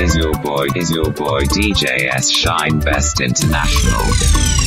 Is your boy, is your boy DJS Shine Best International?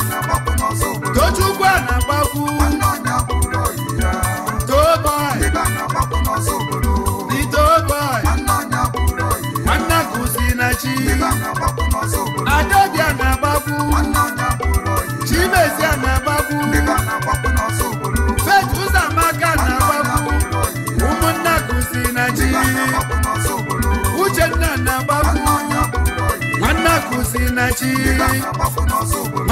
Tochukwu a na-agbakwu nwanne kụzi na chi na-agbakwu a na-agbakwu na-agbakwu na chi uchenna na-agbakwu nwanne kụzi na chi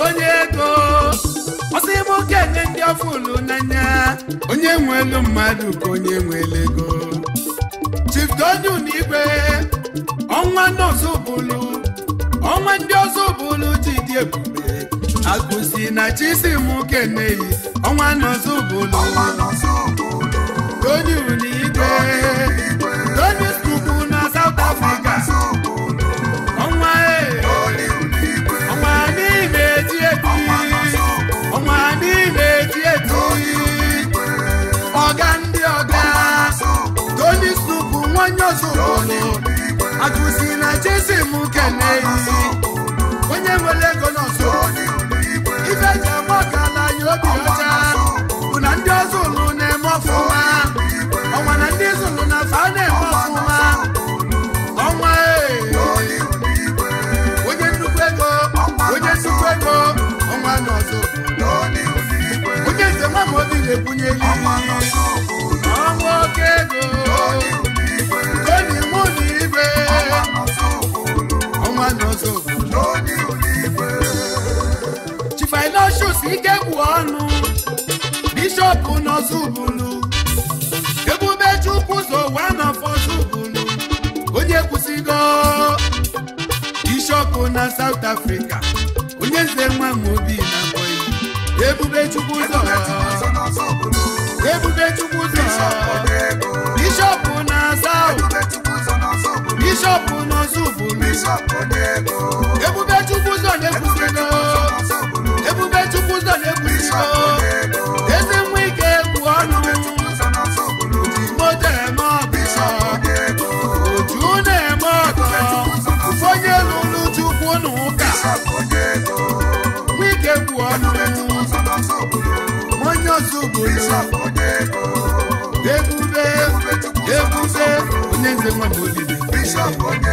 onye ego ọsị ebe enye ndị ọfụ unu n'anya onye nwe elu mmadụ ka onye nwere ego Chief Donu na ọnwa ọnwa n'ọzọ bụlụ ọnwa ndị ọzọ bụlụ ji dị ebube agụsi na chisi m kene ọnwa n'ọzọ bụlụ Donu na igwe onye ọzọ akụzi na jesi m kene onye nwere ego n'ọzọ ife ji agba ọkala anyị obi ọcha bụ na ndị ọzọ ụlụ na-eme ọfụma ọnwa na ndị zụlụ na fa na-eme ọfụma ọnwa onye nnukwu ego onye nnukwu ego ọnwa n'ọzọ onye njem ama obi na-ebunyeli igwe n'ọzọ ike bụ ọnụ bishọp n'ozubulu ebube chukwu zowa n'afọzubulu onye kwụsịgo bishọp na na na south bishọp n'ozubu ebube chukwu zọ na-ekwusino ebube chukwu zọ na-ekwusino eze nwa ike egwu ọnụ moto eme ọgọ oju na-eme ọgọ onye lụrụ chukwu na ụka onye ebube onye bishọp onye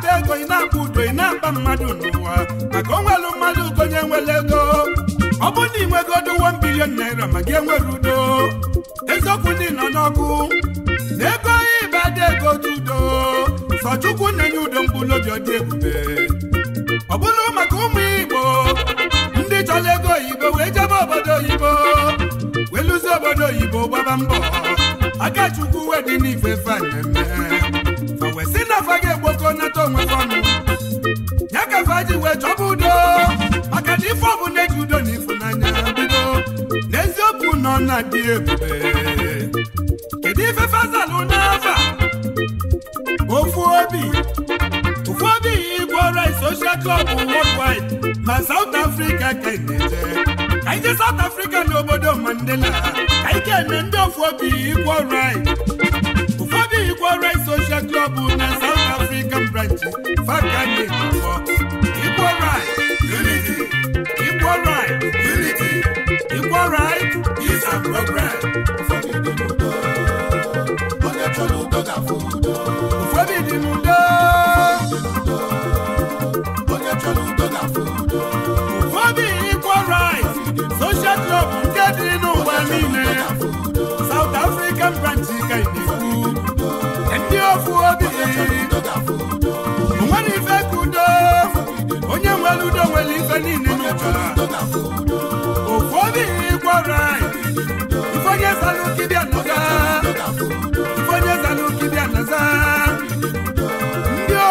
na-akpa ego ị na-akpa udo ị na-akpa mmadụ n'ụwa maka onwelu mmadụ konye nwere ego ọ bụrụ na inwego nwegodo 1 naira ma gị enwere udo eziokwu ndị nọ n'ọkụ na ego ịbada ego dị udo sọ na-enye udo mkpụrụobi ọ dị ebube ọ bụrụ maka ụmụ Igbo ndị chọrọ ego oyibo wee jebe obodo oyibo wee obodo oyibo gbaba mbọ aka Chukwu wedị n'ife fe na-eme dị ebube kedu ife fazalụ n'afa ofu obi ụfọdụ igwe rice social club worldwide ma South Africa ka eneje anyị South Africa n'obodo Mandela anyị ga-eme ndị ofu obi igwe rice ụfọdụ igwe social club na South Africa branch faka nwere ife niile onye zalụ kibia ndị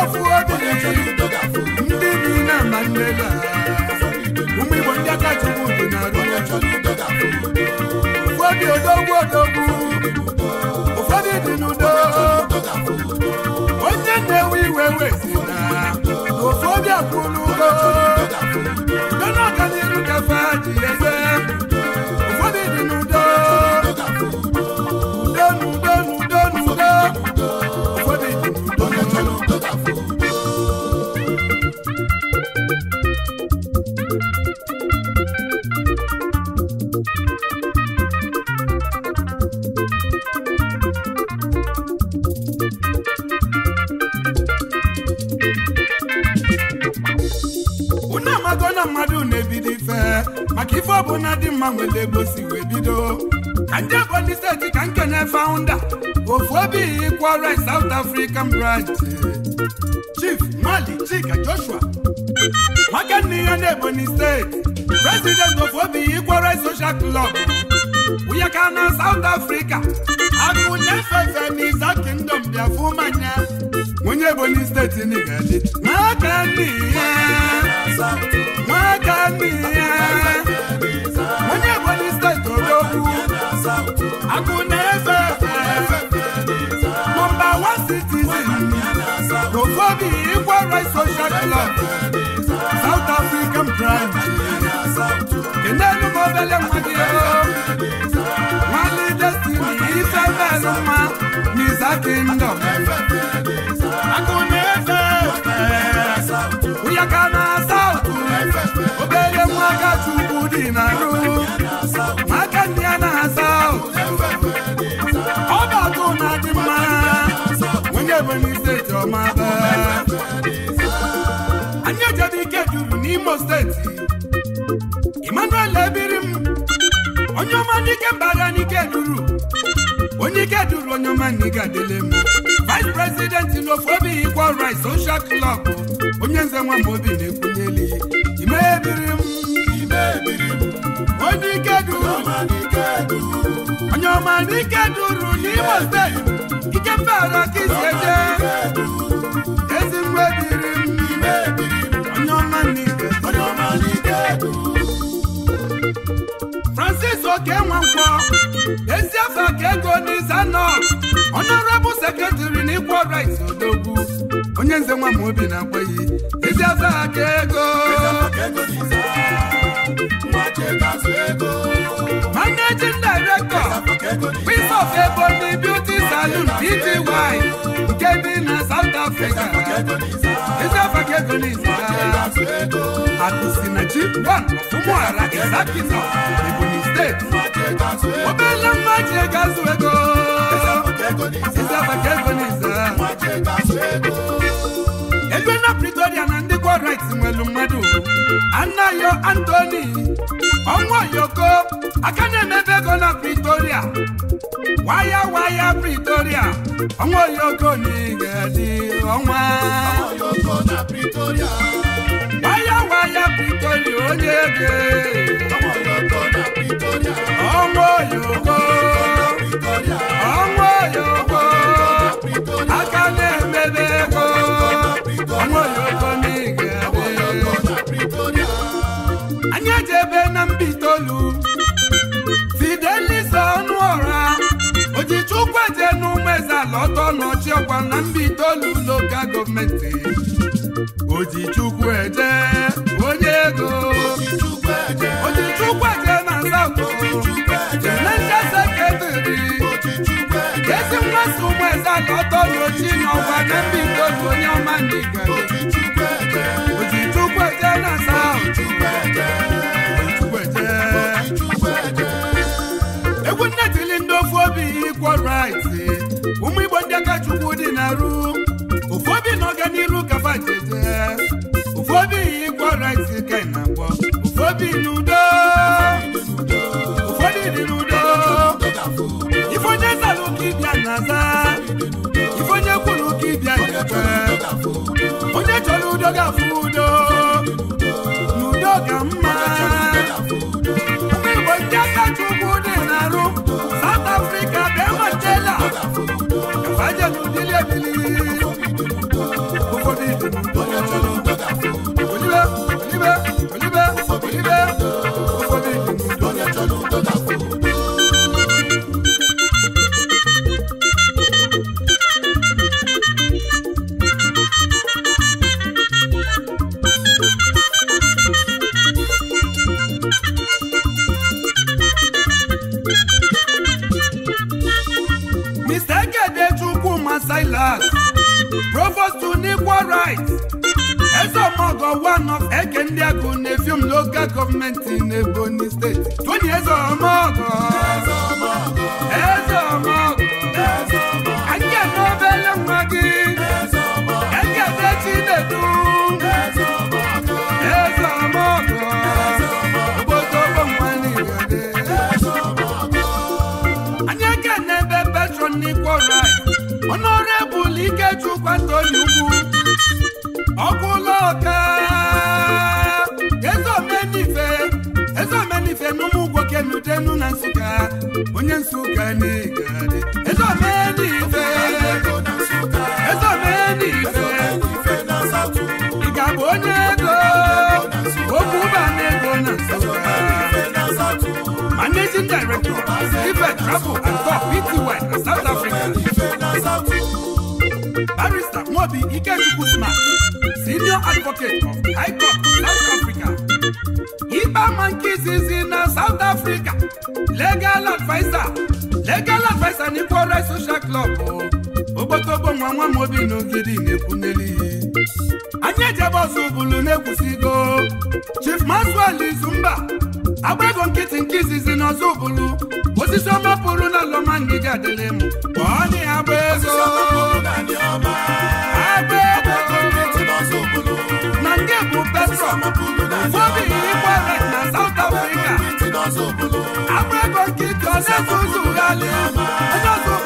ofu ndị bi na ama ụmụ igbo ndị aka chukwu dị na odogwu odogwu ụfọdụ dị n'udo na-ewe iwe Kafadi, yes, ego wee bido ka ndị Ebonyi steeti ka nkene faụnda ofu obi kwara South African branch Chief Mali Chika Joshua nwoke nne ya na Ebonyi steeti president ofu obi kwara Social Club wunye ka na South Africa akụ na Iza Kingdom bịa nye. manya onye Ebonyi steeti n'ịga dị n'aka nne human rights social club South African pride kenenu mobele mwadiro destiny ife belu mma n'iza kingdom akụnefe ụyaka na South obere nwaka chukwu dị na rụ maka ndị ya South ebonyi steeti ọmaba anyị ejede ike juru n'imo steeti emmanuel ebiri m onye ọma n'ike mbara n'ike duru onye ike duru onye ọma n'ike adịle m vice president n'ofu obi equal rights social club onye nze nwa obi na-ekwunyeli ime ebiri m onye ike duru onye ọma n'ike duru ikembere ka isi eje Ezi dịrị m onye ọma ego. Francis Oke Nwankwo, ezi afọ ka ego n'izanọ honorable secretary na equal rights odogwu onye nze nwa obi na-akweghị ezi afọ ka ego managing director Prince of Ebonyi Titi Wine nke dị na South Africa Christopher Kegonis akụsi na G1 ụmụala Izakina Ebonyi steeti obele mmaji gazu ego Christopher Kegonis ebe na Pretoria na ndị Kwarites nwelu mmadụ Anayo Anthony ọnwa yoko aka na-emebe ego na pretoria waya waya pretoria ọnwa yoko na igedi ọnwa waya waya pretoria onye ege ọnwa yoko ọnwa yoko ọkwa na mbido itoolu lokal gọọmenti ojichukwu eje onye ego ojichukwu eje na nsaụ naija seketiri ezi mgbasa ụmụeze ala ọtọloji n'ọkwa na mba itoolu onye ọma ndị ojichukwu eje na nsaụ egwu nne tili ndị ofu obi ikwo right Nudo ga fudo Nudo ga mma Ndị Igbo ndị chukwu dị na-arụ South Africa bịa matela Kafaje n'udili ebili Ezo Ezeomogo one of Eke ndị Agụ na-efium local gọọmenti n'Ebonyi steeti Tony Udenu na Nsukka onye Nsukka n'igade eze omee n'ife eze omee n'ife ị ga-abụ onye ego okwu ụba na na Nsukka managing director ife travel and talk pty na South Africa barrister Nwobi Ikechukwu Smart senior advocate of High Court South Africa nke izizi na South Africa legal advisor legal advisor na Igbo Social Club ogbotogbo oh. nwa nwa m obi n'ogidi na anyị ejebe ọzọ bulu na-ekwusigo Chief Maxwell Izumba agba ego nkịtị nke izizi na ọzọ bulu osisi ọma pụrụ na lọma ngịga adịlị m ọ agba ego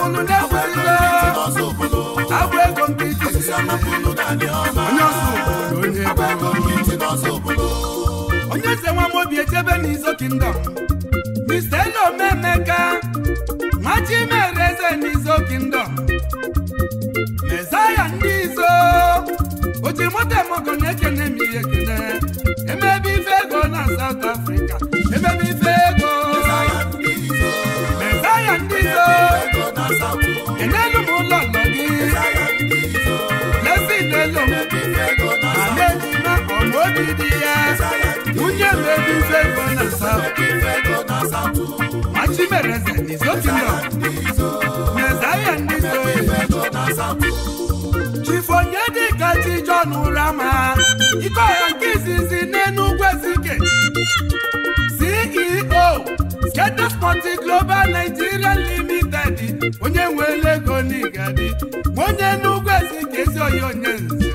onye ọzọ ụbụlụ na ego onye onye eze nwa obi echebe n'izo kingdom Mr. Elomemeka machi mezaya ndị izo oji moto emogo na-ekene m ihe Machimereze n'Izokino Mezaia n'Izoye Chifonye dịka Chijon Rama Iko ya nke izizi n'Enugwu Ezike CEO Sketch Sporting Global Nigeria Limited onye nwere ego n'Igadi onye Enugwu Ezike ezi oyi onye nze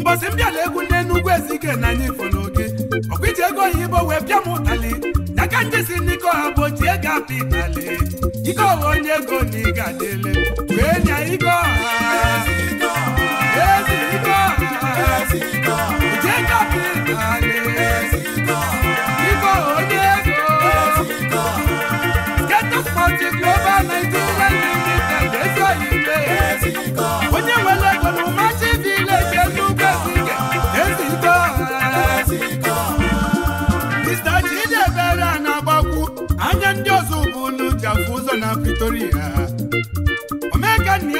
mbọsị mbịala egwu n'Enugwu Ezike na anyị fụrụ abịamụtali n'aka ndị si n'iko ha ga ego apịtali ike ọghọ onye ego na ị ga-adịle wee nya iko ọha ezi iko ọha uche ego apịtali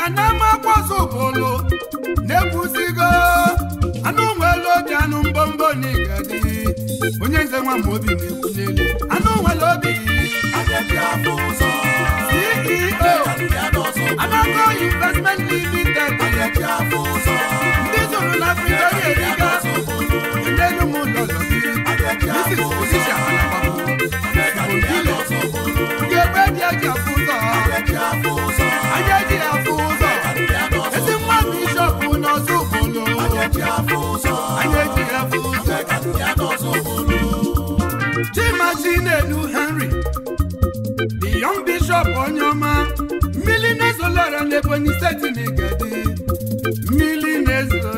kanamapọsobolo na-ekwuzigo anụ nwere obi anụ mbọmbọ na igadi onye nze nwa ma obi na-ekwu n'elu anụ nwere obi CEO Anago Investment Limited ndị zụrụ na Victoria Eriga ndị ụmụ ụlọ lọziri Mrs. Position Anababo Odile Ugegbe dị ajabụ steeti n'igedi mmiri na-ezolo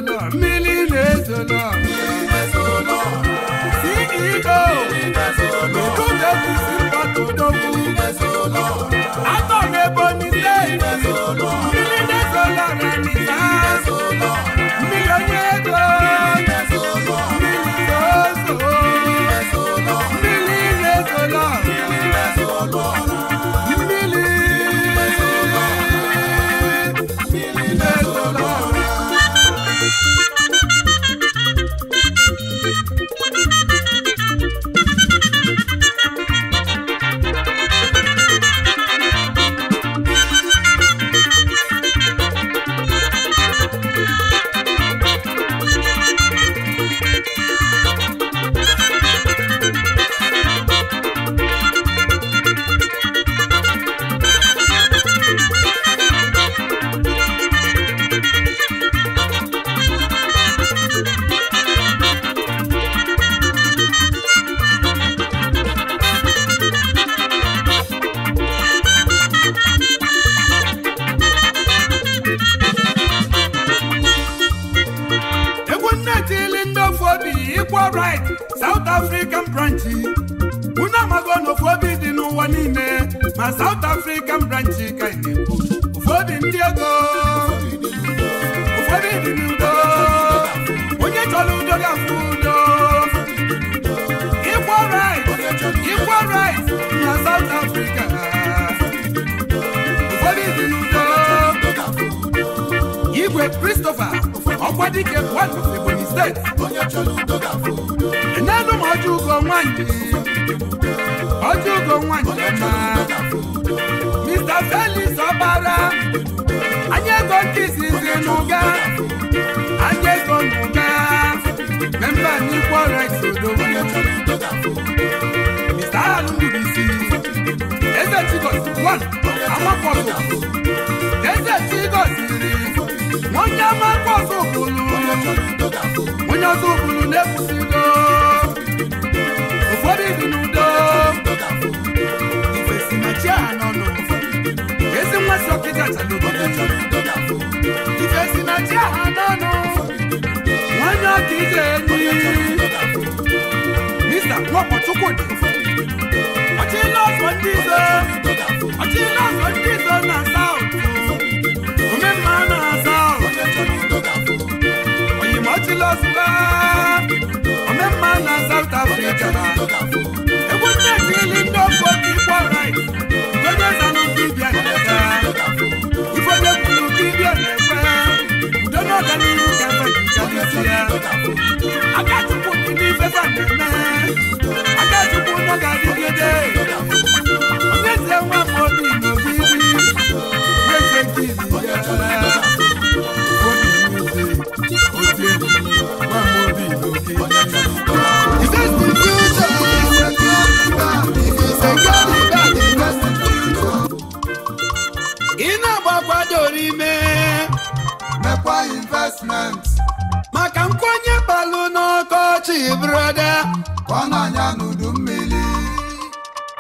brother, come on and do mmiri.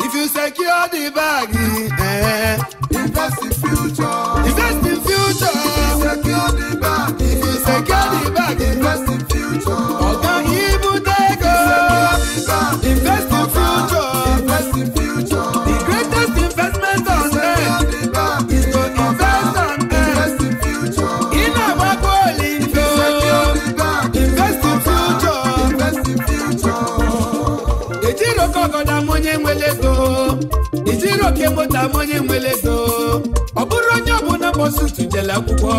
If you secure the bag, eh, eh. invest in future. gbara akwụkwọ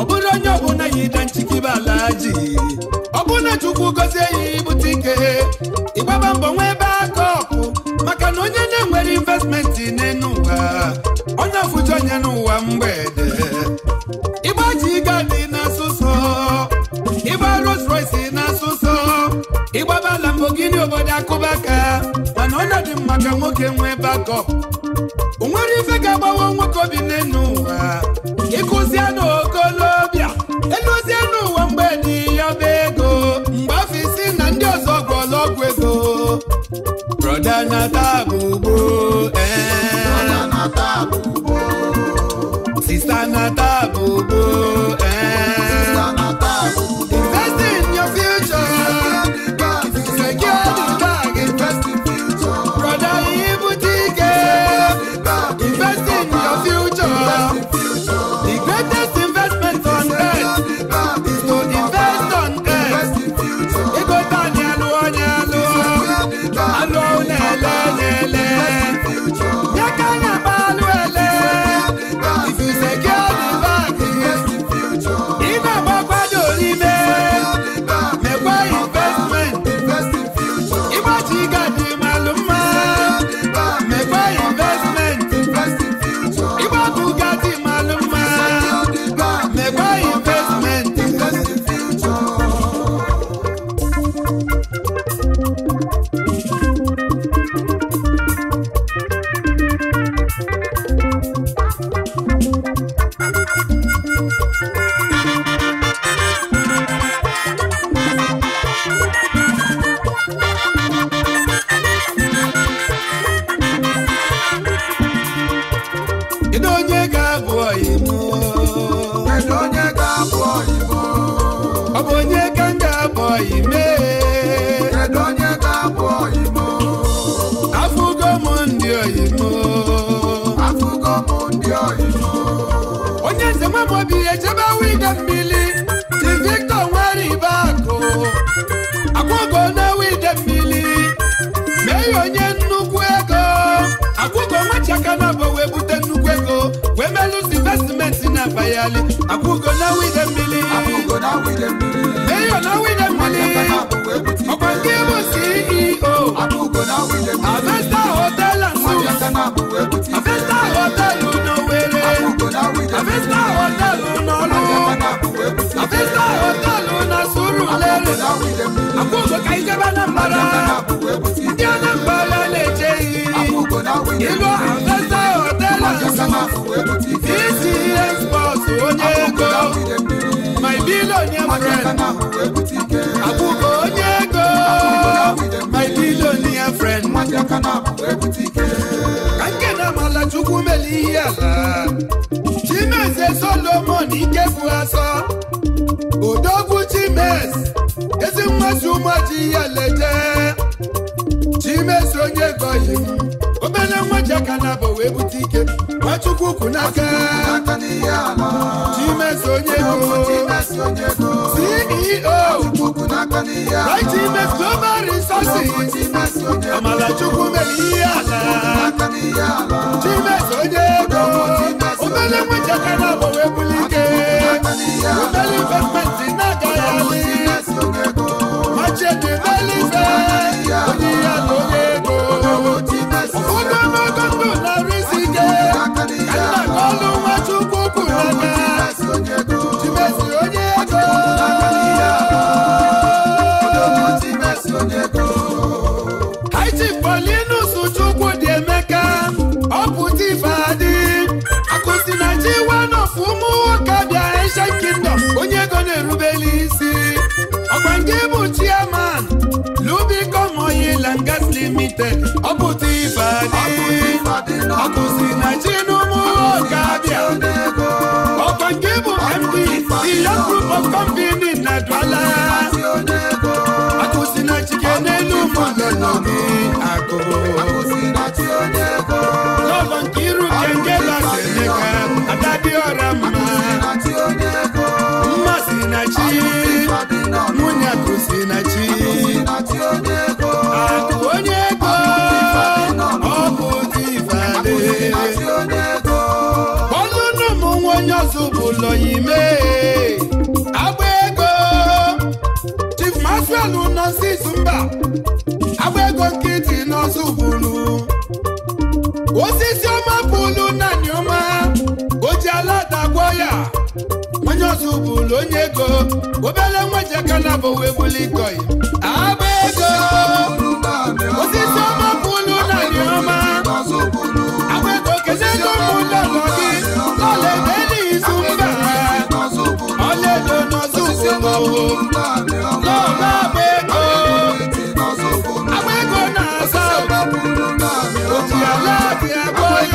ọ bụrụ onye ọbụla yi ida nchikibe ala ji ọ bụ na chukwu gozie ya ibute ike ịgbaba mbọ nwee ebe aka ọkụ maka na onye na-enwere investmenti n'elu ụwa onye ọfụji onye n'ụwa mgbede ga gadi na-asụsọ ịgba Rolls na-asụsọ ịgbaba Lamborghini obodo akụba aka mana ọnọdụ maka nwoke nwee bakọp o nwere ife ga-agbawa nwoke obi n'elu ụwa na-ata abụbọ ee eh. sista na-ata akwụkwọ ka ijebe na mbara ndị anambra na-eje iyi ilu afesa hotelu isi ihe spọt onye ego my billionaire friend akwụkwọ onye ego my billionaire friend ka nke na amala chukwu mele ihe ala chimeze solomon ikekwu asọ odogwu chimes ji ihe leje chimeso onye na abụ wee bute ike onye go ceo right ime global resources amalachukwu mere ihe onye na abụ wee buli ike na-agaghị ṣètì lẹ́lẹ́fẹ́ oníyà tó yẹ kó. Òkúta mọ́tò tó lọ rí sí ké. Kálá kọ́ ló wá tún kúkú lọ́dẹ. ọkùtì ìfàdé ọkùsì nàìjínúmú ọ̀gábíà ọ̀kàngébù md ìyá group of company nàdúrà ọkùsì nàìjíríà nínú mọ̀lẹ́nà mi àgọ́ lọ́wọ́ kírun kẹ̀kẹ́ láti ẹ̀ka àdábí ọ̀rá mọ́ mmasì nàìjíríà múnyàkùsì nàìjíríà. osisi ọma bulu naanị ọma o ji ala dagwọ ya onye ọzọ bụlu onye ego obele nwa jekana bụ wee buli Dia aláàbí ẹ̀kọ́ yìí.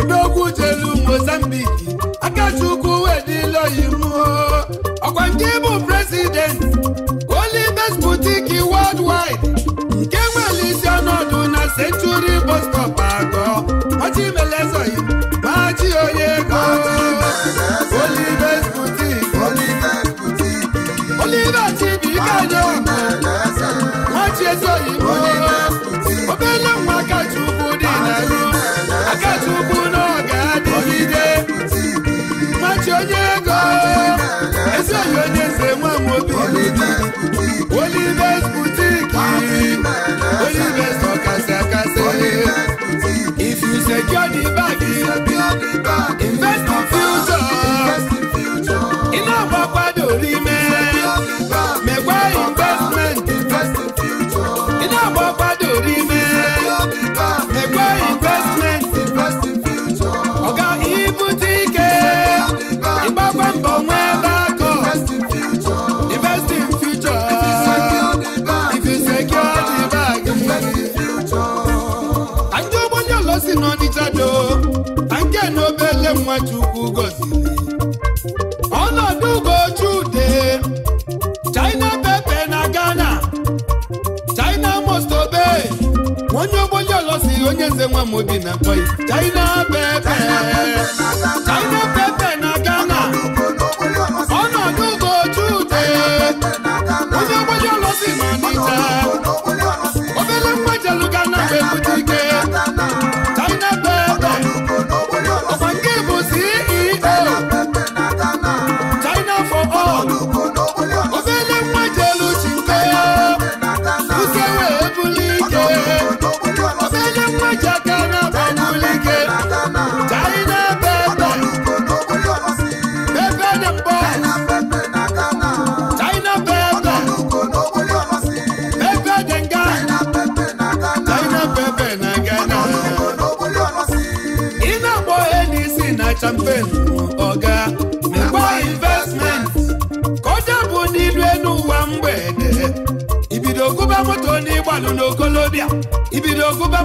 odogwu jelu mozambiki akachukwu wedila ọkwa nke bụ prezident olibes butiki worldwide nke nwere isi ọnọdụ na century bostop stop atọ ọchịmelezoyi machi onye go olibes butiki olibes butiki machi boutique Olivers boutique Olivers for kase kase if you secure the bag invest. mudi na kwai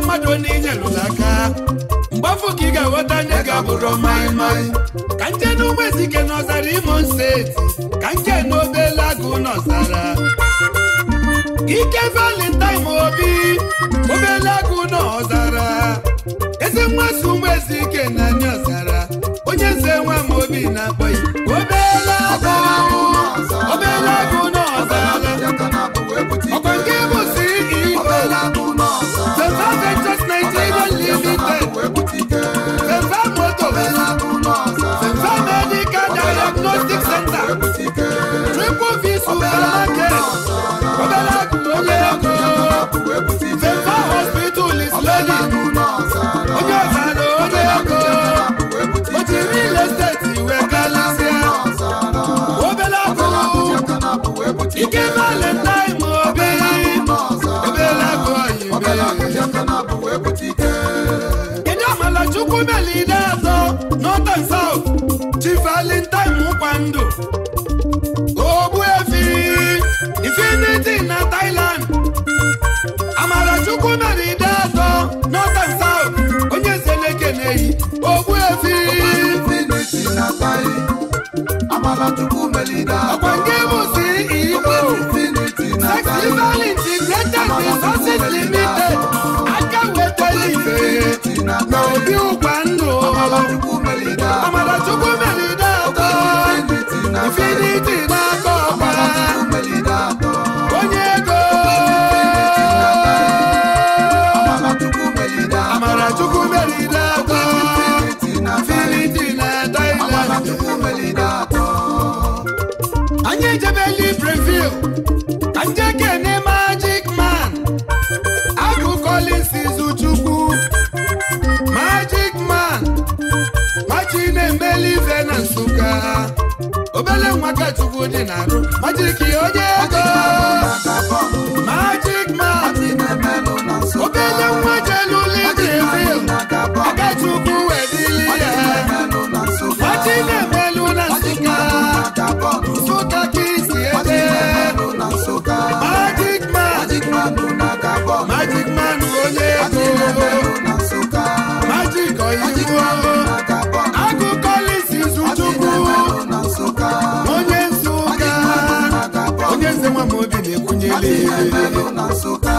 mmadụ na lụrụ aka mgbe afọ ka ị ga-aghọta ndị ga-abụrụ maịmaị ka nje na ụmụezike n'ọzara imo steeti ka nke na obele agụ n'ọzara ike valentine obi obele agụ n'ọzara eze nwaso ụmụezike na anyị ọzara onye nze nwa m obi na-akpọ ya obele agụ obele agụ n'ọzara ọkwa nke Jésù Ọbẹ̀lákè Ọbẹ̀lákè onye ọkọ Fẹ́fà hospital is ready onye ọ̀sán ni onye ọkọ o ti rí ilé state ìwé kálásíà Ọbẹ̀lákè ike máa lè ta ìmọ̀ ọbẹ̀ Ọbẹ̀lákè ọ̀yìn bẹ́ẹ̀. Kedụ Amala Chukwu Meli na-azọ North and South Chief Valentine Mukwandu. chukwu melida ọkwa ndị si igbo sex resources limited aka wetara ife na obi ụgwa ndụ amarachukwu melida atọ infinity na-akọ ijebeli brevil njekene magic man agụ collins izuchukwu magic man machi na-emeli ife na nsụka obele nwaka chukwu dị na arụ majik onye ego na Nsụka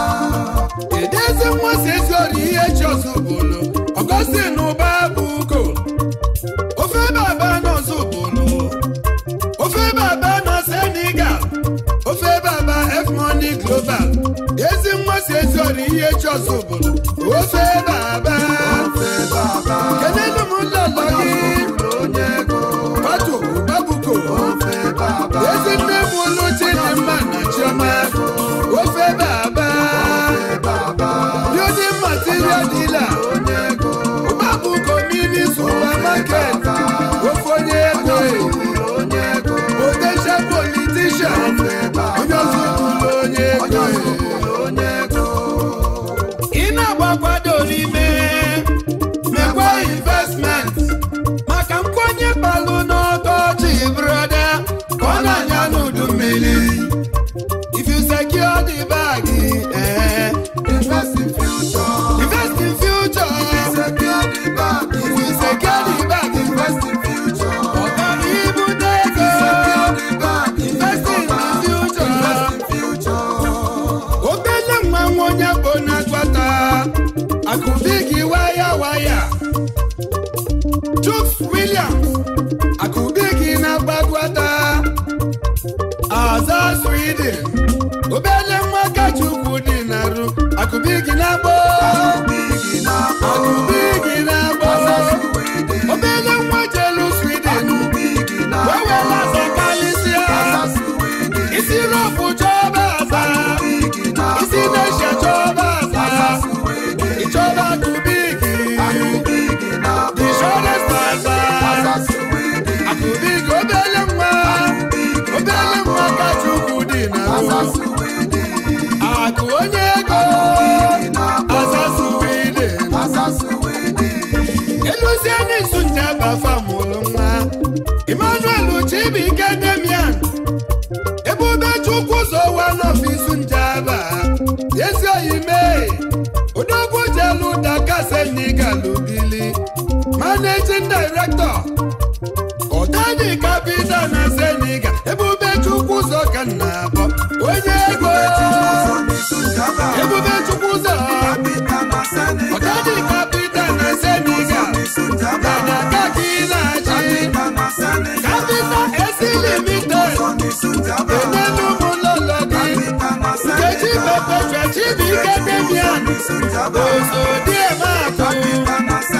edeze nwa eze ori ihe eji ọzọ akụdi gị waya waya Chuks Williams obele dị na onye ego azasuwede eluzie n'izu nje bafa mụrụ nwa Emmanuel Chibike Demian ebe Ubechukwu zowa n'ọfiisi njaba managing director Senegal bido na Senegal ebube chukwu ụzọ ka nna abọ onye ego ebube chukwu ụzọ ọkadị kapita na Senegal mana aka gị na-achị kapita esilimite enelu ụmụlọlọ gị nkechi pepetua chibuike debian osodiemaku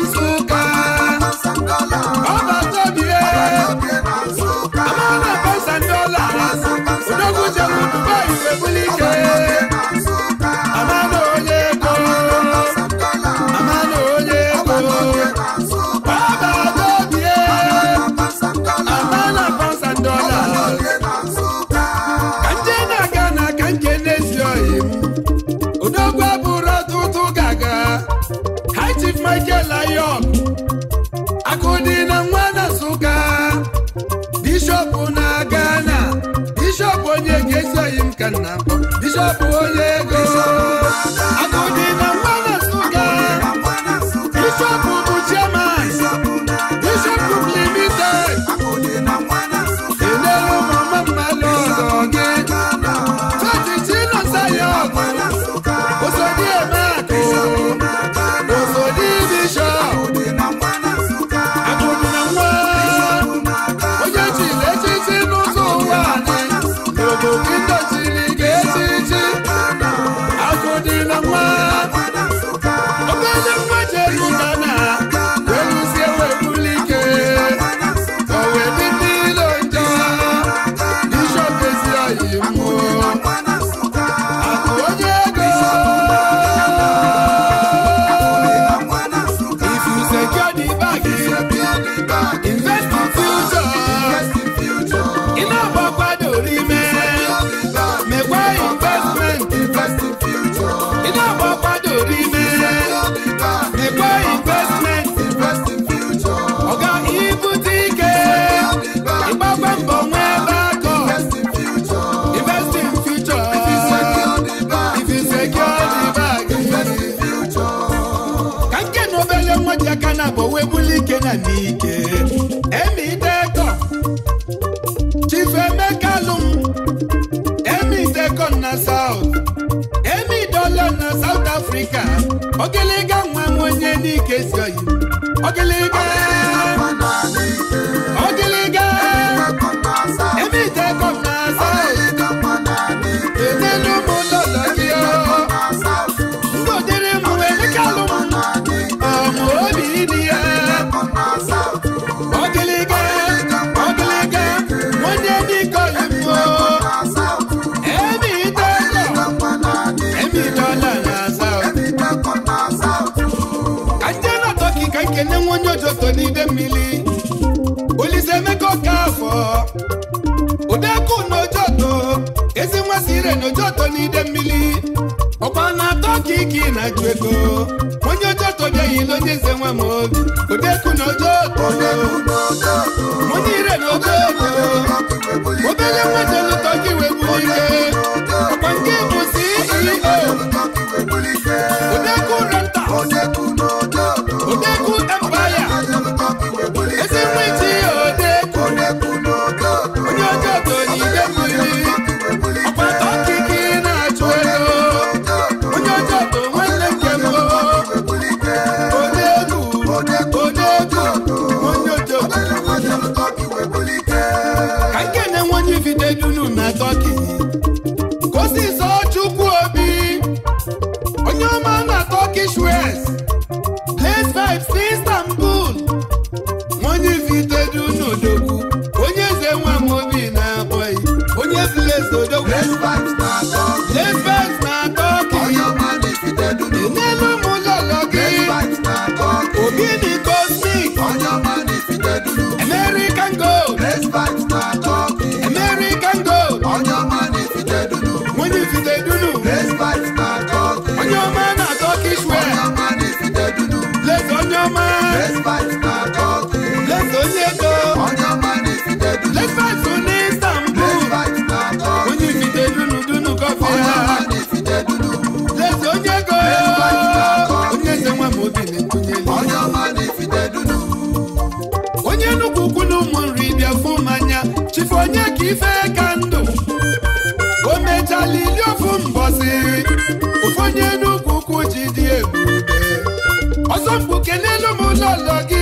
bọọlụ gị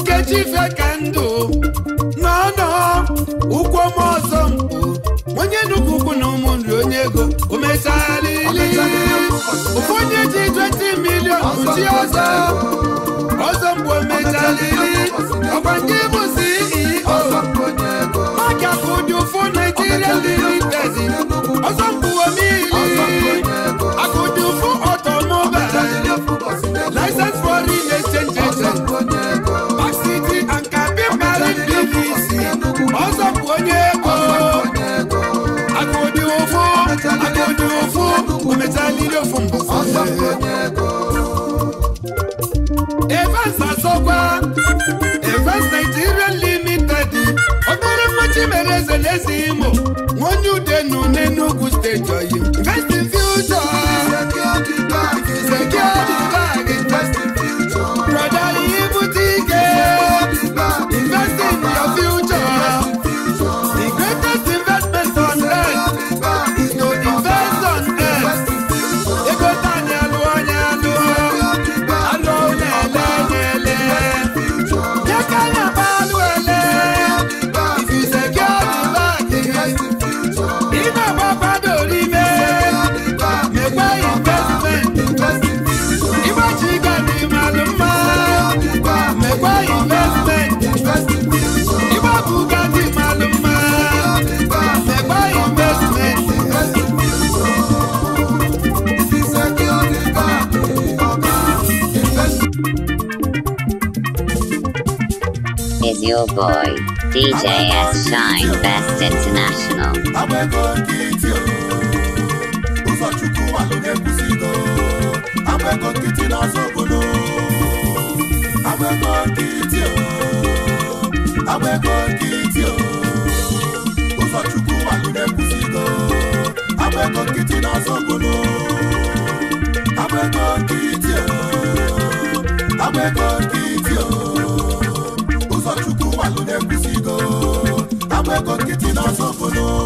nkechi ife ka ndụ n'ọnụ ụkwụ m ọzọ mkpu onye nnukwu ukwu na nri onye ego omechalili ụfụ onye ji 20 milion uchi ọzọ ọzọ mgbe omechalili ọkwa nke bụ ceo maka ụdị ụfụ naijiria limited ọzọ mgbuomili n'ile ofu mbọ nigerian limited obere mmachi mere eze n'eze imo Little Boy, DJ S Shine Best International. Abego Kiti o, Uzochukwu Aloge Kusido, Abego Kiti n'Ozobodo. Abego Kiti o, Abego Kiti o, Uzochukwu Aloge Kusido, Abego Kiti n'Ozobodo. Abego go kitty na sokolo.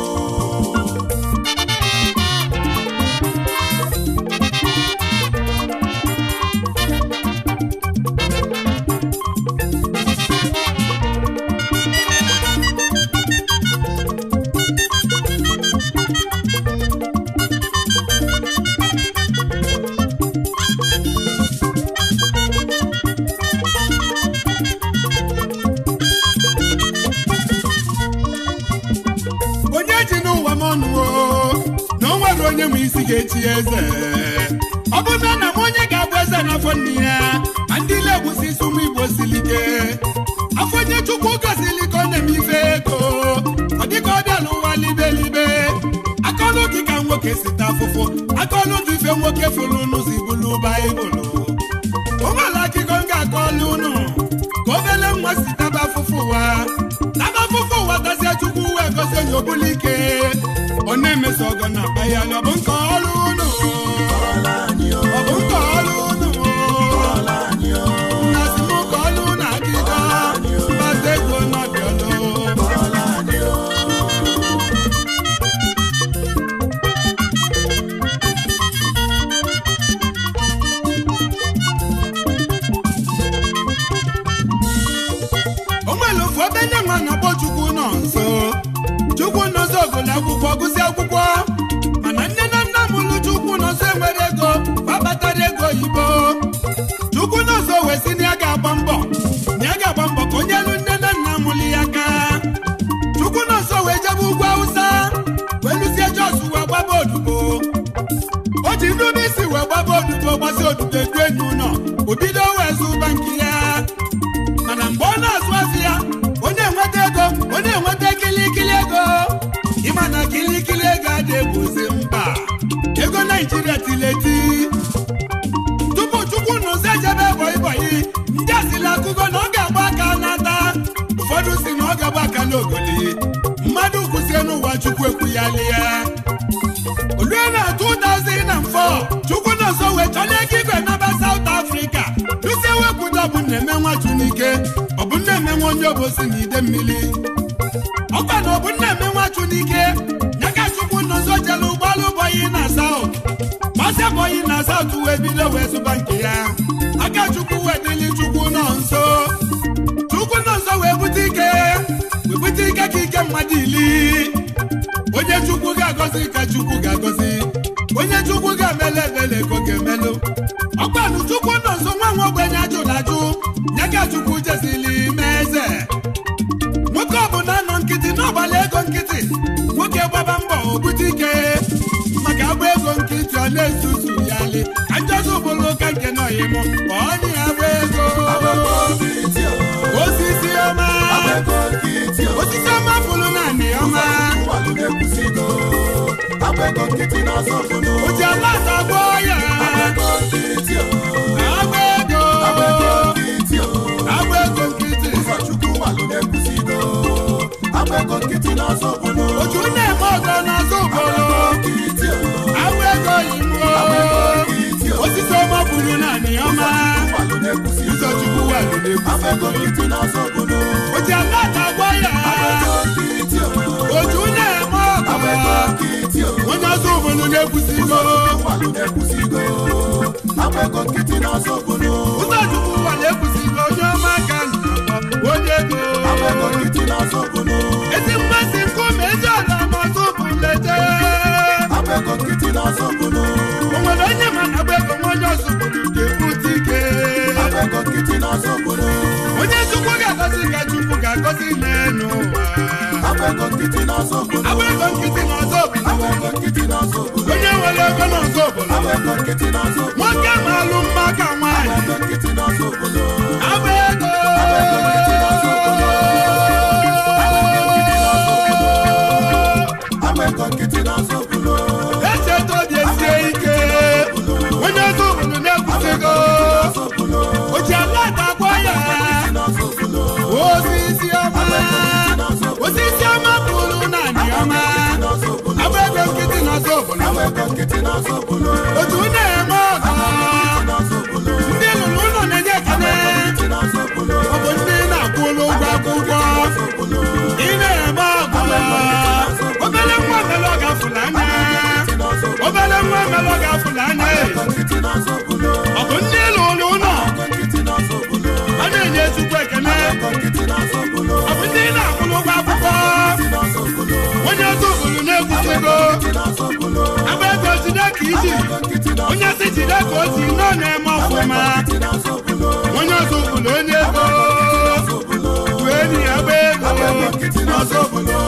nwoke ma alụ mma ka nwaanyị otu na-eme ndị lụrụ ụlọ na-enye ọ bụ ndị na akwụkwọ ị na-eme ọ anya ọ anya ọ bụ ndị na akwụlụ ụgwọ akwụkwọ onye obodo na jide kiji onye si jide ka o si nọ na-eme ọfụma onye ọzọbụla onye ego wee nyi agba ego n'ọzọbụla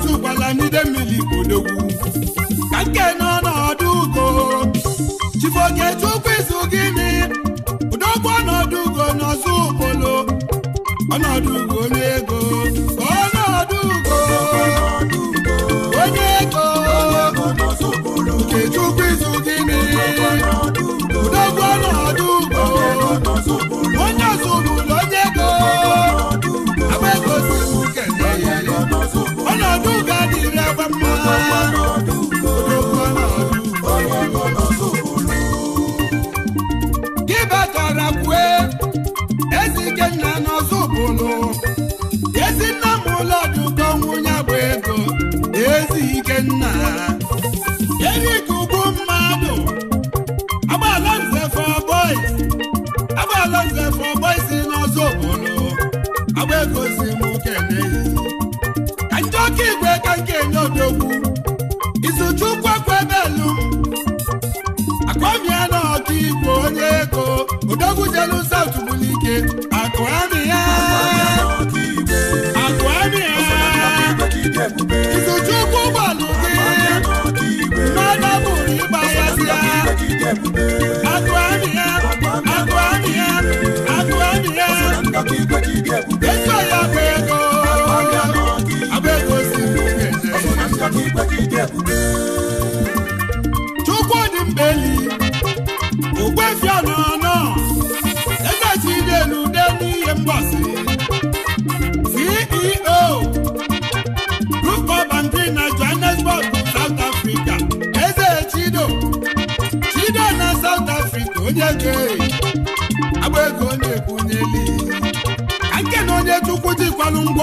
Maazị Ụgbalamide mmiri bodogwu ka nke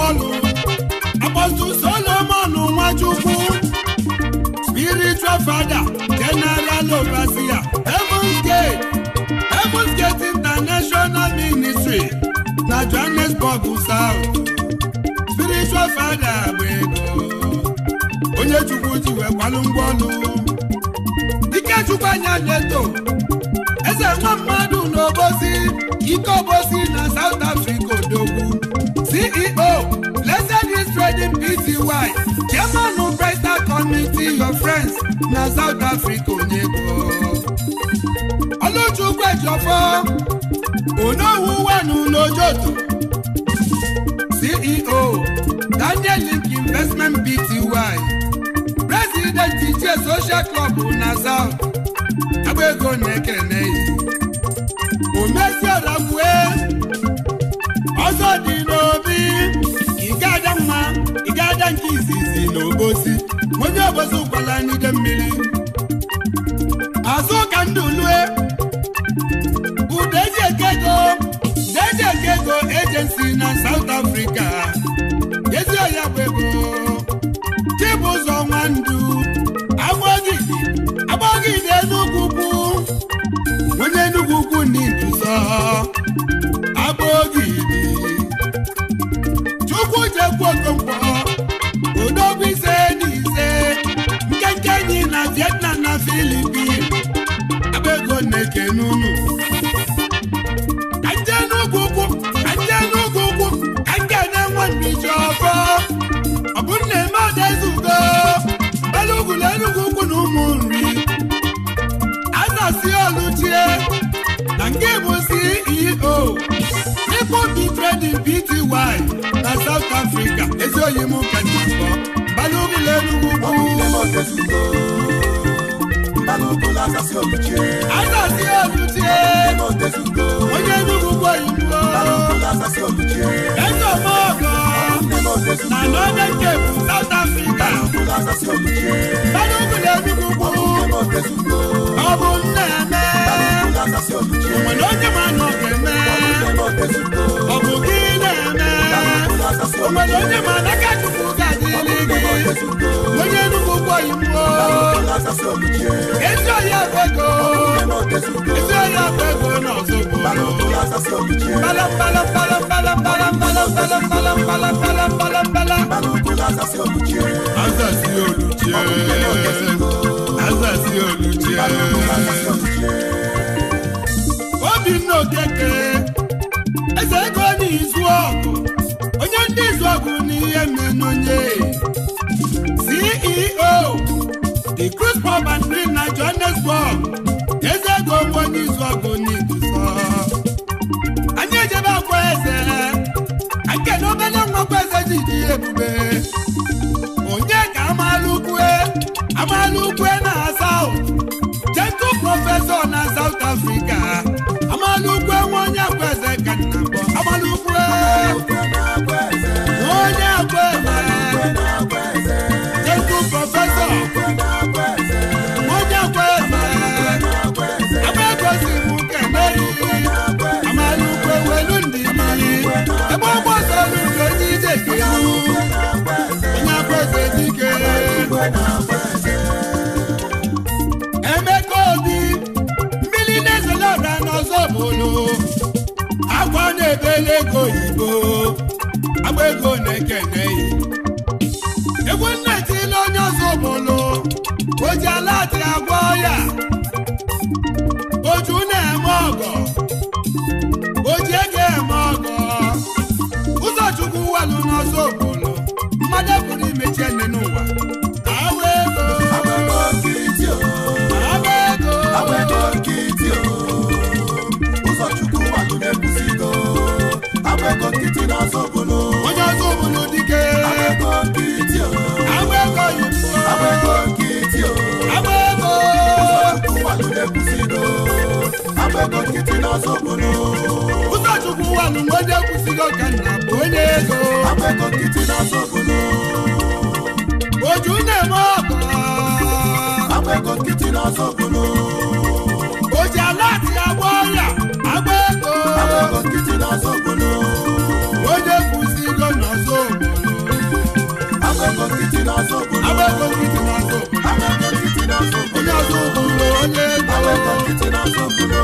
ọnụ apọstụl solomon nwachukwu spiritual fada general overseer heavens gate heavens gate international ministry na johannesburg south spiritual fada bụ onye chukwu ji wee kwalụ ọnụ ikechukwu anya leto, eze nwa mmadụ obosi ike obosi na south africa million friends na South Africa onye bụ Oluchukwu Ejiofor onowu wanu n'ojoto CEO Daniel Link Investment Bty. President Ichie Social Club na South agba ego na-ekene omesiorabue ọzọ dị n'obi ike ada nwa ike ada nke izizi na ewezụkwala n'ide mmiri azụ ka ndụ lue ude ekego ekego ejensi na South Africa onye Enugu gwoyibo ezeọmọgọ na Northern Cape South Africa Balogun Enugu gbo ọ bụ nna nwere onye ma na ọ eme ọ bụ gị na-eme iwo. Ezi oya fego. Ezi oya fego na ozugbo. Bala bala bala bala bala bala bala bala bala bala bala bala. Azasi oluche. Azasi oluche. Obi nnọọ keke. dị ebube sọgbụnụ ụzọchukwu wanụ mgbe onye kwụsịrị ọka nna bụ onye ego akwụkwọ nkịtị na sọgbụnụ oju na-eme ọkụ akwụkwọ nkịtị na sọgbụnụ oji ala atị agba ọrịa agba ego akwụkwọ nkịtị na sọgbụnụ onye kwụsịrị na sọgbụnụ akwụkwọ nkịtị na sọgbụnụ akwụkwọ nkịtị na sọgbụnụ onye ọzọ obodo onye ego akwụkwọ nkịtị na sọgbụnụ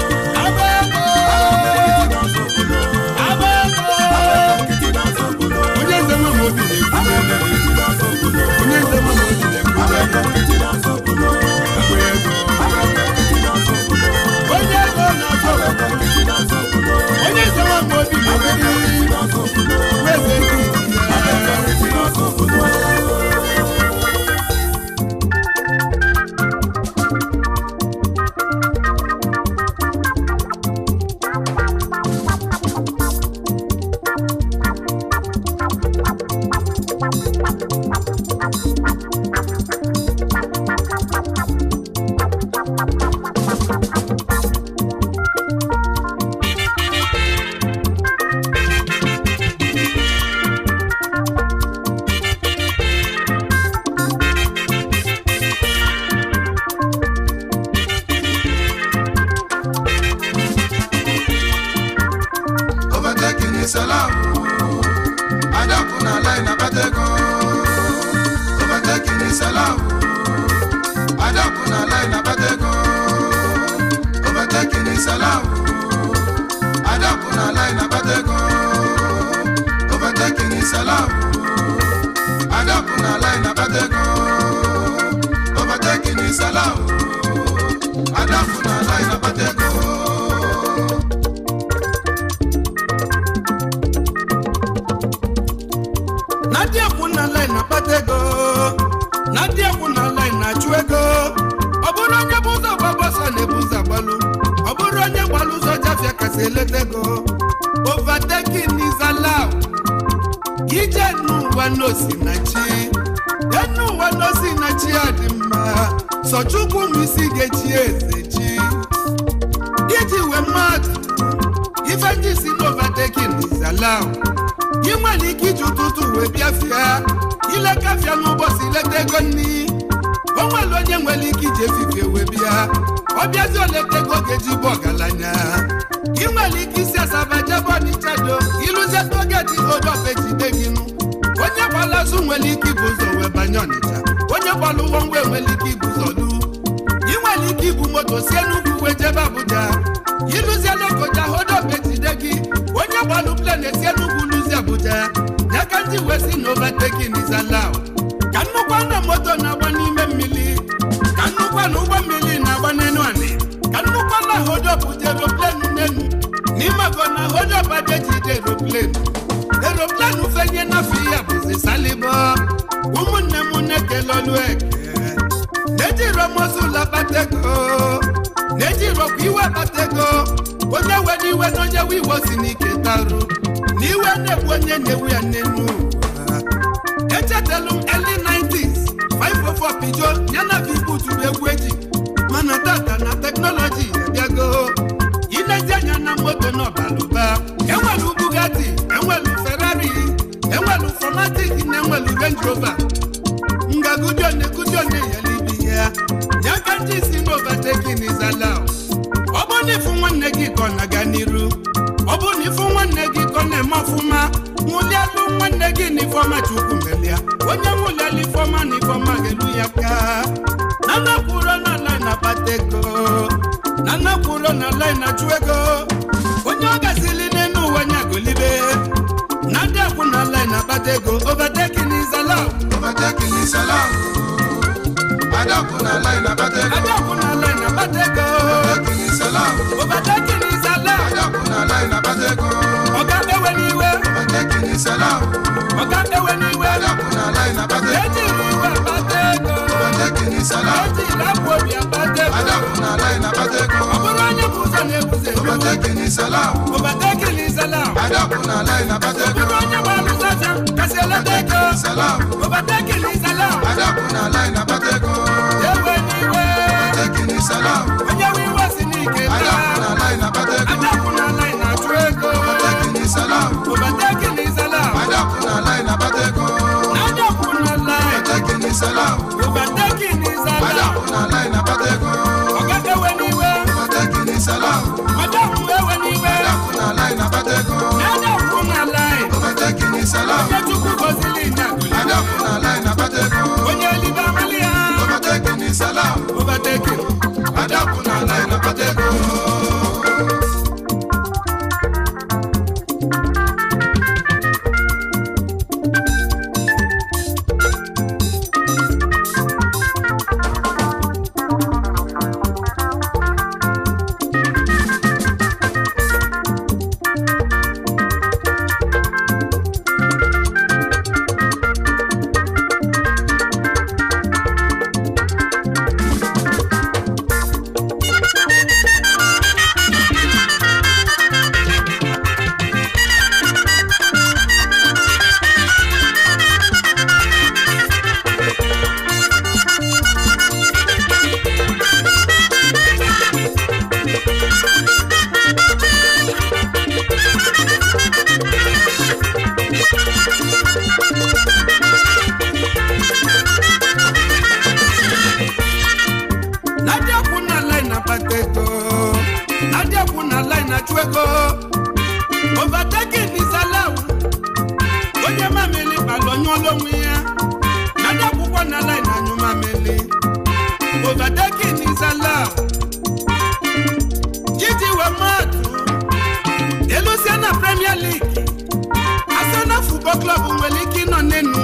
futbọl club nwere ike ịnọ n'enu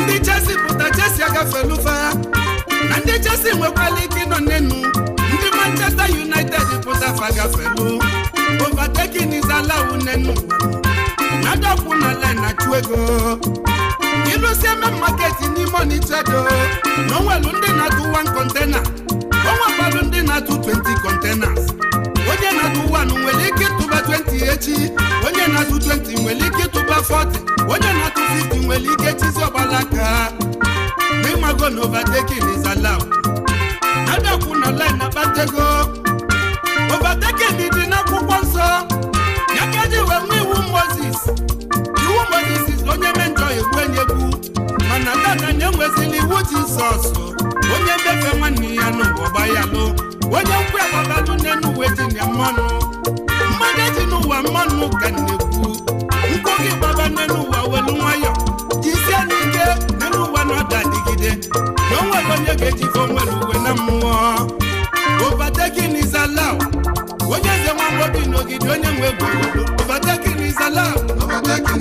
ndị chesi pụta chesi agafelu fa na ndị chesi nwekwara ike ịnọ n'enu ndị Manchester United pụta fa agafelu overtaking is allowed n'enu na-adọkwu na line achụ ego ịlụsie eme market n'ime Onitsha do na onwelu ndị na-atụ one container onwekwalu ndị na-atụ 20 containers onye na-atụ 1 nwere ike tụba 20 echi onye na-atụ 20 nwere ike tụba 40 onye na-atụ 50 nwere ike chizi ọgbala aka ịmago na overtaking is allowed adakwu na batego akpatego overtaking dị n'akwụkwọ nsọ ya ka e ji wee nwee iwu Moses kwesịrị iwu jizọs onye ndefe nwanne ya n'ụwa gbayalụ onye nkwe agbabalụ n'enuwe dị na mmanụ mmanụ eji n'ụwa mmanụ ka na-ekwu n'elu ụwa welu nwayọ jisie n'ike n'elu ụwa na na o nwere onye ga uwe na mmụọ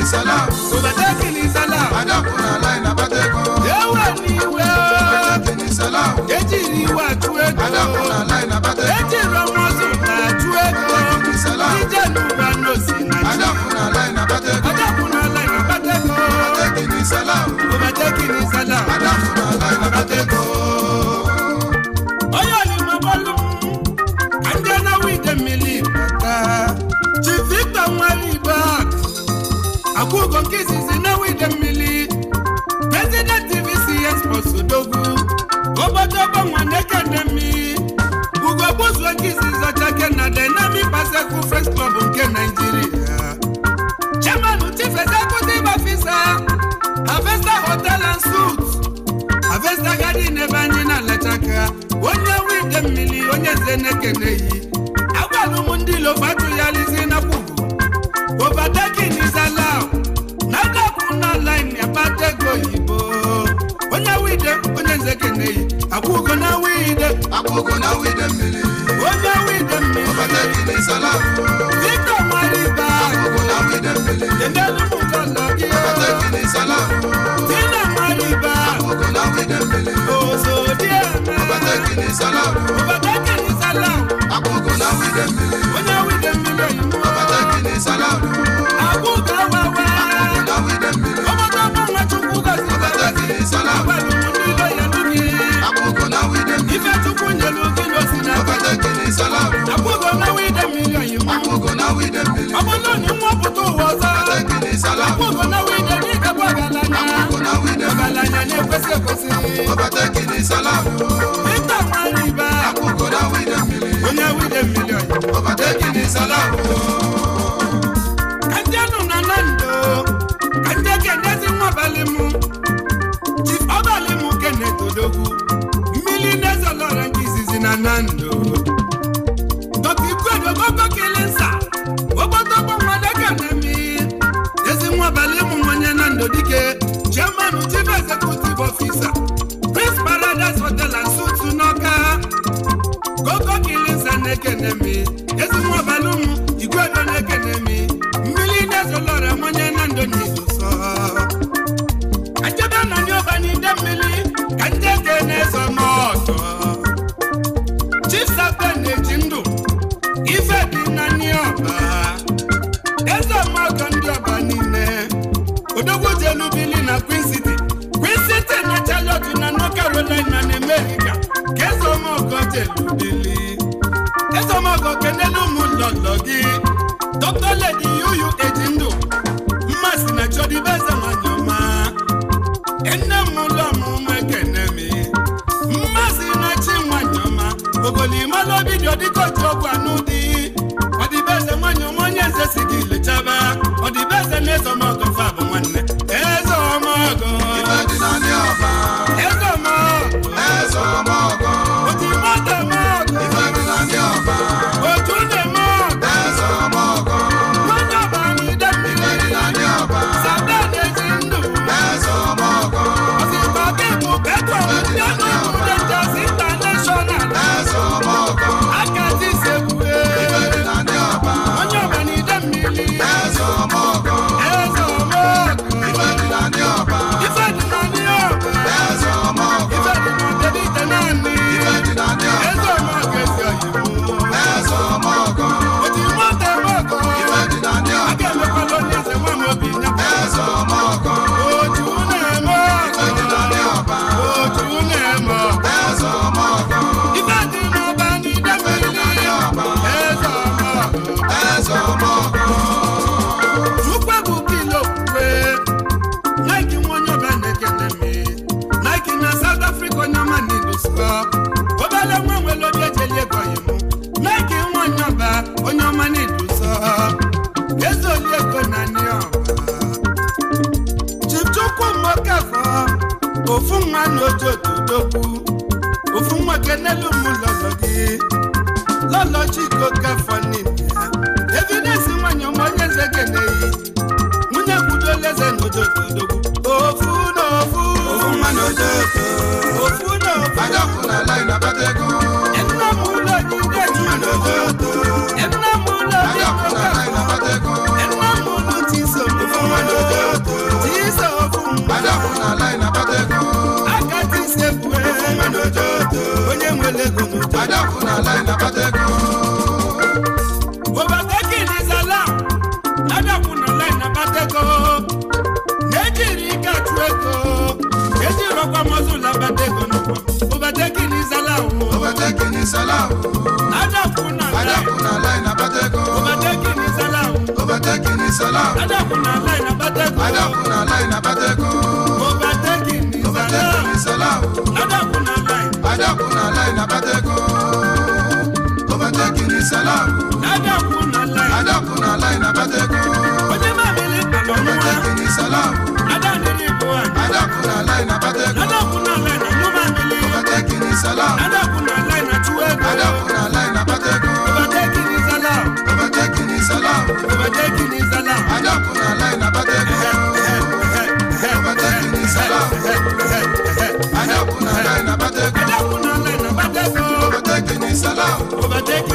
kìlì sálà. kò bá jẹ́ kìlì sálà. adákùnrin aláìlábàtẹ́kọ̀. ewé ni wẹ́. kò bá jẹ́ kìlì sálà. kejì ni wà tú ẹ̀kọ́. adákùnrin aláìlábàtẹ́kọ̀. kejì rọmọ sùn là tú ẹ̀kọ́. kìlì sálà. jíjẹ́ nu ra nù sí nà. adákùnrin aláìlábàtẹ́kọ̀. adákùnrin aláìlábàtẹ́kọ̀. kò bá jẹ́ kìlì sálà. kò bá jẹ́ kìlì sálà. adákùnrin akademi ugogbozu nkezi zọcha kena dynamic Baseku nke Naijiria chairman chief executive officer Avesta Hotel and Suites Avesta Garden ebe anyị na-alachaka onye nwe ide mmiri onye eze na-ekeneghị agwa m ndị ya lizi Okuna with them mele. Okuna with them mele. Baba Tẹ́kí ní Sọlá. Victor Mariba. Okuna with them mele. Dèndé Lumu Kọ̀nà kí o. Baba Tẹ́kí ní Sọlá. Tina Mariba. na wi dem mele. Oso díẹ̀ mẹ́. Baba Tẹ́kí ní Sọlá. Baba Tẹ́kí ní Sọlá. Okuna with them mele. Okuna with them mele. Baba Tẹ́kí ní Sọlá. Akuka wẹ́wẹ́. Okuna with them mele. salam. tó fún wa Chukwu Gosi. Baba Tẹ́kí ní Sọlá. Pẹ̀lú salam. Akpogo na we dem million you. Akpogo na we dem million. Abolo ni mo putu wasa. Ateki ni salam. Akpogo na we dem ni kabo agalanya. Akpogo na we dem. Agalanya ni kwese kwese. Obateki ni salam. Ita mariba. Akpogo na we dem million. Onya we dem million. Obateki ni salam. Kajanu na nando. Kajake ndezi mwa balimu. Chief Obalimu kene todogu. Millionaires olora ngizizi na nando. na-ekene eme ezinwaọbala ụmụ igwe do na-ekene mi mmiri na-ezolọra nwanye na ndụ n'izuso achebe na ndị ọba n'ide mmiri ka ndị eke na-ezo n'ọtọ chisape na-eji ndụ ife dị na ndị ọba eze mmadụ ndị ọba niile odogwu jelu bili na Queen City Queen City na Charlotte na North Carolina na America ka eze ọma ọgọ jelu bili dandan kí. Overtaking is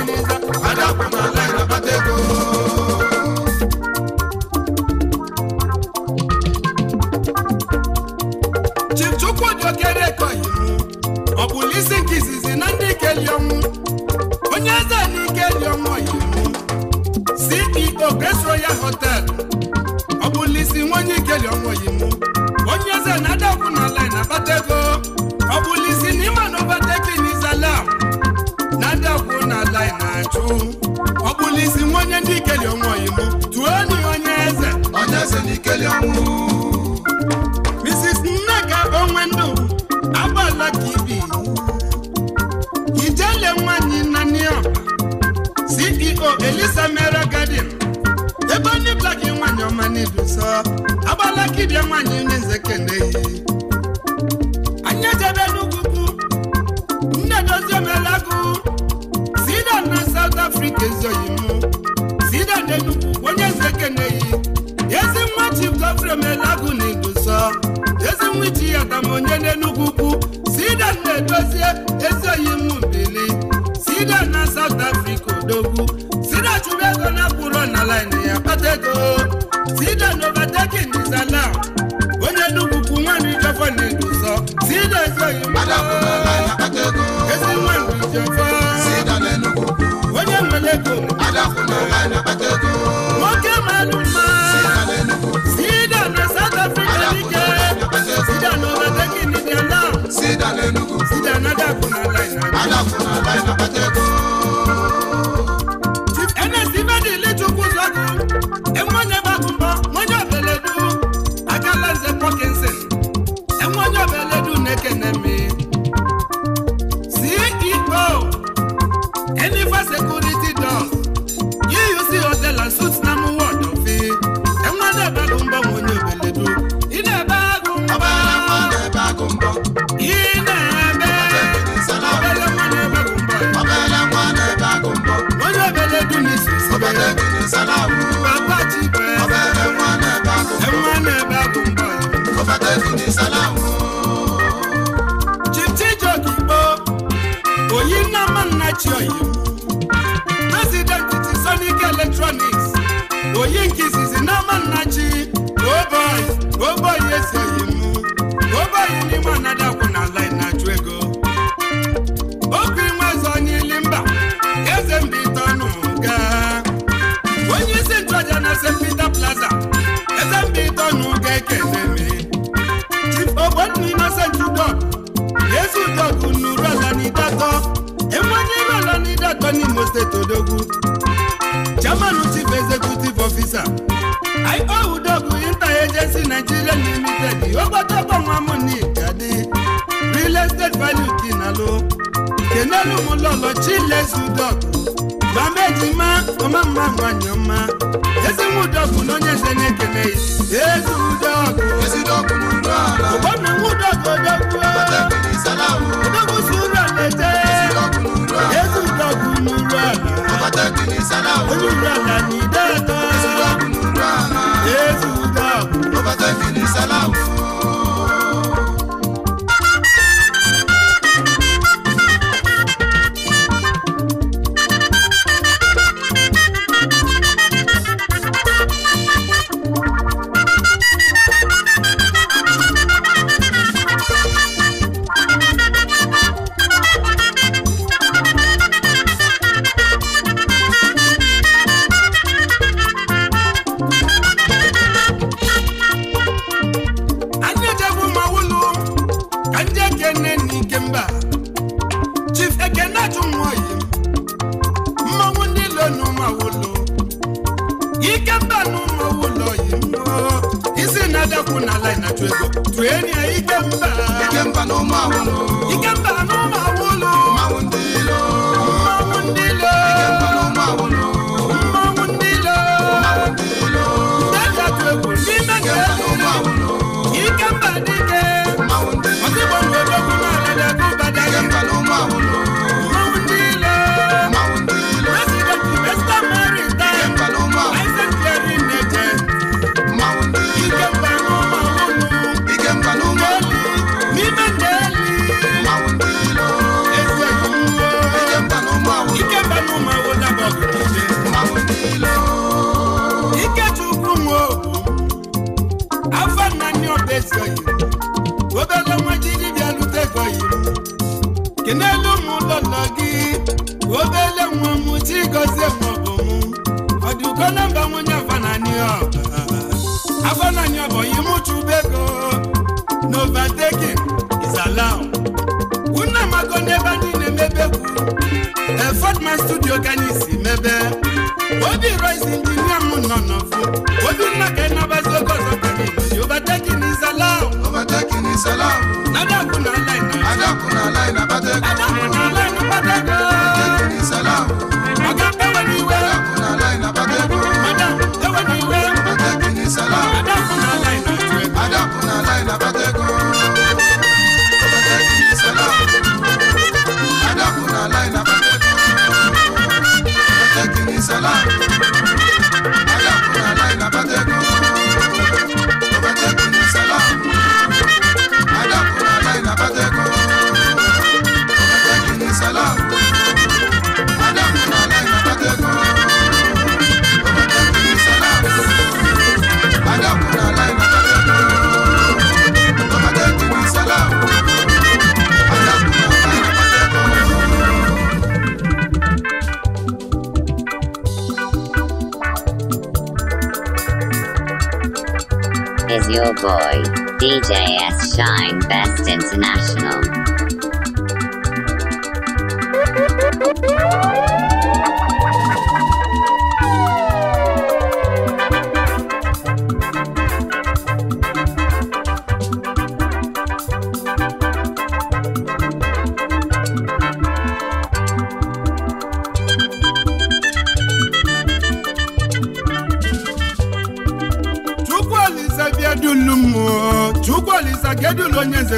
Ojú na ka boy, DJS Shine Best International.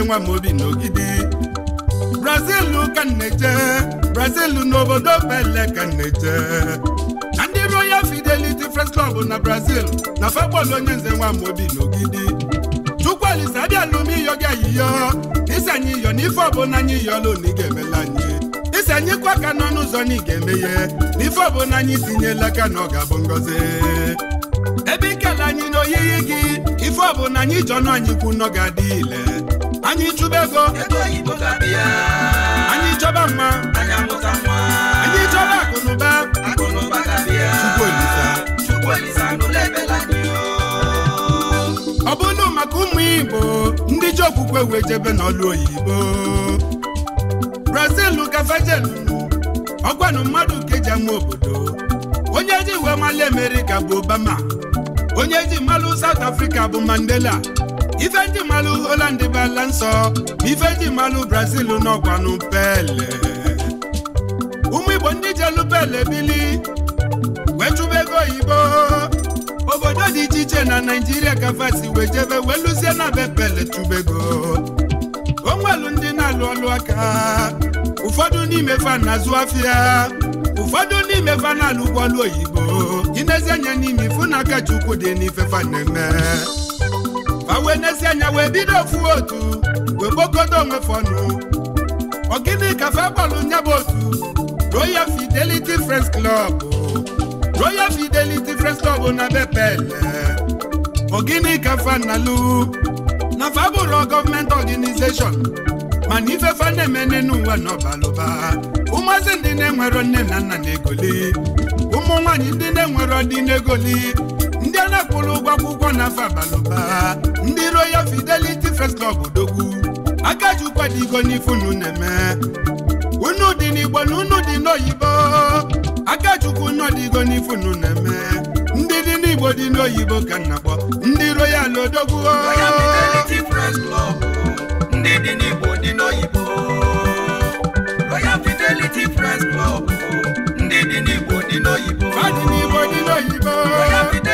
nwa m obi n'ogidi brazil ka nneje brazil n'obodo bele ka nneje na ndị royal fidelity first club na brazil na fakpọl onye nze nwa m obi n'ogidi chukwu alisa abịa n'ume gị ayiyo isi anyị iyo n'ife ọbụla anyị iyolu na ga-emela anyị isi anyị kwa ka n'ọnụ ụzọ na ị ga-emeghe n'ife ọbụla anyị tinyela aka na ọ ga-abụ ngọzi ebe ikele anyị n'oyiyi gị ife ọbụla anyị jọ na anyị kwu nọ ga-adị ile ezigbo ego anyị chọba mma anyị chọba akụnụba ọ bụrụ maka ụmụ igbo ndị ji okwukwe wee jebe n'ọlụ oyibo brazil gafejelu ọgwanụ mmadụ ka eji ama obodo onye ji wee mali amerịka bụ obama onye ji mmalụ South africa bụ mandela ife ndị malụ Holland bala nsọ ife ndị Brazil n'ọgwanụ pele ụmụ Igbo ndị jelụ pele bili wechụba ego oyibo obodo dị iche iche na Naijiria ka fasi wee jebe wee lụzie na be pele tụbego onwelu ndị na-alụ ọlụ aka ụfọdụ n'ime fa na afịa ụfọdụ n'ime fa na-alụ ụgbọọlụ oyibo inezianya n'ime ifu na aka Chukwu dị n'ife fa na-eme wee n'ezie anya wee bido ofu otu wee kpokodo onwe fọnụ ọgịnị kafe gbalụ nya bụ otu Royal Fidelity Friends Club Royal Fidelity Friends Club na bepele ọgịnị kafe nalu na fa bụrụ gọọmenti organization mana ife fa na-eme n'ụwa n'ọbalụba ụmụazị ndị na-enwero nne na nna na egoli ụmụ nwaanyị ndị na-enwero dị na-egoli. na akwụrụ ụgwọ akwụkwọ na afọ abalụba ndị Royal Fidelity First Club dogwu aka ji n'ifunu na-eme unu dị n'Igbo na unu dị n'oyibo aka ji ụkwụ nọ na-eme ndị dị n'Igbo dị n'oyibo ka nna kpọ ndị Royal odogwu ndị dị n'Igbo dị n'oyibo Royal Fidelity First Club ndị dị n'Igbo dị n'oyibo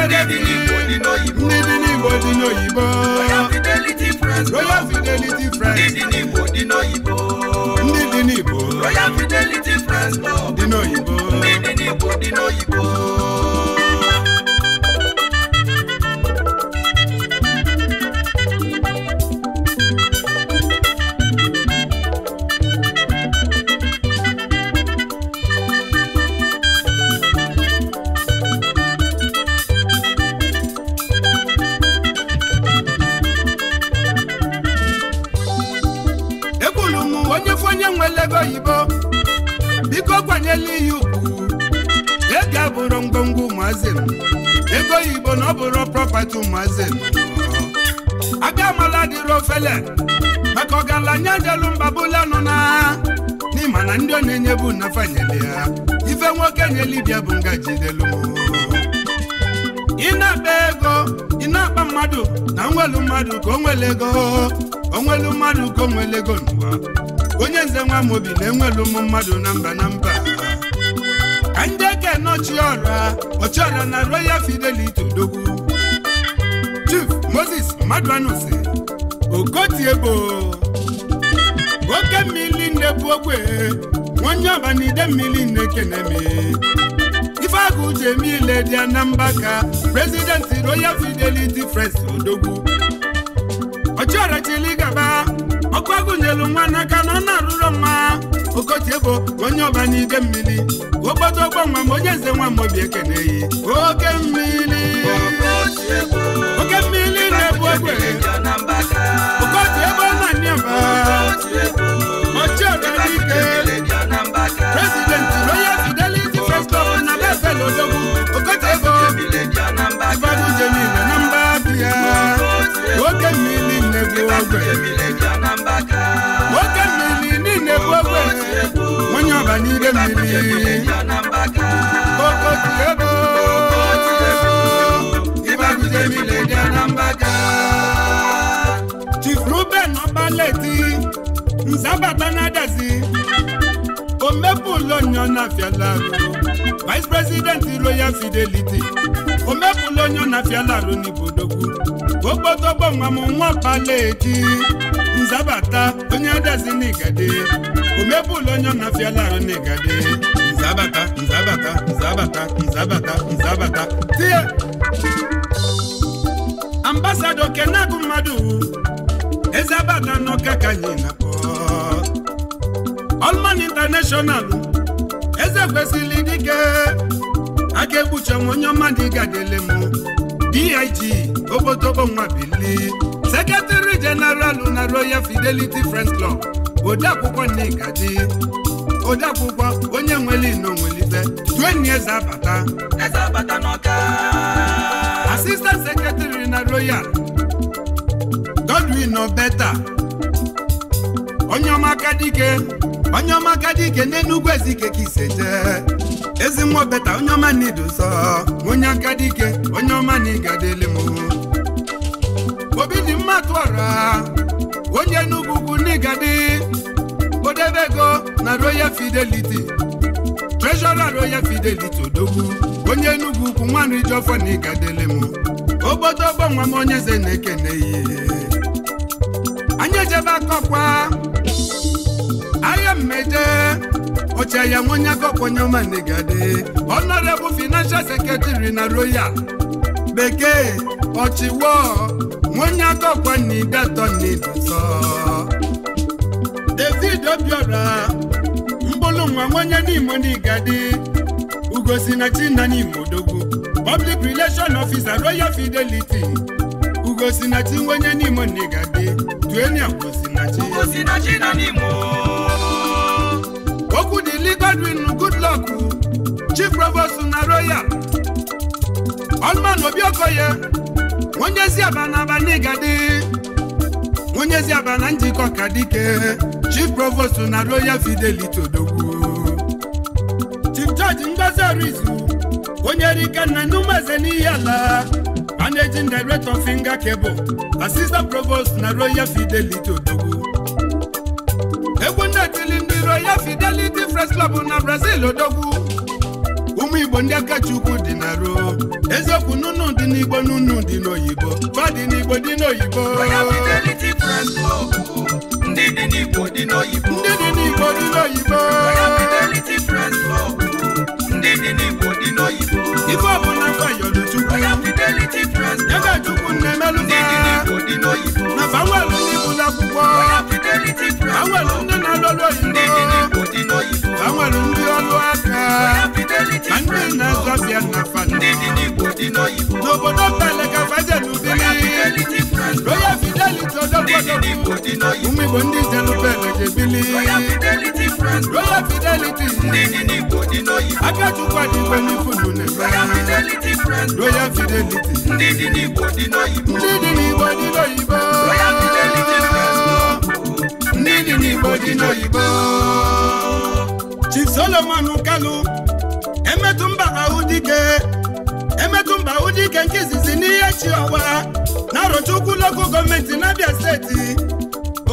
Kedebili Igbo nínú Igbo. Níbi ní Igbo nínú Igbo. Royal Fidelity Friends. Royal Fidelity Friends. Níbi ní Igbo nínú Igbo. Níbi ní Igbo. Royal Fidelity Friends. Nínú Igbo. Níbi ní Igbo nínú Igbo. ife na-enye bụ na ya ife nwoke nyelibia bụ ngaji delu ị na-akpa ego ị na-akpa mmadụ na nwelu mmadụ ka onwele ego onwelu mmadụ ka onwele ego n'ụwa onye nze nwa m obi na-enwelu ụmụ mmadụ na mba na mba ka ndị eke ọra ọchị ọra na royal fidelity odogwu chief moses mmadụ anụsi okotiebo oke mmiri nne bụ onye ọbana ide mmiri na-ekenemi ife agụ ji eme ile dị ka prezidenti royal fidelity frens odogwu ọchịọrachili gaba ọkụ agụnyelu nwa n'aka na ọ na-arụrụ nwa okotiebo onye ọbana ide mmiri ogbodo ogbo nwa ma onye eze nwa mobi ekeneyi oke mmiri oke mmiri na-ebu egbe okotiebo na niaba ọchịọrachike nwoke mmiri niile bụ ogbenye onye ọba n'ire mmiri okotiebo ịbagidemile dị anambaka chief ruben ọbaleti nzabata na-adazi omepụla onye na-afịala arụ vice president royal fidelity omepụla onye na-afịala arụ n'ibodogwu okpotọgbọnwa m nwa paleti nzabata onye adazi n'igade omepụla onye na-afịala arụ n'igade nzabata nzabata nzabata nzabata nzabata tie ambasadọ kenagụ mmadụ eze abada n'ọka ka anyị na Allman International eze kwesịrị dike aka ekpuche m onye ọma dị gadele m dig obodobo nwa bili sekretari jeneralụ na royal fidelity friends club odeakwụkwọ Nnegadi akwụkwọ onye nwere ino nwelibe dueni eze abata eze abata n'ọka asistant sekretari na royal Godwin Obeta onye ọma aka dike onye ọma agadi ike n'enugwu ezi ike ka jee ezi nwa obeta onye ọma na idu onye ike onye ọma na ịgadịli m obi dị mma tụọra onye enugwu ugwu n'ịgadị odebe ego na royal fidelity treasurer royal fidelity odogwu onye enugwu ugwu nwanne ijeọfọ na ịgadịli m obodo ọgbọ m onye eze na-ekene ihe ejebe aye mmeje oche ya nwonyago kponyemaigade honorable financial secretary na royal bekee ọchịwo nwonyago kponidatonibụtọ david obiora mkpụrụ nwa nwonye n'imo n'igade ugosi na chinna n'imo public relation officer royal fidelity ugosi na chi nwonye n'imo n'igade tueni okwu dịli Godwin Goodluck Chief Provost na Royal Ọlman Obiokoye onye eziaba na abanigadi onye eziaba na njikọ ka dike Chief Provost na Royal Fidelity Odogwu Chief George Ngozi Orizu onye rike na numeze n'ihi ala managing director finger cable assistant provost na Royal Fidelity Odogwu egwu ndị tili ndị Royal Fidelity press club na brazil odogwu ụmụ igbo ndị akacha dị na ruo eziokwu nụnụ dị n'igbo nụnụ dị n'oyibo ba dị n'igbo dị n'oyibo ndị dị n'igbo dị n'oyibo ife ọbụla gbayọluchukwu ebe chukwu na-emelụba na banwelu ndị bụ n'akwụkwọ banwelu ndị na-alụlụ oyibo nwere ndị ọlụ aka na ndị na-azọ bịa na fada n'obodo mbale ka fada n'ubili royal fidelity ọdọgbọdọgbu ụmụ igbo ndị zelubele jebili royal fidelity aka chukwa dị igwe n'ifulu na-ebe royal fidelity ndị dị n'igbo dị n'oyibo ndị dị n'igbo dị n'oyibo Chief Solomon Kalu emetụ mba ahụ dike emetụ mba ahụ dike nke izizi n'ihe chi ọwa na-arụcha ukwu lokal gọọmenti n'Abia steeti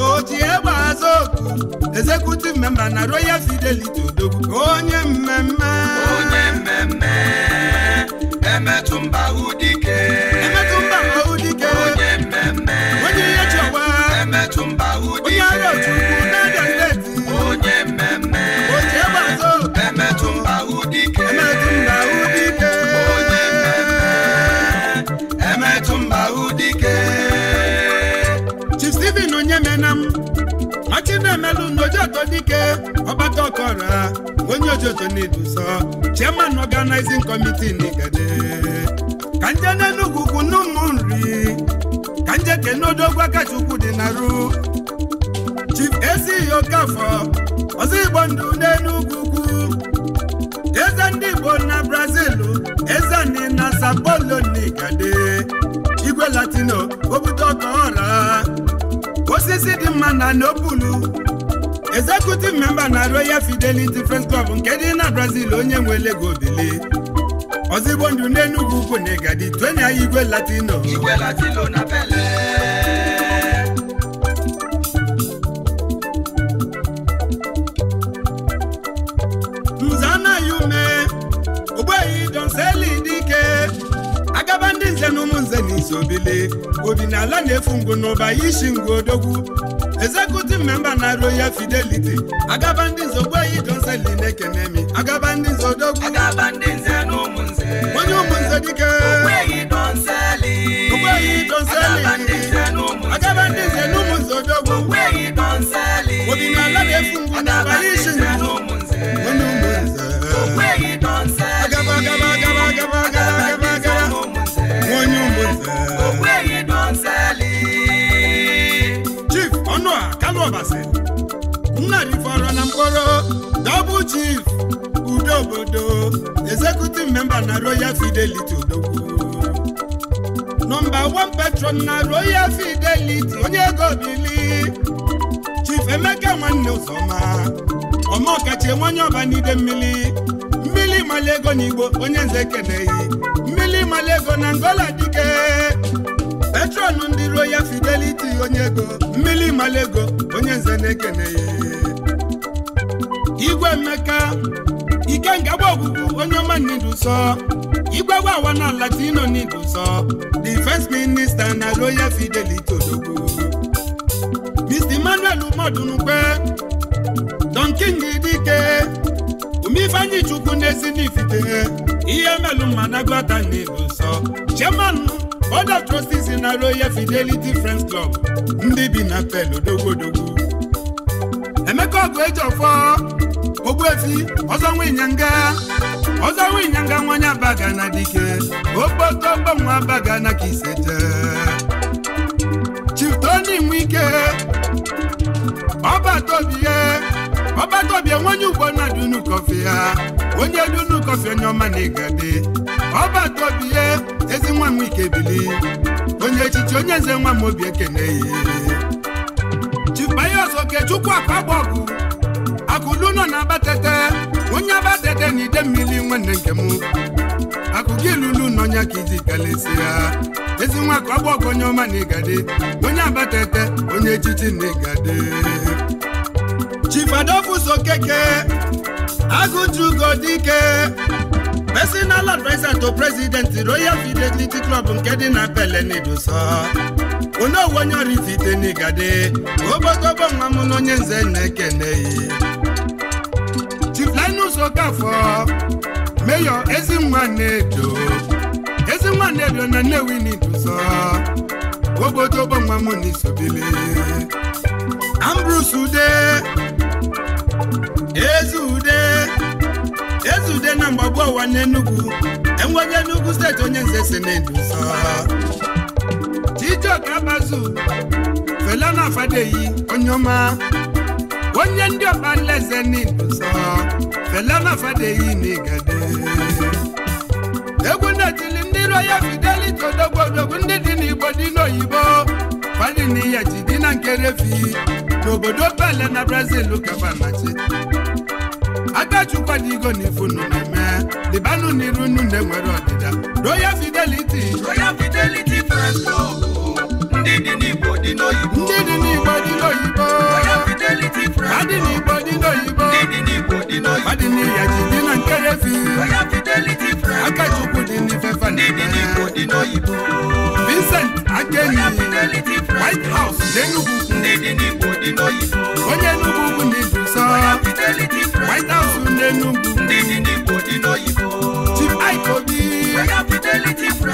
oji egbe azụ oku executive member na Royal Fidelity Odogwu onye mmemme onye mmemme emetụ mba ahụ dike Ojoto na chairman organizing committee n'Igede ka nje n'Enugu ugwu n'ụmụ nri ka nje kenodogwu akachukwu dị na ru Chief Ezi Okafọ ọzọ Igbo ndụ n'Enugu eze ndị Igbo na Brazil eze ndị na Sao Paulo n'Igede igwe latino obodo ọkaọra osisi dị mma na n'obulu executive member na Royal Fidelity Friends Club nke dị na Brazil onye nwe Lego bili ndụ n'Enugu ugwu na Igadi twenya igwe latino igwe latino na dike agaba ndị nze na ụmụ nze na isobili obi na ala na-efu ngụ n'ụba isi odogwu executive member na royal fidelity agaba ndị nze ogbeyi jonseli na-ekene mi agaba ndị nze odogwu onye ụmụnze dike ogbeyi jonseli chief udo obodo executive member na royal fidelity odogwu nọmba 1 patron na royal fidelity onye ego bili chief emeka nwanne ụzọma ọma ọkachi nwanye ọbanide mmiri mmiri mali ego n'igbo onye nze keneghị mmiri mali ego na ngola dike patron ndị royal fidelity onye ego mmili onye nze na igwe emeka ngagba ogugu onye ọma niduso igwe gbawa na latino niduso the first minister na royal fidelity odogwu mr emmanuel umodunukwe don king dike Omifanyi chukwu na-esi n'ifite ihe melu managbata niduso chairman board of trustees na royal fidelity friends club ndị bi na pel odogwu emeka ọgụ eji ọfọ ogbuefi ọzọ nwinyanga ọzọ nwinyanga nwanya baga na dike okpotobonwa baga na kisete chitoni nwike ọbatobie ọbatobie nwanye ugbo na dunu kọfị ya onye dunu kọfị onye ọma na igade ọbatobie ezi nwa m ike bili onye echichi onye nze nwa m obi ekene ya chifayọs okechukwu akpa gba akụlu nọ na abatete onye abatete na ide mmiri nwanne nke m akụkọ ilulu nọnya ka iji kalesi ya ezi nwa ka ọ onye ọma na ịgade onye abatete onye echichi na ịgade chifadofuso keke agụjugo dike personal advisor to president royal fidelity club nke dị na belenidso onye owonye ọrịzite n'igade obodobo nwa m na onye nze na ekeneyi fọ meyọ Ezinwa Nnedo Ezinwa Nnedo na Nnewi n'Iduzọ obodo gbanwa m n'isobele Ambrus Ude Ezu Ude Ezu Ude na mgbagbu ụwa n'Enugu enweghị Enugu steeti onye nze si n'Iduzọ Chijioke Abazu Fela na Afadeyi onye ọma onye ndị ọkpanleze n'Igbo nsọ felenafedeghị n'igede egwu na-etili ndị Roya Fidelity odogwu odogwu ndị dị n'Igbo dị n'oyibo fadị n'ihe ji dị na nkerefi n'obodo bele na Brazil kabanachi agachukwa dị igo na ifunu na-eme dịbanụ n'iru unu na-enwere ọdịda Royal Fidelity Royal Fidelity ndị dị n'Igbo dị n'oyibo fidelity friend. Madini Bodino Ibo. Madini Bodino Ibo. Madini Yajibina Nkerefi. Oya fidelity friend. Akachukwu Dini Fefa. Madini Bodino Ibo. Vincent Akeni. Oya fidelity friend. White House Denugu. Madini Bodino Ibo. Onye Nugu Nibusa. Oya fidelity friend. White House Denugu. Madini Bodino Ibo.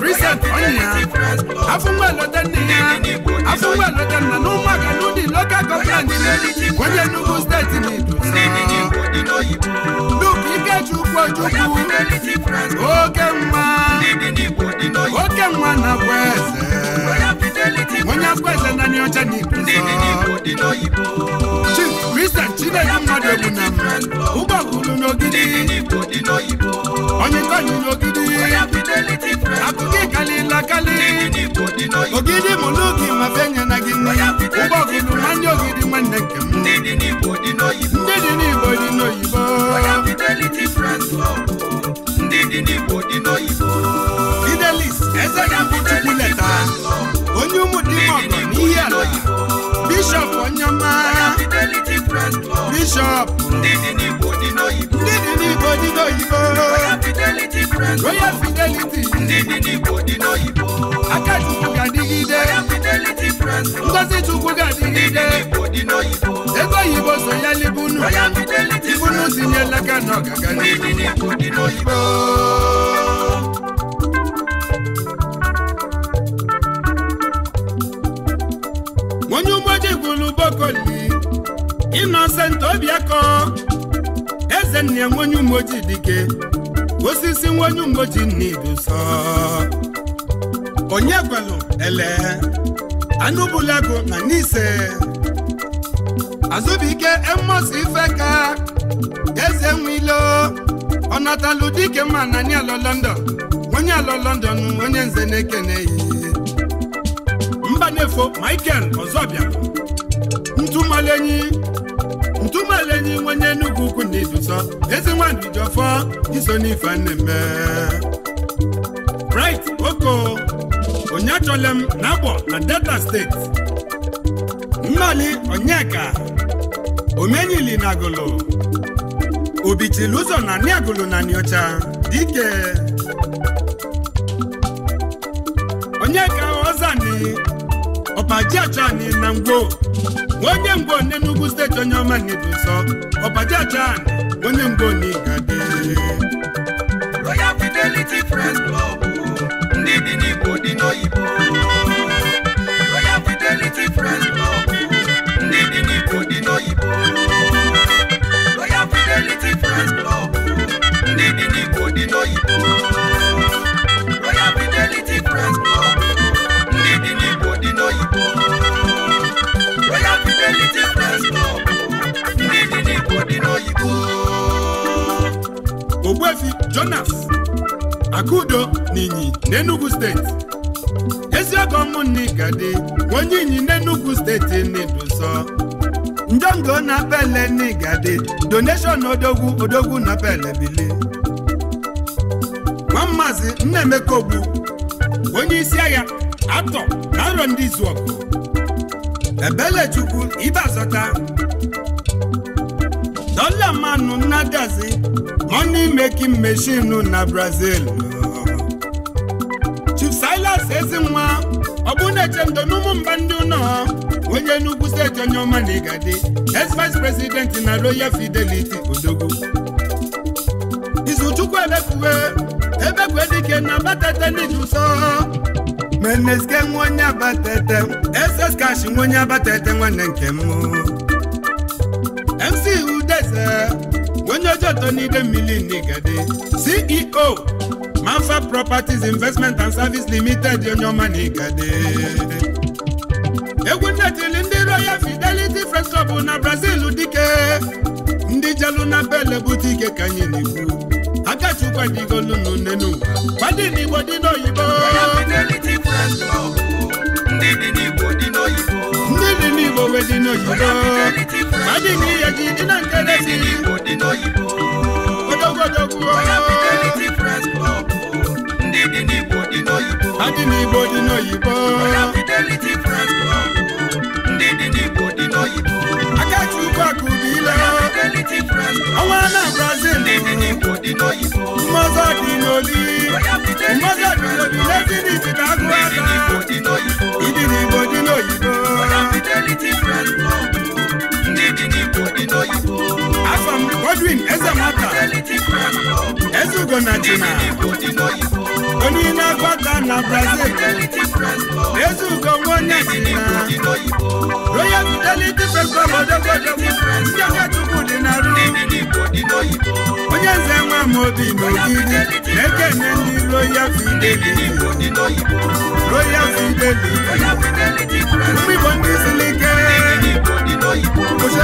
kristian kɔnniya afunwa lɔtɛ niya afunwa lɔtɛ nanu magalu ni lɔka gɔfrani kɔnjɛ nugu state ni dusɔn luki kɛju kɔjugu oke nwa oke nwa na wɛsɛ wọn yà gbẹsẹ nani ọjọ ni dusɔn kristian chineke. mmadụ na ụgbọ gụrụ n'ogidi onye tọnyị n'ogidi akụkọ ịkalịla kalị ogidi mụlụ gị mafe na gị ụgbọ gụrụ ma ndị ogidi nwanne nke m ndị dị n'igbo dị n'oyibo ndị dị eze ya bụ chukwu leta onye ụmụ dị ọgọ n'ihe ala bishọp onye ọma Oh. bishọp ndị dị n'Igbo dị n'oyibo royal fidelity ndị dị n'Igbo dị n'oyibo aka ga-adịgide ngozi chukwu ga-adịgide ego oyibo so ya libunu ibunu tinyela aka n'ọgaga ndị n'oyibo onye bokoli Innocent obiako eze nne nwenye umoji dike osisi nwenye umoji n'iduso onye gwelu ele anụbulago na n'ise azụbike ife ka eze nwilo ọnatalu dike ma nani alọ London onye alọ London onye nze na-ekene mba na-efo Michael Ọzọbịa ntụmalenyi ntụmalenyi nwenye Enugu ukwu na idusọ ezi nwandu ji ọfọ iso n'ife nnemme onye oko m na-agbọ na delta steeti mmali onyeka omenyili na agụlụ obichiri ụzọ na niagụlụ na niocha dike onyeka ozani ọbajachan na ngwo onye ngwo n'Enugu steeti onye ọma na nsọ ọbajachan onye ngwo n'Igadi Royal Fidelity Nwaobi Jonas Akudo na n'Enugu steeti eziọgọ mụnne gadi onye Inyi n'Enugu steeti na-edoso njọngọ na pele n'igade donation odogwu odogwu na pele bili nwa maazị Nnaemeka onye isi agha atọ na nrọ ndị izu ọgụ ebelechukwu ibe azọta dọla manụ nnadazi money making machine na Brazil Chief Silas Ezinwa ọ na-echendo n'ụmụ mba ndị ụlọ onye Enugu steeti onye ọma na ex vice president na Royal Fidelity Odogwu Izuchukwu ebekwe ebekwe dike na batete n'iji ụsọ meneske onye abatete ss cash nwanne nke m MC Udeze onye ojeto n'ide mmiri n'igade ceo manfa properties investment and service limited onye ọma n'igade egwu nnetili ndị royal fidelity fresh shop na brazil dike ndị jelu na bel bute ike ka anyị na-ekwu akachukwu n'ụwa n'igbo dị n'oyibo igbo wee dị n'oyibo dị na dị n'oyibo ndị dị dị n'oyibo ọnwa na brazil dị n'oyibo mmọzọ dị n'oli dị n'oli n'ezi n'iti na igbo dị n'oyibo ndị dị n'Igbo dị n'oyibo afọ na onye na-agba na Brazil Eze Ugo nwaonye Jina Royal Fidelity Festival odogodogbo ndị aka Chukwu dị na ru onye nze nwa m obi n'ogiri na-ekene ndị Royal Fidelity Royal Fidelity ndị Igbo ndị ike òyìnbó ó ṣe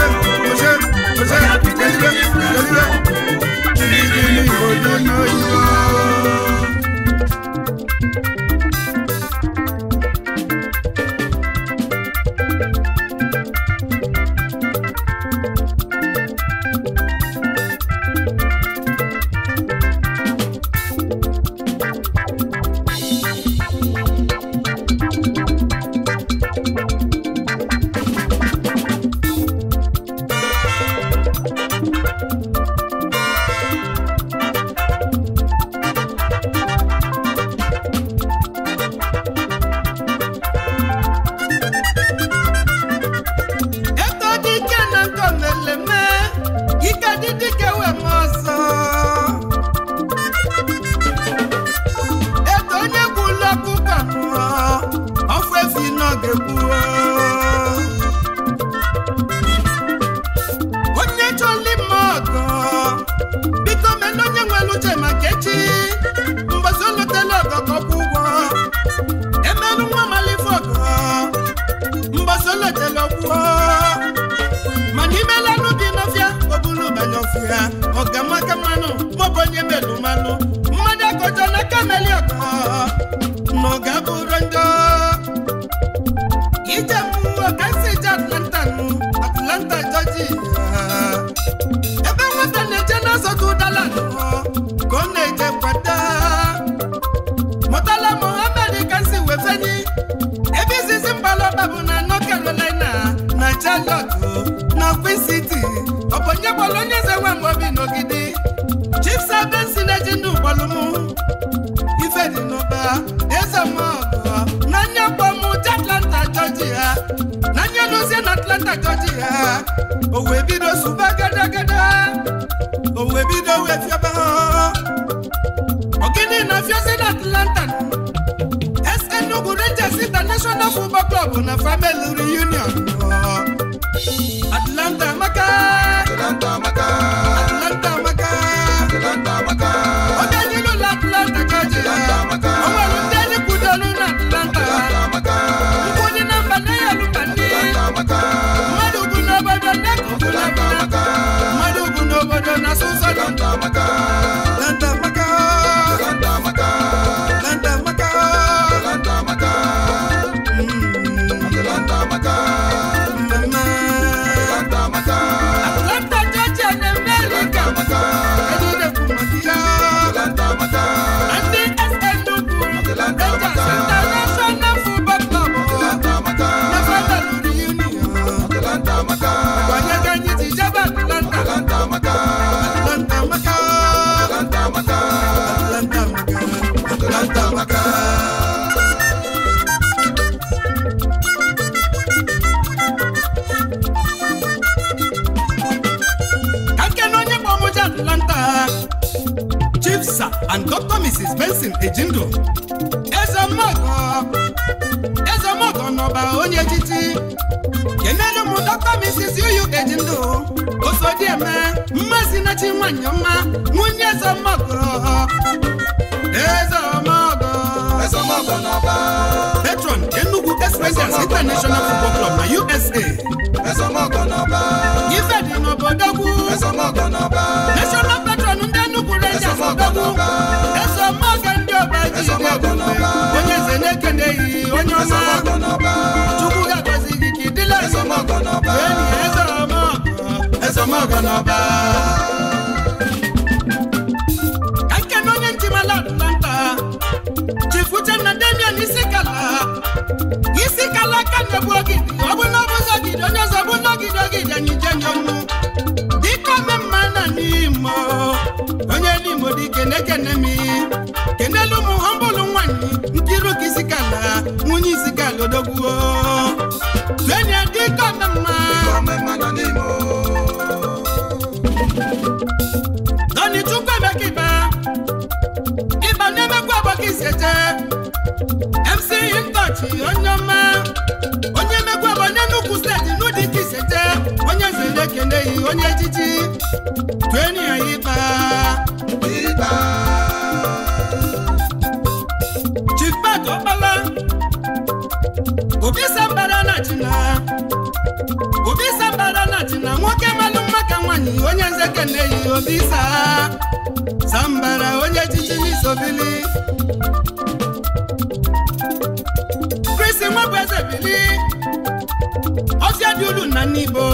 na-abịa na n'ibo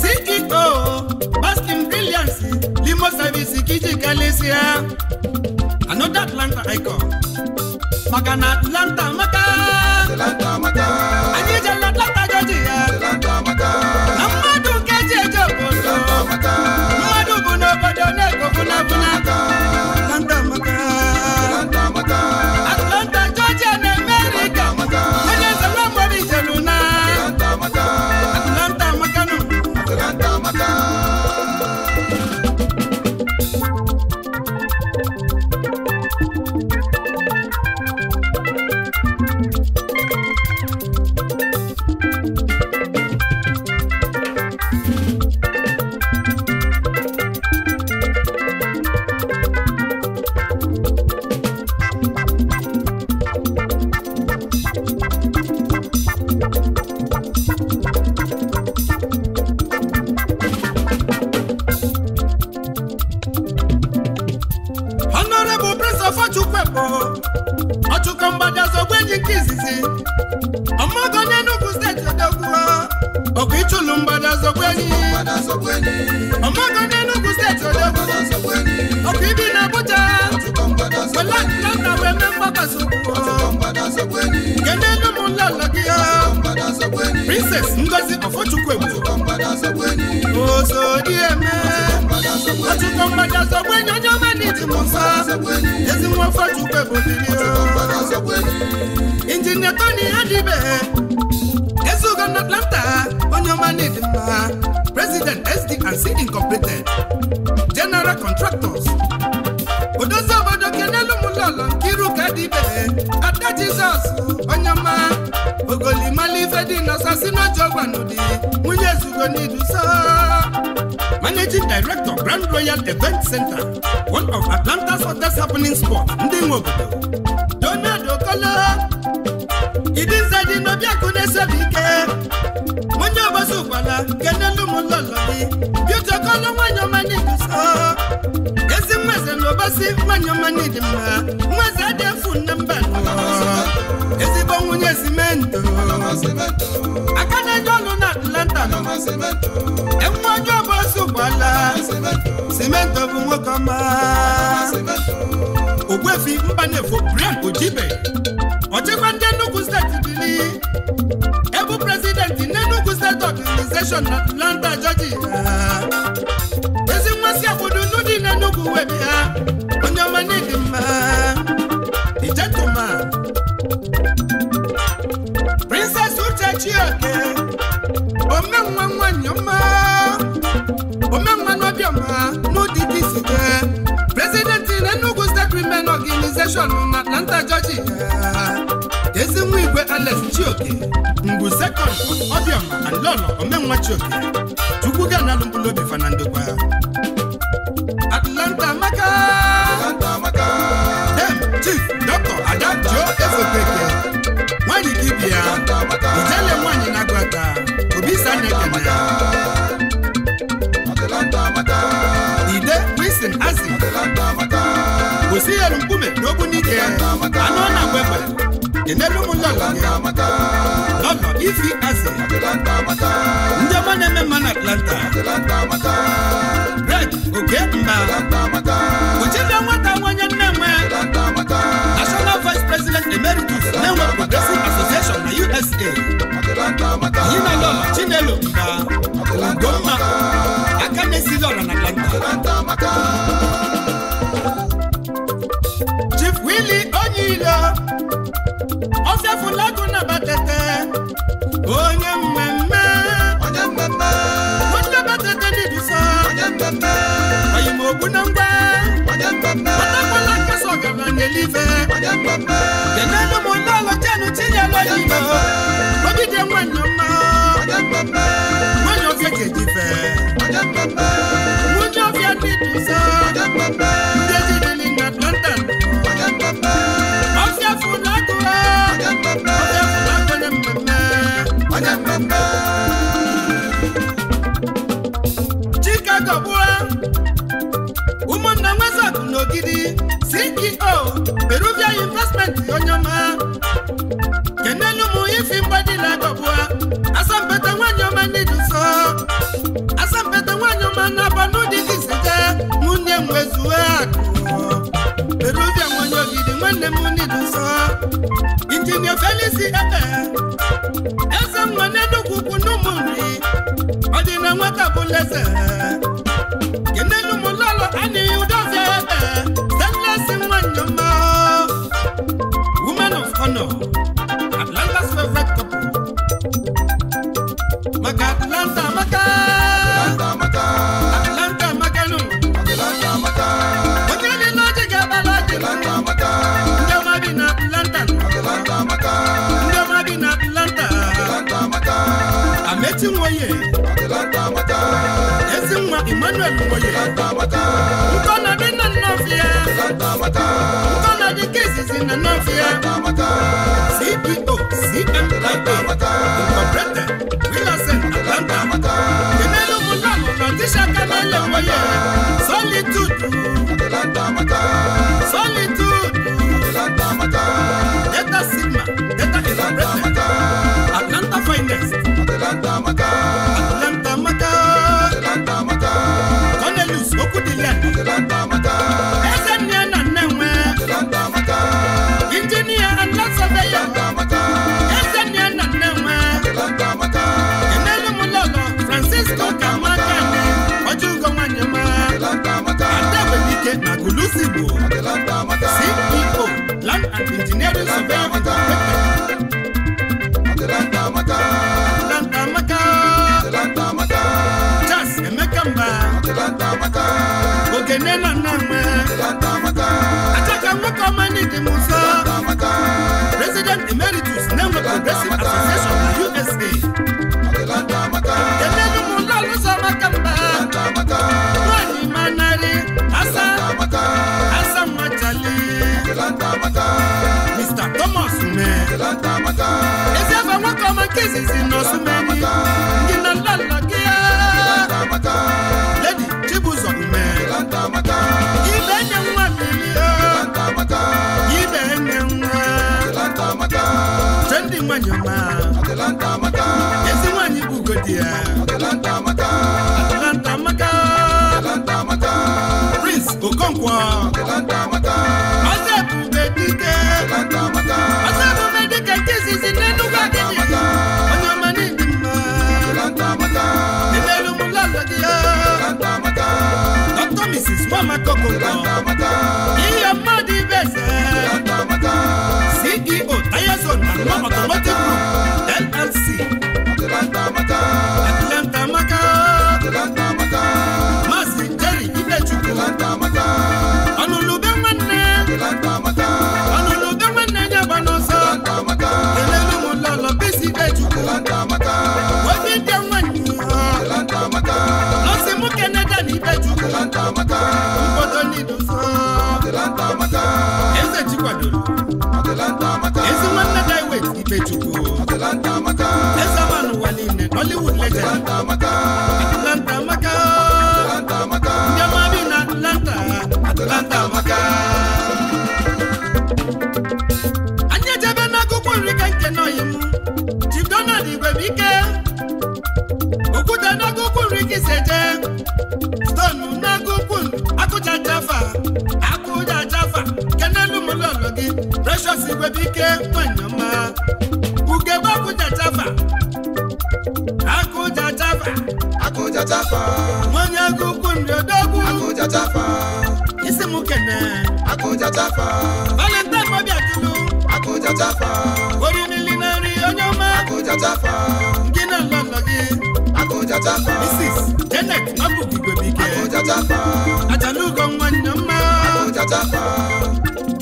CEO Baskin Brilliance Limo Service Kiji Galicia another Atlanta icon maka na Atlanta maka Atlanta maka anyị emela name ataka nwoke ọma n'ike m ụzọ president emeritus na-enwe progressive association na usa emelu m ụlọ makamba. maka mba nwanyị manarị asa asa nwachali mr thomas ume ezi afọ nwoke ọma nke izizi na osumeni ndị na lalala ezi nwaanyị bụ ugodi ya ngozi gwebike nwanyama ugegbe akụjatafa akụjatafa akụjatafa nwanyị agụkwu nriodogwu akụjatafa isi m kene akụjatafa valentine mobiatulu akụjatafa orimili na nri onye ọma akụjatafa ndị na nlọlọ gị akụjatafa mrs janet ike! gwebike akụjatafa ajalugo nwanne mma akụjatafa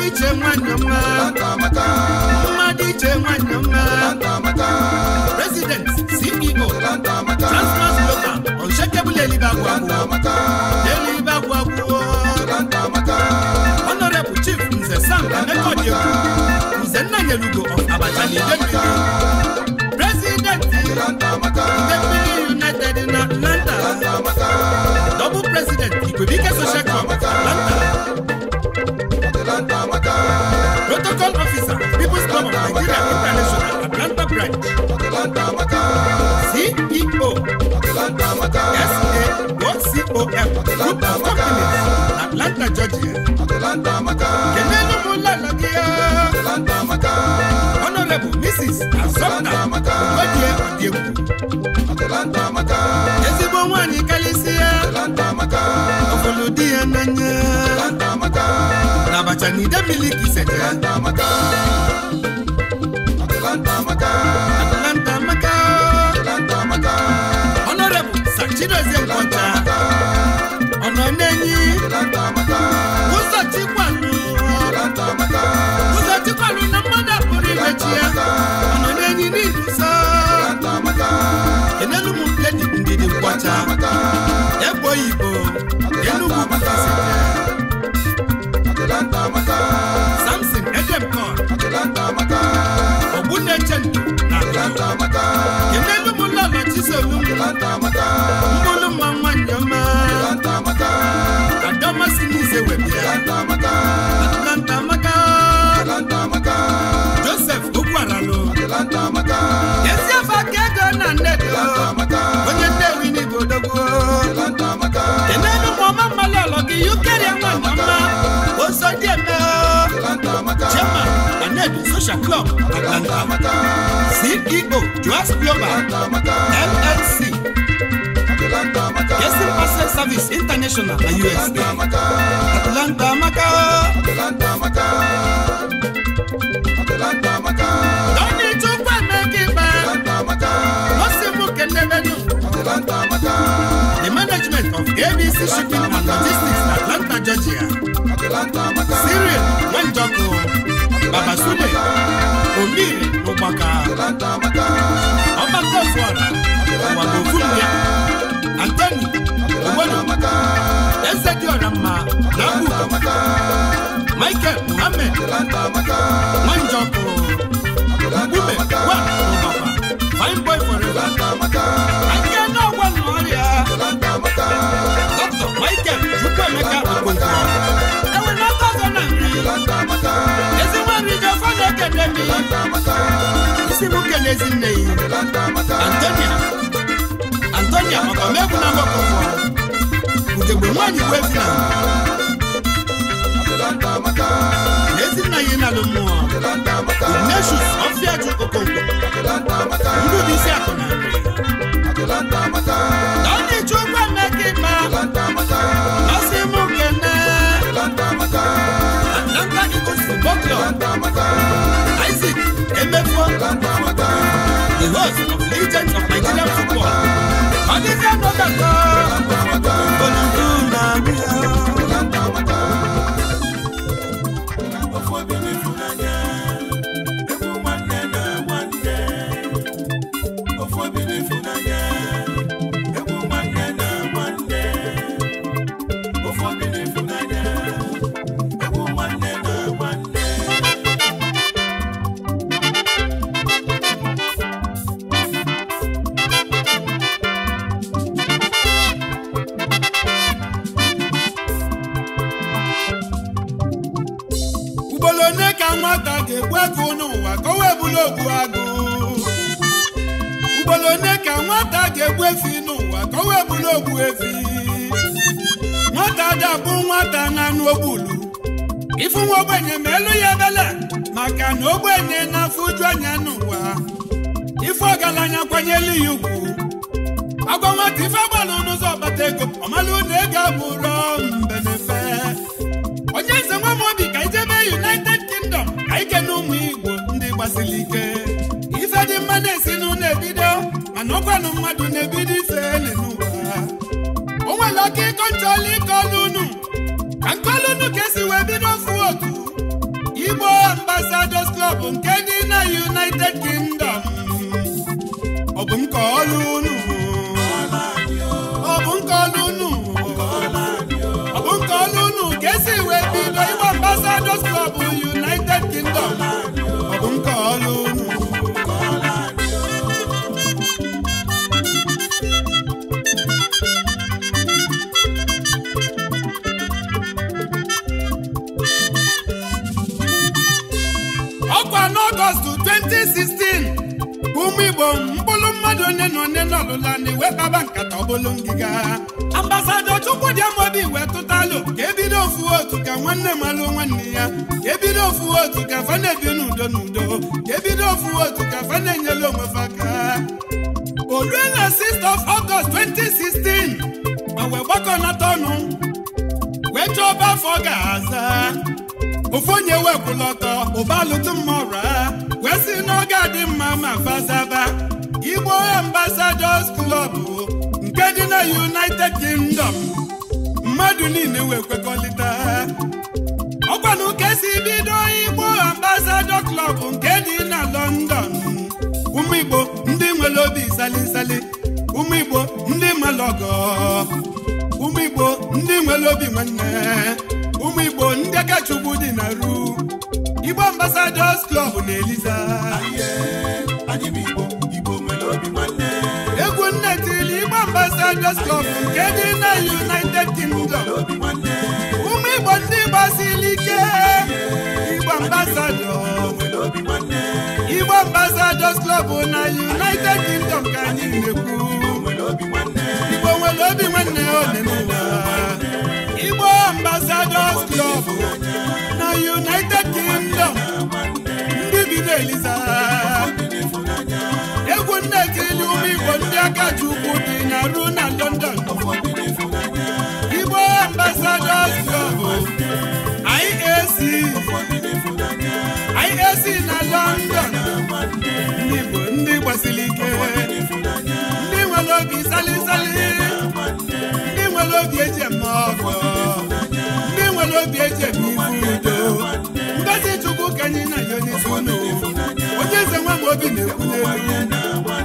mmadụ iche nwanne mma mmadụ iche nwanne mma president ceo transport local unshakable elibagwa elibagwa honorable chief nze sam emeka nze nna nyelugo of abacha na idemili president united na atlanta double president ikwebike social club protocol officer people's club of nigeria international atlanta branch ceo sacom group of companies atlanta georgia kenelu m ụlọala gị ya honorable mrs azọpụta ojie ọdịegwu ezigbo nwaanyị karịsịa ọfụlụ di ya n'anya Abacha na ide miliki sete Atlanta amaka Atlanta amaka n'enyi ụzọ na mmadụ pụrụ imechi ya ọ̀nà n'enyi n'ihi nsọ enelu m ndidi egbo Igbo enugwu selu mmanụ mma nwanyị ọma adamasị n'ize webịa atlanta joseph na onye nnewi n'igbo odogwu enenu ma ọma mmalị social club Atlanta CEO Joas Global LLC Service International na USA Atlanta maka Atlanta Amaka Onye chukwu emeka ikpe Osibu kelelenu Atlanta Amaka The management of ABC Shipping and Logistics Atlanta, Georgia Baba Sule Omiri Ụgbaka Ọgbaka Fụara Ụgbaka ya Antoni Ogbodo Eze Diọra Mma na Mbuko Michael Muhammed Nwanjọkụ Mgbume Wa Ụgbaka Fine Boy si m kele ezinne Antonia Antonia na mgbakọ ugegbe nwaanyị bụ efu na ezinna ya ịnalụ mmụọ Ignatius Ọfịajụ Okonkwo ndị ụdị isi akụ na nri na ọ na-eji ụgwọ ma ọ sị The host of legends of Nigerian football. Alicia Nogata. n'ogbu agụ ugboro onye ka nwata ga-egbu efi n'ụwa ka o wee bụrụ ogbu efi nwata ga-abụ nwata na anụ ogbulu ifu nwa ogbenye ma elu ya ebele maka na ogbenye na-afụ uju anya n'ụwa ife ọgaranya kwanyelu ya ugwu agwa nwata ife agbalụ n'ụzọ ọkpata ego ọmalụ na ego abụrụ mbenefe onye nze nwa m obi ka ijebe United Kingdom ka ike na ụmụ igbo siri ike ife dị mma na-esi n'ụlọ ebido mana ọkwanụ mmadụ na-ebido ife n'ụwa o nwere ọka ịkọ ntọọla ike ọlụ ka nkọlụ ka esi wee bido ofu otu Igbo Ambassadors Club nke dị na United Kingdom ọ bụ m ka ọlụ unu ọ bụ m ka unu ka esi wee bido Igbo Ambassadors Club United Kingdom ọlụla na iwetaba nkata ọbụlụ ngịga chukwu dị Amadi wee tụtalụ ka ebido ofu otu ka nwanne malụ nwanne ya ka ebido ofu otu ka fa na-ebi n'udo n'udo ka ebido ofu otu ka fa na-enyela faka aka orue na 6th of August 2016 ma wee gbakọnata ọnụ wee chọọ ọba afọ ga-aza ofu onye wee ụba alụtụ mma wee si n'oge adị mma ma faza Brothers Club nke dị na United Kingdom mmadụ niile wee kwekọrịta ọkwa na ụka esi bido Igbo Ambassador Klọb nke dị na London ụmụ Igbo ndị nwere obi salisali ụmụ Igbo ndị nwere ọgọ ụmụ Igbo ndị nwere obi nwanne ụmụ Igbo ndị aka dị na ru Igbo Ambassadors Klọb na Eliza Lagos Club nke dị na United Kingdom ụmụ Igbo ndị gbasiri ike Igbo ambasadọ Igbo ambasadọs Club na United Kingdom ka anyị na-ekwu Igbo nwere obi nwanne ole n'ụwa Igbo ambasadọs Club na United Kingdom ndị bido Eliza egwu nne ekirili ụmụ Igbo ndị aka ji na na London Igbo Ambassadors Club IAC IAC na London ndị Igbo ndị gbasiri ike ndị nwere obi salisali ndị nwere obi eji eme ọgọ ndị nwere obi eji eme ibu udo ngozi Chukwu ka anyị na ya onye isi unu onye eze nwa m obi na-ekwu n'elu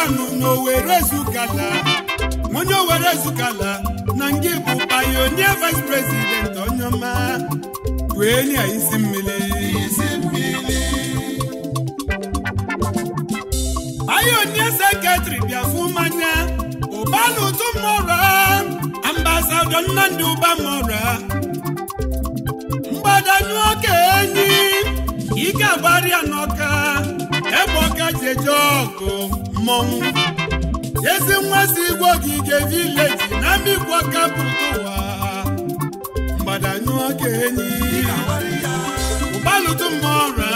Anụ n'Owere ezukala onye Owere ezukala na ngị bụ onye vice president onyeọma wee nye isi mmiri payonia sekretịrị bịafu mmanya ụbanụtụ mmụrụ ambasadọ Nnamdi Ụbamọra mgbadanụ ọka enyi ike agbarịa n'ọka ebe ọka ji eje ọgụ mmọnwụ ezi nwa si igwe ogige vileji na mbikwa kapụta ụwa mgbadanyụ ọka enyi ụbalụtụ mmọra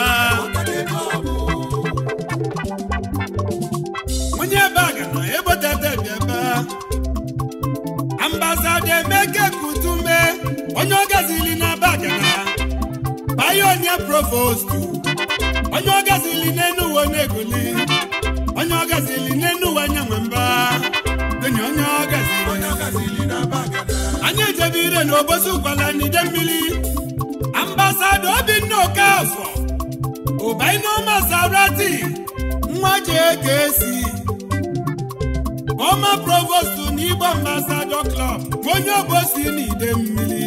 onye ebe a gara ebotetebi ebe ambasada emeke kutume onye ọgazili na bagara bayo onye provostu onye ọgazili n'enuwe na-egoli ọgazili n'enuwe anya nwe mba enyi onye ọgazili anyị ejebe ire na obosi ụkwala n'ide mmiri ambasado obinna okafọ ụbainomasarati nwa jekesi ọma provostu na igbo ambasado klọb onye obosi n'ide mmiri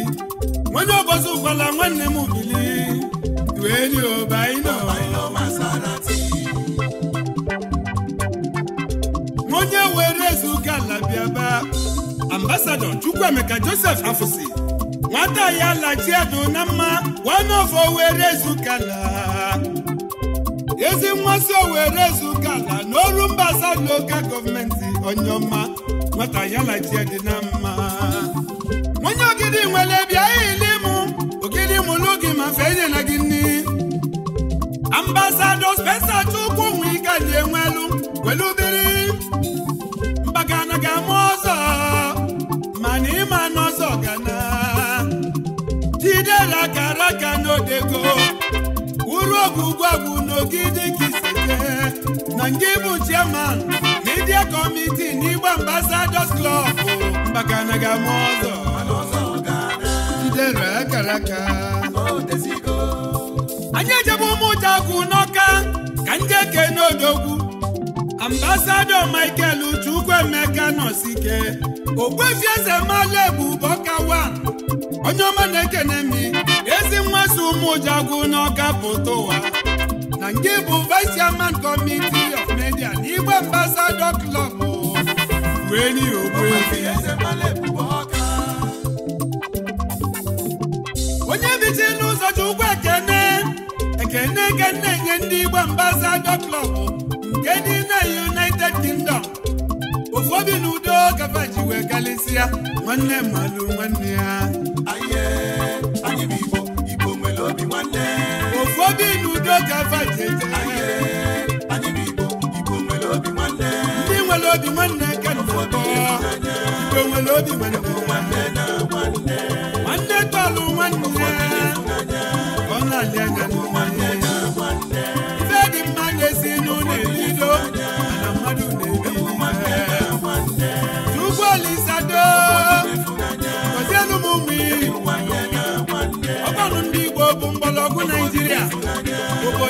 onye ọbọchị ụkwala nwanne m bili dueli obaino onye were ezuga ala bịaba ambasadọ Chukwuemeka Joseph Afụsi nwata ya lachiedụ na mma wanofo were ezugala ezi mmasị owere ezugala n'ọrụ mbasa local gọọmenti onyeọma nwata ya na mma onye ogidi nwere bịa ile mụ ogidi mụlụ gị ma gị nni aka n'odego Wuru uru ogwugwugwu n'ogidi nkisite na nke bụ chairman media na n'Igbo Ambassadors Klọb. mbakana na ama ọzọ jidere akaraka. anyị ejebe ụmụjagwu n'ọka ka ndị eke n'odogwu ambasadọ Michael Chukwuemeka nọsike ogwefieze mala ebu bọkawan onye ọma na-ekene m ezi nwaso ụmụjagwu n'ọka pụta ụwa na nke bụ vice chairman committee of media na igwe ambassador club weli ogbuefi onye bichi n'ụzọ chukwu ekene ekene ekene nye ndị igbo ambassador club nke dị na united kingdom ụfọdụ n'udo kafa ji wee ya: nwanne mmadụ nwanne ya obi n'udo ka faji ndị nwere obi nwanne ka igbo nwere obi nwanne nwanne tọlụ nwanne ọ na-alị anya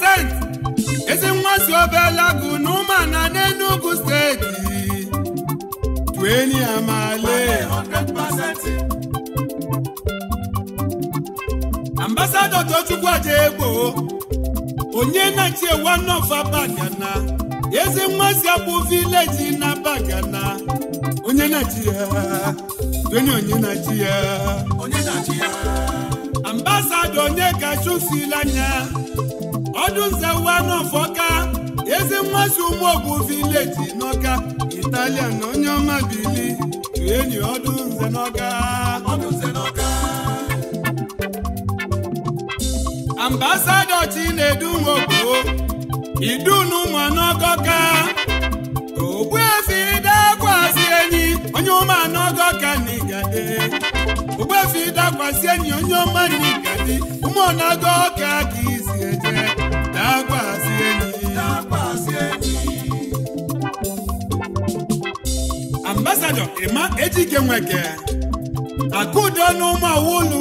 Innocent ezi nwa si obelagu na ụmụana steeti tueni amale ambasadọ Tochukwu egbo, onye na-echi Bagana ezi nwa si abụ vileji na Bagana onye na-echi ya onye na-echi ya onye ọdụnzewanufọka ezi mmasị ụmụogwu vileji n'ọka italian na onye ọma bili enyi ọdụnze n'ọka ambasado chinedu nwogbo idunu ụmụanọgọka ogbuefi dakwasị enyi onye ụmụanọgọka na igade ogbuefi dakwasị enyi onye ọma na igade ụmụanọgọka ka ambasadọ Emma Ejike Nweke akụdo n'ụmụ awolu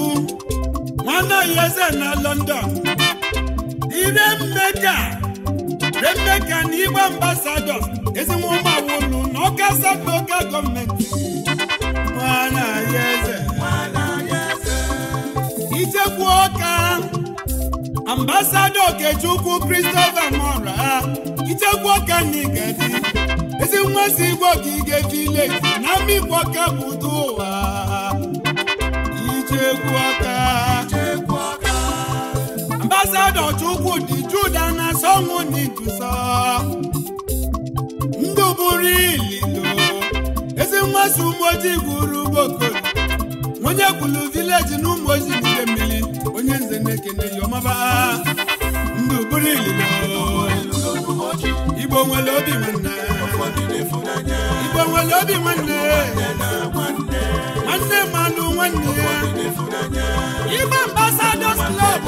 nwanne ya eze na London ire mmeka remeka na igwe ambasadọ ezinwa ụmụ awolu na ọka asatọ oke gọọmenti nwanne ya eze ichekwa ọka ambasado okechukwu Christopher mora ichekwu ọka nigadi ezi mmasị igwe ogige vileji na mmikpu ọka budo ụwa ichekwu ọka ambasado chukwu dị juda na sọnwụ n'ijuso ndụ bụrụ ililo ezi mmasị ojii gwuru ugbokoro onye kwuru vileji na ụmụ ojii nke n'ime ọmọba mgbe ụbụrụ igbo nwere obi nwanne igbo nwere obi nwanne nwanne mmanụ nwanne igbo ambasadọs klọb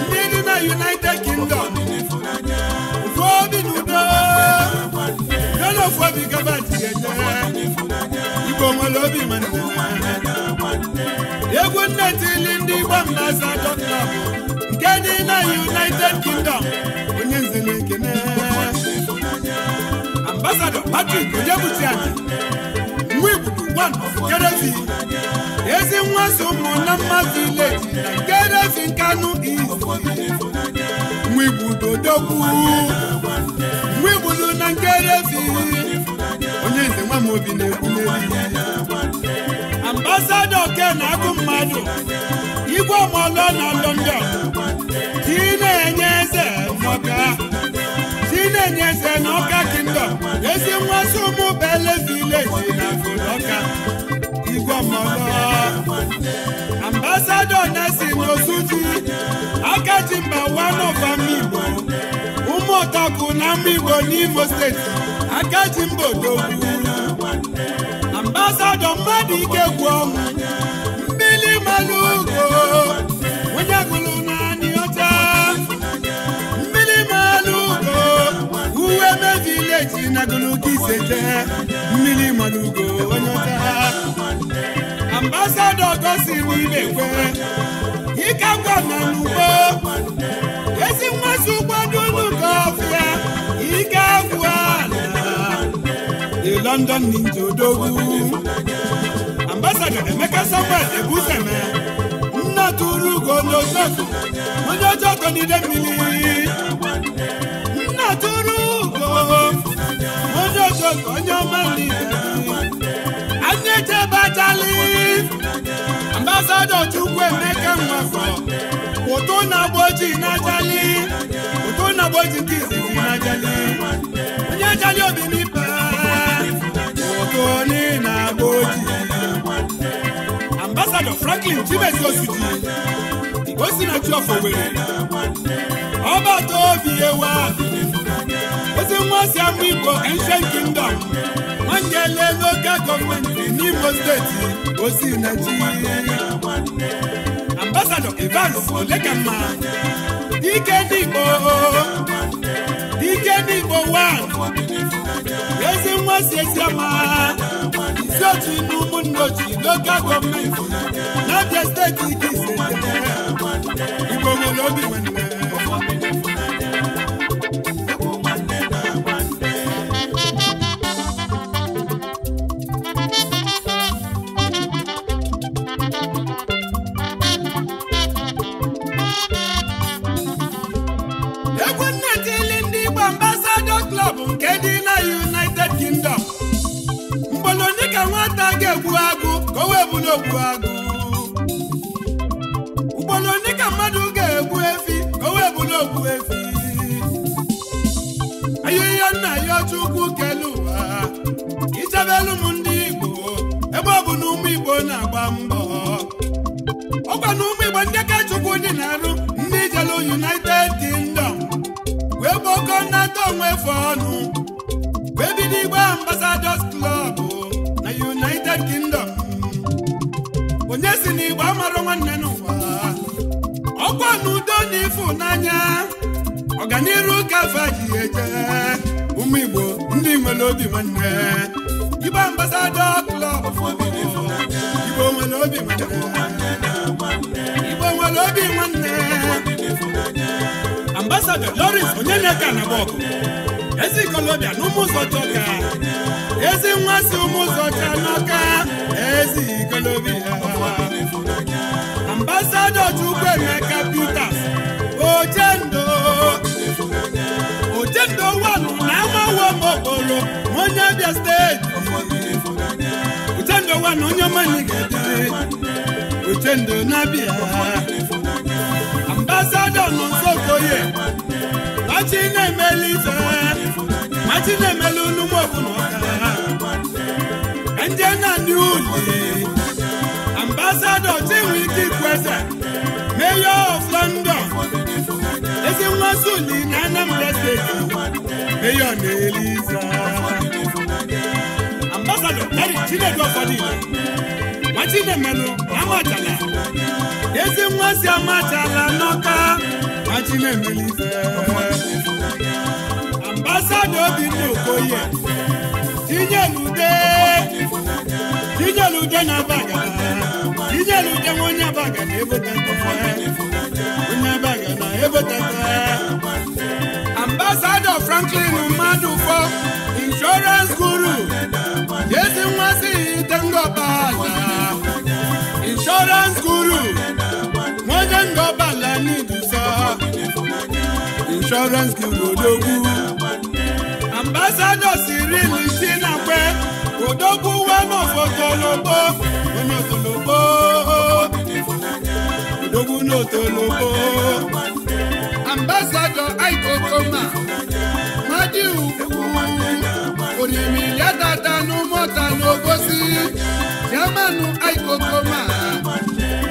ndị dị na united kingdom ofu obi na udo yana obi gaba ji igbo nwere obi nwanne nne tili ndị gbam na nke dị na United Kingdom onye nzere ekene ambasadọ Patrick Onyebuchiani nwa igbudu one kerezi. Kedesi ezi nwa so mụ na mmadụ leji na Kedesi Nkanu na Amobi na-ekwule ambasado oke na-agụ mmadụ igwe ọmụọlụ na London dị na-enye eze maka dị na-enye eze na ọka kingdom ezi nwazi ụmụ bele si na ọka igwe ọmụọlụ ambasado na-esi n'ozuji aka ji mba wanova Igbo ụmụ ụtọkụ na ama Igbo n'Imo steeti aka ji mba odogwu ọsọdọ mmadụ ike gwụ ọnwụ mmiri mmanụ ugo onye gụrụ naanị ọcha mmiri mmanụ ugo uwe mebile ji na gị isete, mmiri mmanụ ugo onye ọcha ambasadọ gosiri ibe kwe ịka ngwa na n'ugbo ezi mmasị ugbo London Ninja Odogwu ambasada Emeka Samuel Ebuseme nna tụrụ ugo n'ozofu onye ọjọọ ọtọ n'ide mmiri nna tụrụ ugo onye ọjọọ ọtọ onye ọma n'ide anyị eje ambasada Chukwu Emeka Nwafọ ụtụ na ụtụ na nke izizi onye ajali obi franklin chibesi osidi osinachi ọfọwere ọba tobi ewa ozi nwa si amụ igbo ancient kingdom nwanyele local gọọmenti n'imo steeti osinachi ambasadọ evans olekamma dike n'igbo dike n'igbo wa ezi nwa si ezi ọma so Tinubu nnochi local gọọmenti n'Abia steeti nke ise Igbo nwere obi nwanne ogbu agụ ugboro ndị ka mmadụ ga-egbu efi ka o wee bụrụ ogbu efi ahịhịa nna ya ọchụkwu kelu ụwa ichebelu m ndị Igbo ebe ọ bụ na ụmụ Igbo na-agba mbọ ọkwa na ụmụ Igbo ndị ka Chukwu dị na-arụ ndị jelu United Kingdom wee gbakọ nnata onwe fọnụ wee bido igbe ambasadọs n'udo na ịfụnanya ọganiru gafe ji eje ụmụ Igbo ndị nwere obi nwanne Igbo ambasadọ klọb nwere obi nwere obi nwanne na ezi ikolobịa n'ụmụ ụzọ ezi nwa si ụmụ ụzọ cha n'aka ezi ikolobịa Pita Chukwuemeka Peters Ochendo Ochendo wanụ na amawo mokporo onye Abia steeti Ochendo wanụ onye manyigede Ochendo na-abịa ambasadọ nọ Nsokoye machi na-emeli ife machi na-emeli unu mọbụ na ọka ndị na ndị uli ambasadọ Chinwike Ikweze mayor of London ezi nwazi uli na Anambra steeti mayor na-eliza ambasadọ Eric Chinedu Ọfọdụ machi na-emelụ amachala ezi nwazi amachala n'ọka Achimemelife ambasado Obinna Okoye tinyelude tinyelude na baga tinyelude onye abaga na ebotata onye abaga na ebotata ambasado Franklin mmadụ Madufo insurance guru jesi nwazi itengobala insurance guru nwoke ngobala nidu insurance gị odogwu ambassadọ Cyril Tinakwe odogwu wenotologbo onye otologbo odogwu n'otologbo ambasadọ Aikokoma mmadụ ugwu oriri ya dada n'ụmụta n'obosi jamanụ Aikokoma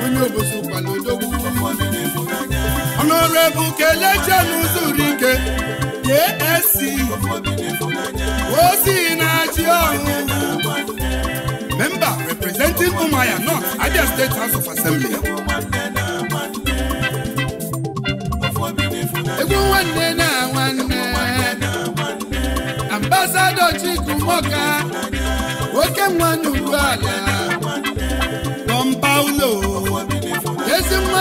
onye obosi kwala odogwu bụ kelechenu zuru ike JSC ozi na ji ọhụụ Memba representing Umuahia North Abia State House of Assembly egwu nwanne na nwanne Ambasado Chukwuemeka oke nwa n'ugwu ala bọmpa ụlọ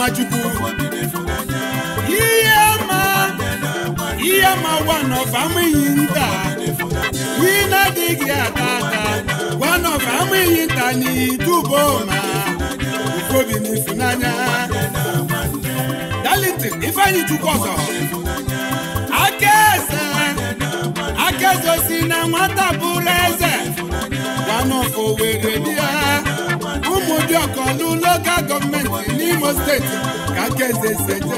Nwachukwu ihe ma ihe ma gwa nọfa amụghị nta ị na-adịghị ata ata gwa nọfa amụghị nta n'itubo ma obi na ifunanya Darlington Ifeanyi Chukwuọzọ aka eze aka eze si na nwata bụrụ eze gwa nọfa owere bịa Obiọkọ n'ụlọga gọọmenti n'Imo steeti ka aka eze sete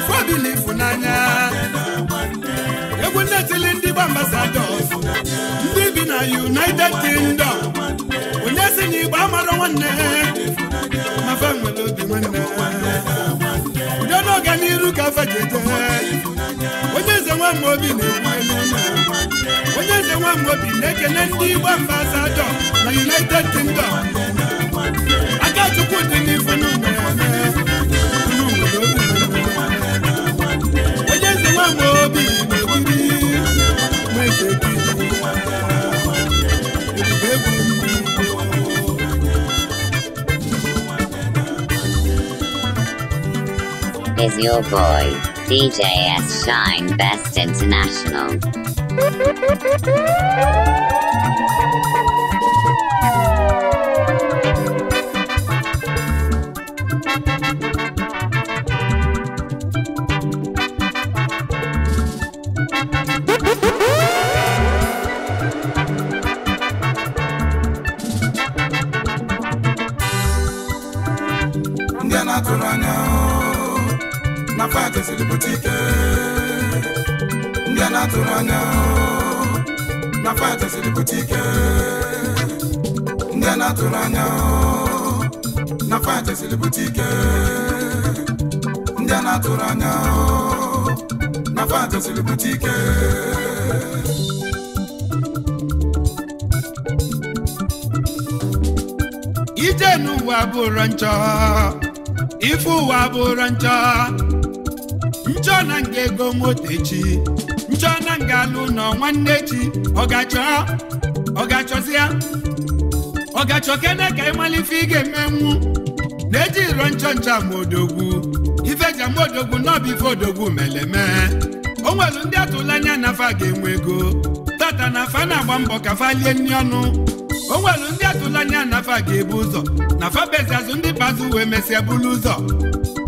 na efunanya egwu na-etili ndị bụ ambasadọs ndị bi na United Kingdom onye si na Igbo amarọ nwanne gafe onye eze nwa Amobi na-ekwu ekele ndị igbo mba Azadọ na United Kingdom aka Chukwu dị is your boy, DJ S Shine Best International. bụrụ njọ ife ụwa bụrụ njọ njọ na nga ego motechi njọ na nga alụ nọ nwanne chi ọgachọ ọgachọzịa ọgachọ kene ka ịmalife ị ga-emenwu na-eji iro njọ njọ amaodogwu ifeji amaodogwu n'ọbife odogwu meleme o nwelu ndị atụla anya na afa ga-enwe ego tata na afa na-agba mbọ ka fa lie nri ọnụ o nwelu ndị atụla anya nafa ga-ebu ụzọ na fabezi azụ ndị bazụ wee mesịa bulu ụzọ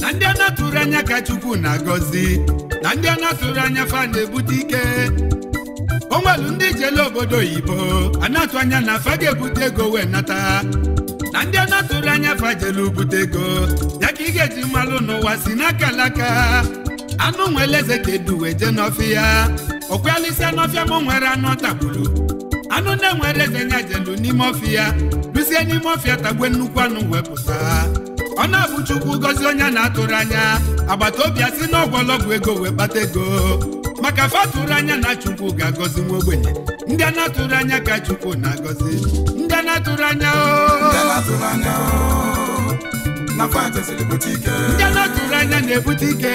na ndị a anya ka chukwu na-agọzi na ndị a anya fa na-ebute ike o nwelu ndị jele obodo oyibo ana atụ anya na fa ga-ebute ego wee nata na ndị a anya fa jele ubute ego ya ka ị ga-eji mmalụ n'ụwa si n'aka alaka anụ nwele eze ka eduwe jee n'ọfịa okwealisi n'ọfịa ma nwere anụ ọ tagburu nwere eze nya jelu n'ime ọfịa duzie n'ime ọfịa tagwe nnukwu anụ wepụta ọ na-abụ chukwu gozi onye na-atụrụ anya agbata obi asị na ọgwọlọgwụ ego wee kpata ego maka fatụrụ anya na chukwu ga-agọzi nwa ogbenye ndị a na-atụrụ anya ka chukwu na-agọzi ndị a na-atụrụ anya oh. oh. ndị a na-atụrụ anya na-ebute ike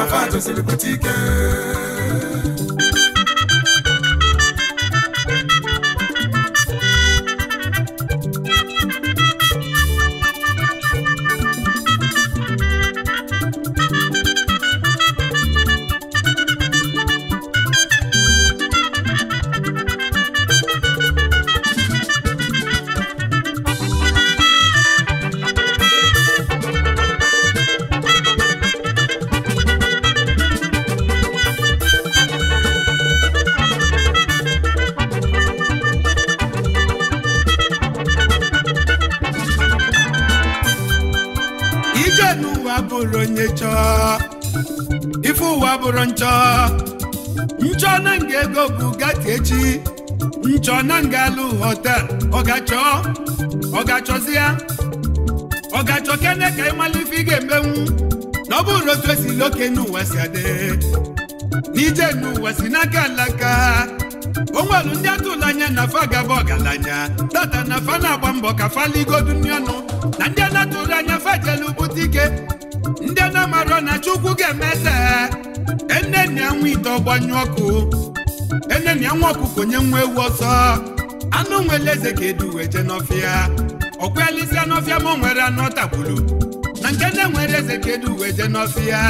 na fans, celebrity girl. chọọ na ngalụ hotel ọgachọ ọgachọzi ọgachọ kene ka ịmalụ ife ị ga-emenwu na ọ bụrụ otu esi loke n'ụwa si adị n'ije n'ụwa si n'aka alaka onwelu ndị atụla anya na fa gaba ọgaranya tata na fa na-agba mbọ ka faligodu nri ọnụ na ndị anatụrụ anya fajelu bute ike ndị na na chukwu ga-eme ese enne na anwụ ite ọgbanyụ ọkụ ene na ya nwa ọkụkọ nye nwa ewu ọsọ anụ nwere eze ka edu wee jee n'ọfịa n'ọfịa ma ọ nwere anụ ọ na nke nne nwere eze ka edu wee jee n'ọfịa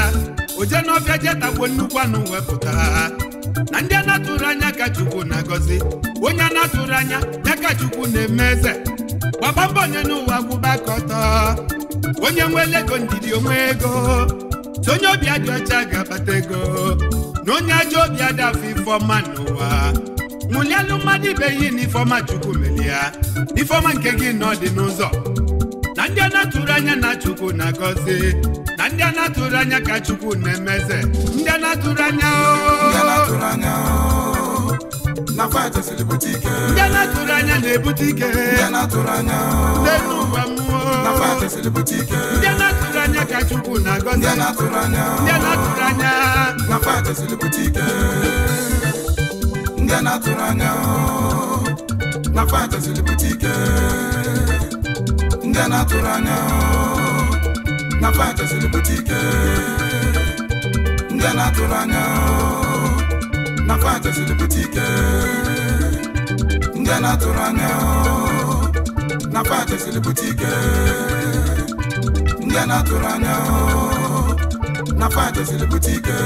o jee n'ọfịa jee tagbuo nnukwu anụ wepụta na ndị a na-atụrụ anya ka chukwu na-agọzi onye a na-atụrụ anya ya ka chukwu na-eme eze gbaba mbọ onye n'ụwa gwụba ka ọtọ onye nwere ego ndidi onwe ego so onye obi adị ọcha ga-abata ego na onye ajọ obi adafụ ifeọma n'ụwa nwụlialụ mmadụ ibe ihe na ifeọma chukwu meli ya ifeọma nke gị na ọ n'ụzọ na ndị a na-atụrụ anya na chukwu na-agọzi na ndị a na-atụrụ anya ka chukwu na-emeze ndị a na-atụrụ anya ndị a na-atụrụ anya na-ebute ike n'elu ụwa mmụọ ndị a na-atụrụ anya anya na ndị na-atụrụ anya na ike ndị na-atụrụ anya na fatesiri pụta ike ndị na-atụrụ anya na pụta ike ndị na-atụrụ anya na pụta ike ndị na-atụrụ anya na fajeziri bute ike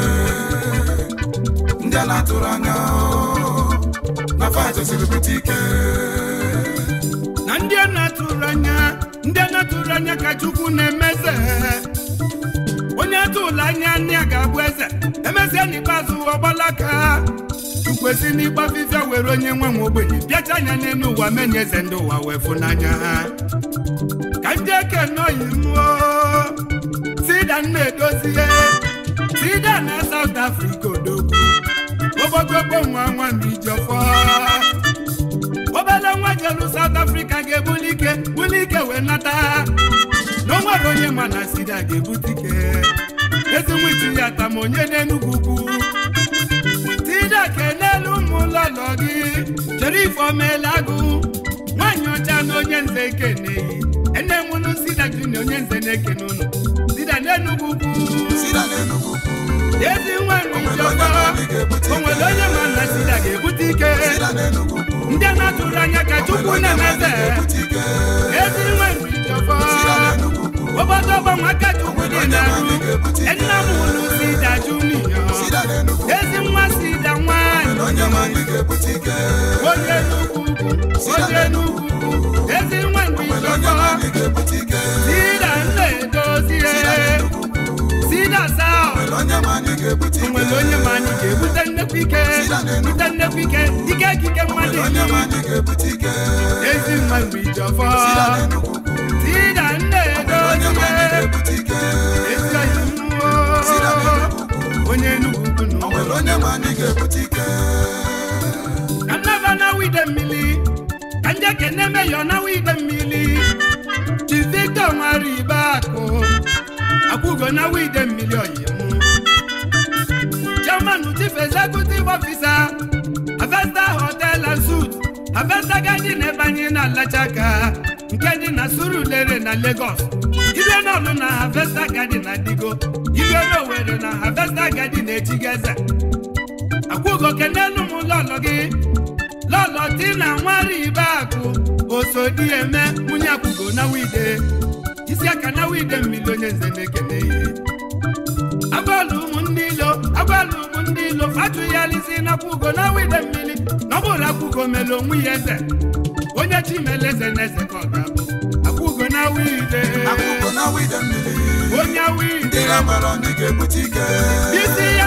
ndị na-atụrụ anya na fajeziri bute ike na ndị na-atụrụ anya ndị na-atụrụ anya ka Chukwu na-emeze onye atụla anya nne ya ga-abụ eze emesịa n'ikpeazụ ọgbalaka Chukwu esi n'ikpe afịfịa were onye nwe nwe ogbenye bịacha anya n'elu ụwa menye eze ndị ụwa wee fụnanya ka ndị eke nọyi m Chida edozie Sida na South Africa odogwu ogbogogbo nwa nwa Ijiọfọ obele nwa jelu South Africa ga-ebuli ike buli ike wee nata na o onye ma na sida ga-ebute ike ezinwichi ya tama onye na-enugwu ugwu Chida kenelu ụmụ ụlọlọ gị jere ifeomela agụ nwaanyị ọcha na onye nze keneyi ene nwụrụ sida junior onye nze na-ekene ụnụ n'enugwu ezi nwa njiọkpara onwere onye ma na sida ga-ebute ike ndị na-atụrụ anya ka chukwu na-emeze ezi nwa njiọkpara obodo ọgbanwe aka chukwu dị na-arụ nna m ụlụ sida juniọ ezi nwa sida nwanyị onye n'ugwu onye n'ugwu ezi nwere onye ma anyị ga-ebute nnekwu ike bute nnekwu onye ndị ekene meyọ nawa ide mmiri Chizito nwere ibe akụ akwụgo nawa ide mmiri oyimu chairman chief executive officer Avesta hotel and suit Avesta na ebanye na Alachaka nke dị na Surulere na Lagos ibe n'ọlụ na hafesta garden na Digo ibe n'Owere na hafesta garden na Echigeze akwụgo kene m ụlọ gị lọlọtị na nwaribe akụ osodi eme nwunye akwụgo n'awụ wide isi aka n'awụ wide mmiri onye nze na-ekene agbalụ ụmụ ndị ilo agbalụ ụmụ ndị ilo atụgharịzi na akwụgo n'awụ wide mmiri na ọbụrụ mere onwe ya eze onye ka ọ ga-abụ onye ya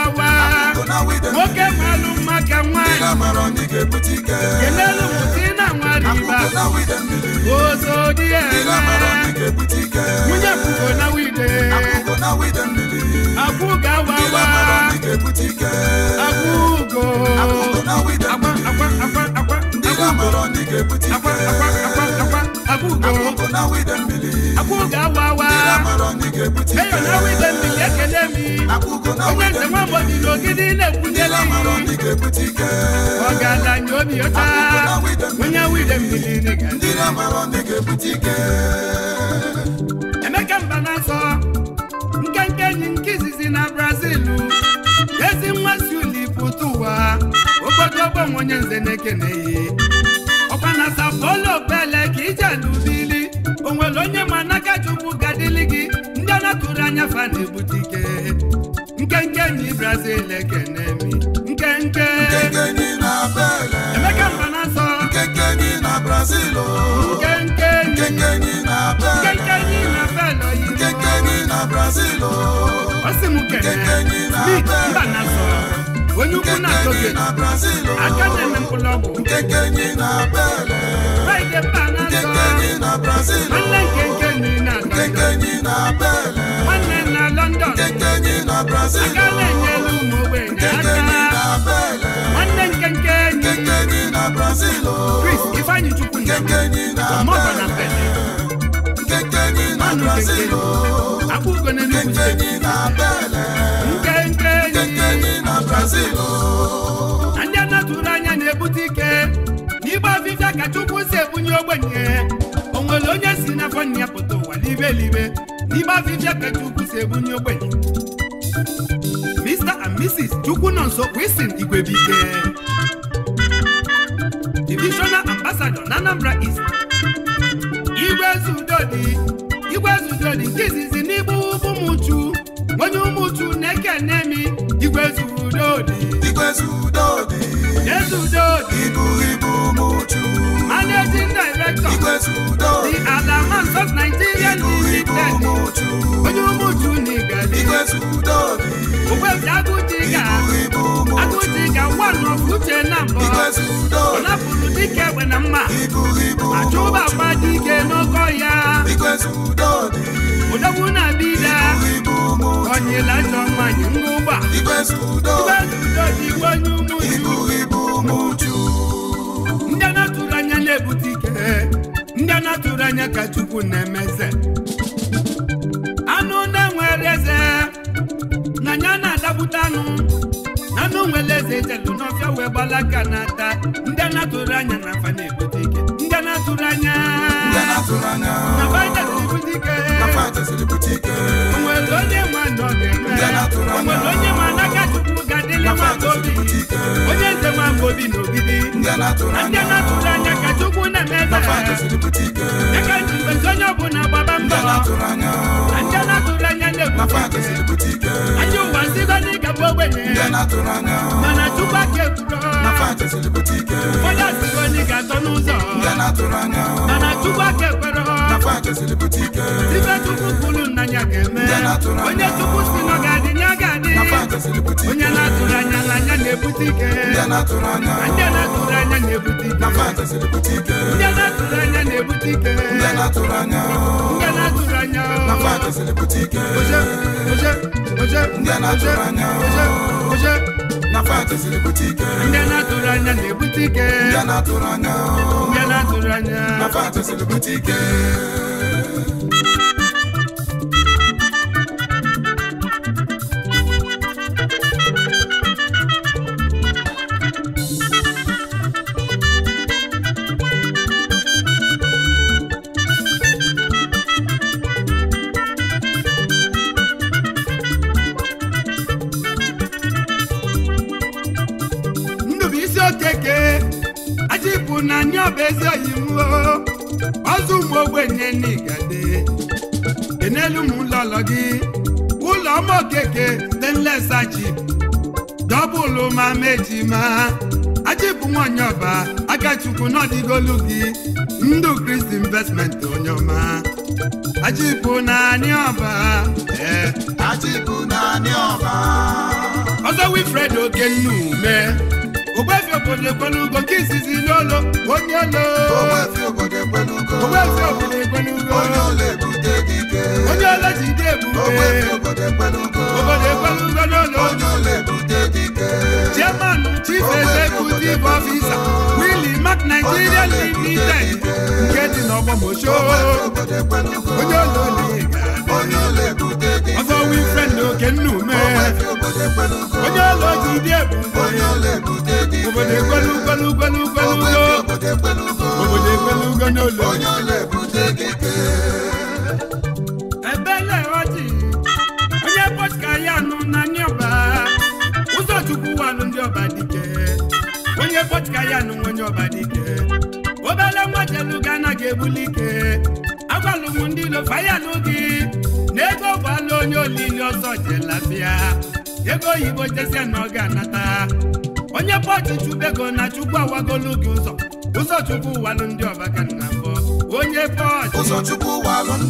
nwoke malụ mma ka nwaanyị kelelu mụta na nwariba ozodi nwunye pụgo na wide akwụ ga-awawa akwụgo akwa akwa akwa akwa akwa akwa akwa akwa akwa akwa akwụgo na widen bili na ekele mi onye nze nwa mbọdị na ogidi na-ekwunyeli ọgaranya obi ọcha onye widen bili emeka mba na-asọ nkenke enyi nke izizi na brazil ezi nwa si ụlọ ụwa obodo ọgbọ nze na-ekene gbakụrụ anya fa na nkenke nyi brazil ekene mi nkenke emeka mba na nsọ nkenke nyi na brazil oh. nkenke nkenke nyi oh. na brazil o si m kene mba na Enugu na Togo aka na-eme mkpụlọgwụ na azọ nwanne nke nke nri na nwanne oh. na London aka na-enyere ụmụ ogbenye aka nwanne nke nke enyi Chris Ifeanyi Chukwu mọba na pele akpụgo na Enugu oh. steeti ekwenye onwere onye si na afọ ya pụta ụwa libe elibe n'ime afịfịa ka si ebunye ogbenye Mr and Mrs Chukwu nọ nso Wilson Igwebike Divisional Ambassador na Anambra East Igwezudodi Igwezudodi nke izizi n'igbu ụmụchu onye ụmụchu na-eke nemi Igwezudodi Igwezudodi Igwezudodi onye ụmụju naigali agụjiga nwanọuche na mbọ ọ napụrụ dike egbe na mma achụba dị ike n'oke ọhịa odogwu na dida onyela njọ mmanya ngụgba igwe onye ndị na-ebute ike ndị anatụrụ anya ka Chukwu na-emeze anụ na nwere eze na anya na-adapụta anụ na anụ nwere eze ijelu n'ọfịa wee gbalaka na-ata ndị anatụrụ anya na afa na-ebute ike ndị anya na fajasiribute ike onwere onye ma anya, ọ onwere onye ma Chukwu onye nze nwaobi na ndị a na-atụrụ anya ka Chukwu na-eme aka ji mbezi onye ọbụla gbaba mbọ na ndị na-atụrụ anya na-ebute ike ajọ ụwa nzigo n'ịga ogbenye mana Chukwu aka onye asịgo ga atọ n'ụzọ mana Chukwu aka ekwero ibe Chukwu kwuru nna ya ga-eme onye Chukwu si na ọ ga-adị onye na-atụrụ anya n'anya na-ebute ike ndị na-atụrụ ndị na-atụrụ anya na-ebute atụrụ anya na atụrụ anya fantasy bute ike na-atụrụ anya ndị na-atụrụ anya fantasy bụ ezi oyiwo ọzọ ụmụ ogbenye n'igade dị n'elu m ụlọlọ gị ụlọ ọma okeke dị nlesachi dọbụlụ ma mejima aji bụ nwanyị ọba akachukwu n'ọdịgolu gị ndụ kristi investment onye ọma aji bụ naanị ọba ee eh, aji bụ ọba ọzọ ogbefi obodo ekwelugo nke izizi n'ụlọ onye olo ogbefi onye olo ebute gị ike onye olo ji dị ebube obodo n'ụlọ chairman chief executive officer nke dị n'ọgbọmosho onye olo ọzọ wii fred ndị oke nna ume onye ọla oji dị ebube ebele ọjị onye ka ya nụ na ndị ụzọ chukwu wanụ ndị ọba dike onye ka ya nụ onye ọba dike obele nwa jelu ga anaghị ebuli ike ọgbalụ m ndị lofa ya nụ na ego gbalụ onye olili ọzọ jelabịa ego oyibo jesia na ọga anata onye pọchi chubego na chukwu awagolu gị ụzọ ụzọ chukwu ndị ọba ka nna mbọ onye pọchi onye ụzọ chukwu m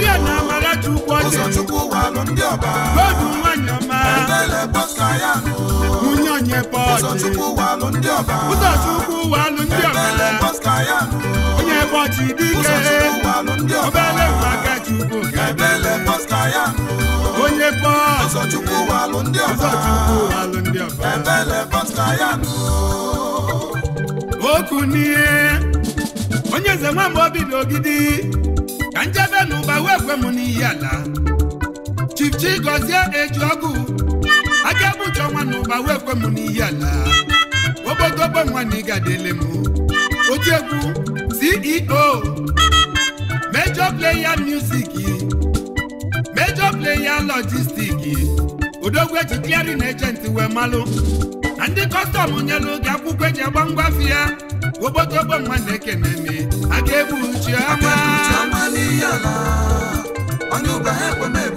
gị amara chukwu nwanyị nwunye onye bọchị ụzọchukwu walụ ndị ọbara onye bọchị dike obere maka chukwu onye bọchị ụzọchukwu walụ ndị ọbara okwu n'ihe onye eze nwamba obi n'ogidi ka njebe na ụba wee kwe m n'iyi ala Chief Chigozie Ejiọgụ aka egbuji ọnwa na ụba wee kwe m n'ihi ala obodo ogbenwa na ịga dele m egwu CEO Major Player Music Major Player Logistics odogwu eji clearing agent wee malụ na ndị kọstọm nyelụ gị akwụkwọ eji agba ngwafi ya obodo ogbenwa na-ekene m aka egbuji ọnwa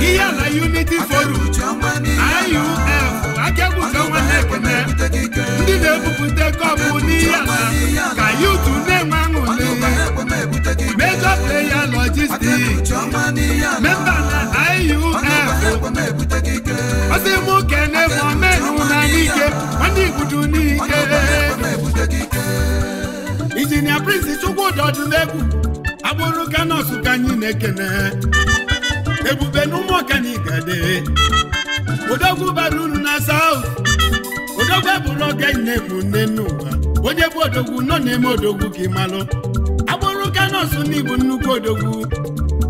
ihe ala unity forum IUF akebụta nwanne ekene ndị na-ebupụta kọpụ n'ihe ala ka yutu na-enwe aṅụrị major player logistics memba na IUF ọsị mụ na bụ omenụ na n'ike ndị igbudu n'ike injinia prince chukwudị ọdụlegwu agbụrụ ka ka anyị na-ekene ebube na ụmụ ọkanika odogwu bara na saut odogwu eburu ọkanne bụ nne n'ụwa onye bụ odogwu nọ na-eme odogwu gị malụ agbụrụ kanọsụ n'igbo nnukwu odogwu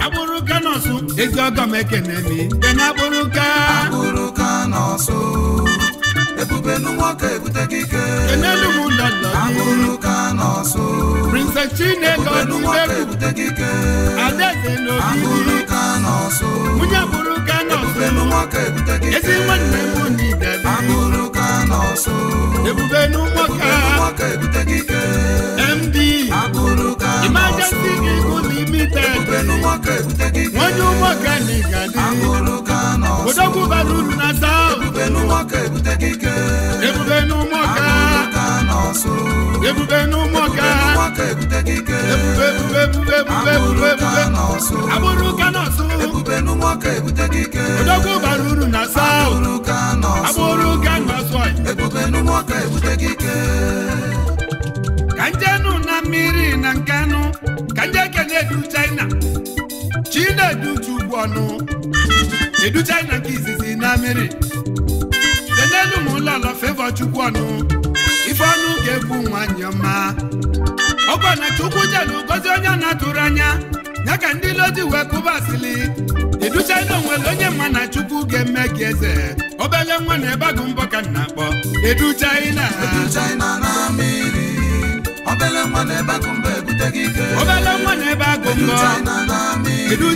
agbụrụ kanọsụ ezi ọgọm ekene ebube n'ụmụaka ebutego ike ahụrụ ka n'ọsụ ebube n'ụmụaka ebutego ike ahụrụ n'ọsụ ebube n'ụmụaka ebutego ike ahụrụ ka n'ọsụ ebube n'ụmụaka ebutego ike MD ahụrụ ka n'ọsụ ebube n'ụmụaka ebutego ike ebute uru na agbụrụ ụka nọsụ ebube n'ụmụaka ebute mmiri na nkenụ ka kene edu china chi na-edu uchu ọnụ edu china nke izizi na mmiri kenelu m ụlọlọ fevọ chukwu ọnụ ife ọnụ ga nwanyị ọma ọkwa na chukwu jelu gozi onye na-atụrụ anya ya ka ndị lozi ji wee kụba asịlị iduchana onwere onye mma na chukwu ga-eme gị eze obele nwa na ebe agụ mbọ ka m na-akpọ edu china obele nwa na ebe agụ mbọ edu china na amịrị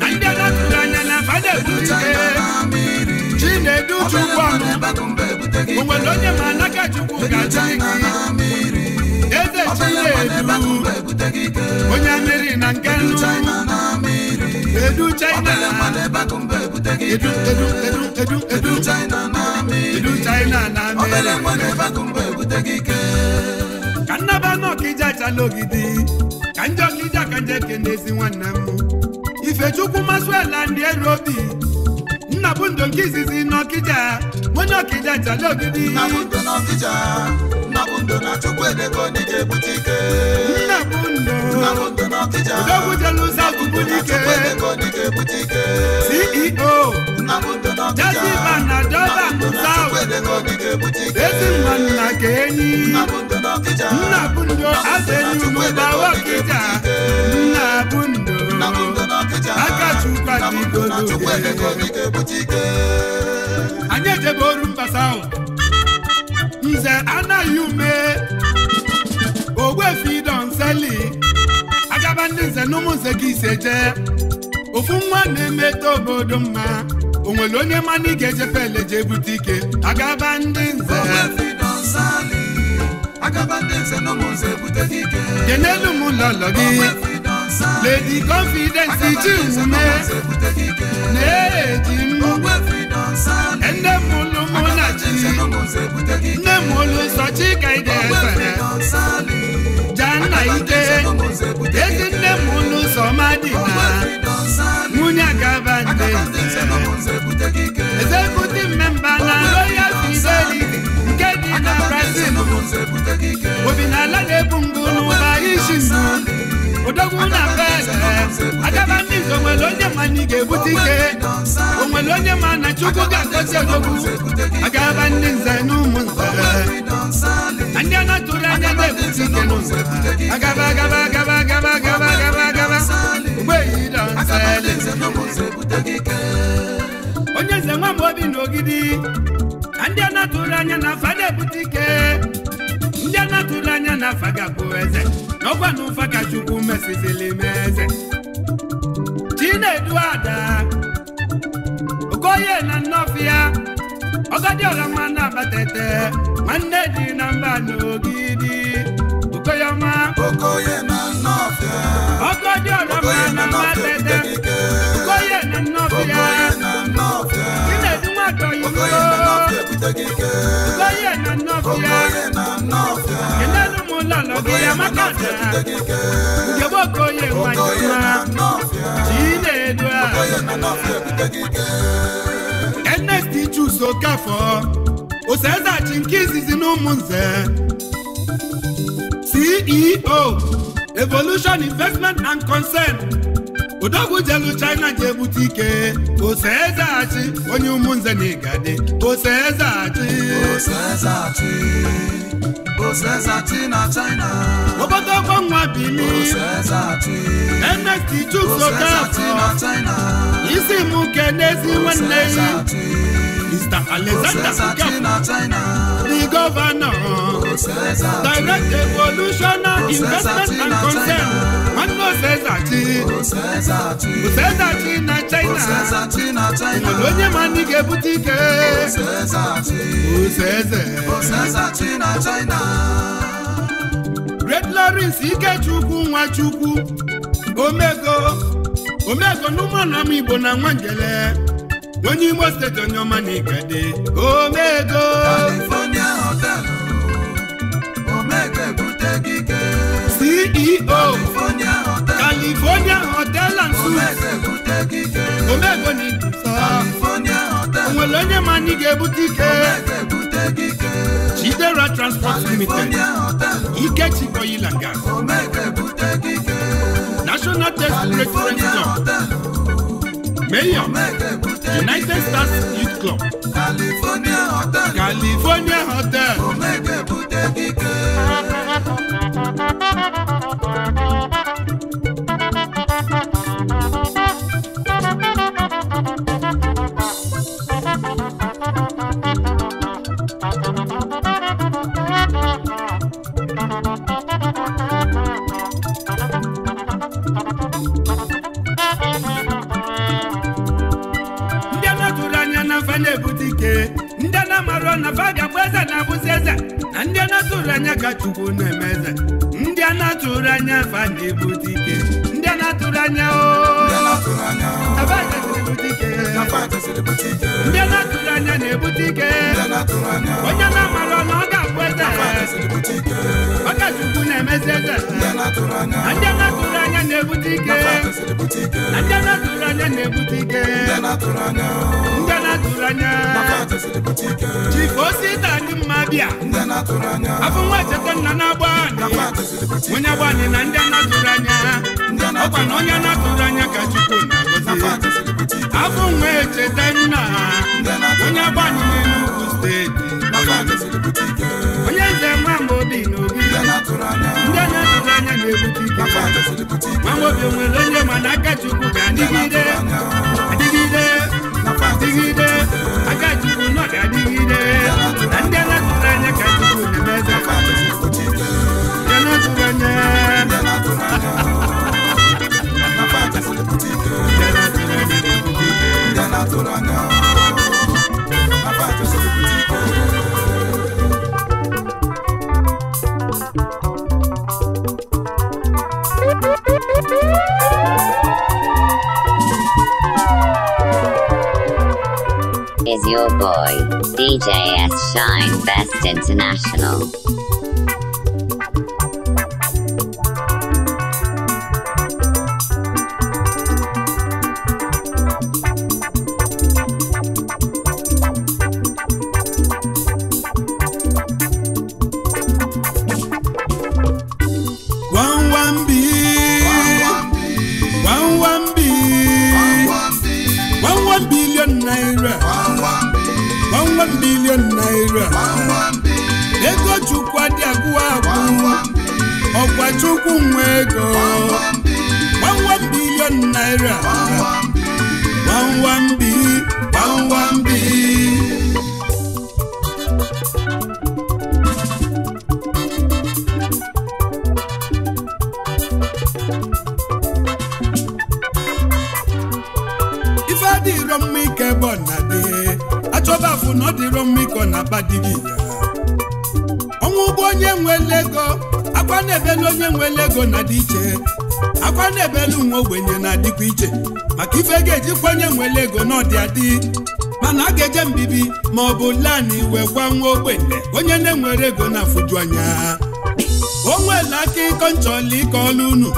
na ndị na-atụrụ anya na fada ebu ike chi na edu chukwu o nwere onye ma n'aka chukwu gaji eze chinedu onye amịrị na nke nnu edu china edu edu edu china na mmiri ka nnaba n'ọkija chalogidi ka njọ kija ka kene n'ezi nwanne m ifechukwu masụela ndị eru obi nna bụ nke izizi n'ọkịja onye ọkịja jale ogidi nna bụ ndụ n'ọkịja nna bụ ndụ na chukwu edebe onye ga-ebute ike nna bụ ndụ nna bụ ndụ n'ọkịja odogwu jelu ụzọ akụkụ n'ike CEO jaziba na dọla south ezinwa nna ka enyi nna bundo azenugba wakija nna aka akachukwadigodoge anyị ejebe oru mbasa south nze anaghị ume ogbefi donseli agaba ndị nze na ụmụ nze gị ise jee ofu nwa na-emeta obodo mma o nwere onye mana ị ga-eje pele jee bute ike agaba ndị nze kenelu m ụlọlọ gị ledi confidence ji ume na-eji m nne m ụlụ mụ na chi nne m ụlụ nsọ chika ide efere ja nna ike ezi nne m ụlụ nsọ ma dị na akabande ezekuti mmemba na royal fidelity nke dị na brazil obi na ala na-ebu n'ụba na pete akabande nwere onye ma ga-ebute ike onye ma na chukwu ga-agọzi odogwu akabande nze na ndị a na-atụrụ anya na n'ụzọ agaba agaba agaba onye eze nwa Amobi na na ndị anatụrụ anya na afa na-ebute ike ndị anatụrụ anya na afa ga eze na ọgwa na ụfa ka Chukwu mesizili m eze Chinedu Ada Okoye na Nnọfịa Ọgadịọra ma na-abata ete nwanne dị na mba na Ogidi ọma ye na nnọfịa ọgọdị ọrọma na mmatete ye na ye na nnọfịa chinedi nwata oyibo ye na nnọfịa enelu m ụlọ nọgị ya ye na ye na nwanyịma chinedu a enesti jus okafọ oseza chi nke izizi na ụmụ nze CEO Evolution Investment and Concern Odogwu jelu China ji ebute ike ose ezehachi onye ụmụnze na igade ose ezehachi na China obodo ọgbanwa bili Ernest Chukwuka isi mụ ke n'ezi nwanne ya Mr. Alexander Okafor, the governor, direct evolutionary investment and concern, Magno Sezati, Sezati na China, Olonye Manike Butike, Sezati na China. Great Lawrence Ikechukwu Nwachukwu, Omego, Omego Numanam Igbo na Nwangele. onye Imo steeti onye ọma na ikede omego California hotel omega ebute gị ike CEO California hotel California hotel and suites omego na ikusa California hotel onwere onye ma anyị ga-ebute ike Chidera Transport Limited Ikechi Oil and Gas National Test Breakfast Club Mayor United Stars Youth Club California Hotel California Hotel fa ga-abụ eze na-abụzi eze na ndị anatụrụ anya ka chukwu na-eme eze ndị anatụrụ anya fa na-ebute ike ndị anatụrụ anya ndị anatụrụ anya na-ebute ike onye na-amara ọnụ ọ ga-abụ eze ọ ka chukwu na-emezi eze na ndị anya na-ebute ike Na ndị na-atụrụ anya na-ebute ike ndị na-atụrụ anya jikosi ite anyị mma bịa afọ nwa cheta nna na-agba anyị. onye agba anyị na ndị na-atụrụ anya ọkwa na onye na-atụrụ anya ka chukwu na-agọzi afọ nwa echeta nna onye na n'Enugu steeti onye nze nwa mgbe obi n'obi ndị na-atụrụ anya nwaobi nwere onye mana aka chukwu ga-adịgide adịgide adịgide aka juku nọ ga na ndị anatụrụ anya ka chukwu na your boy, DJ S. Shine Best International. bụkwa nwa ogbenye onye na-enwere ego na-afụju anya o nwere aka ịkọ nchọla ike ọlụ unu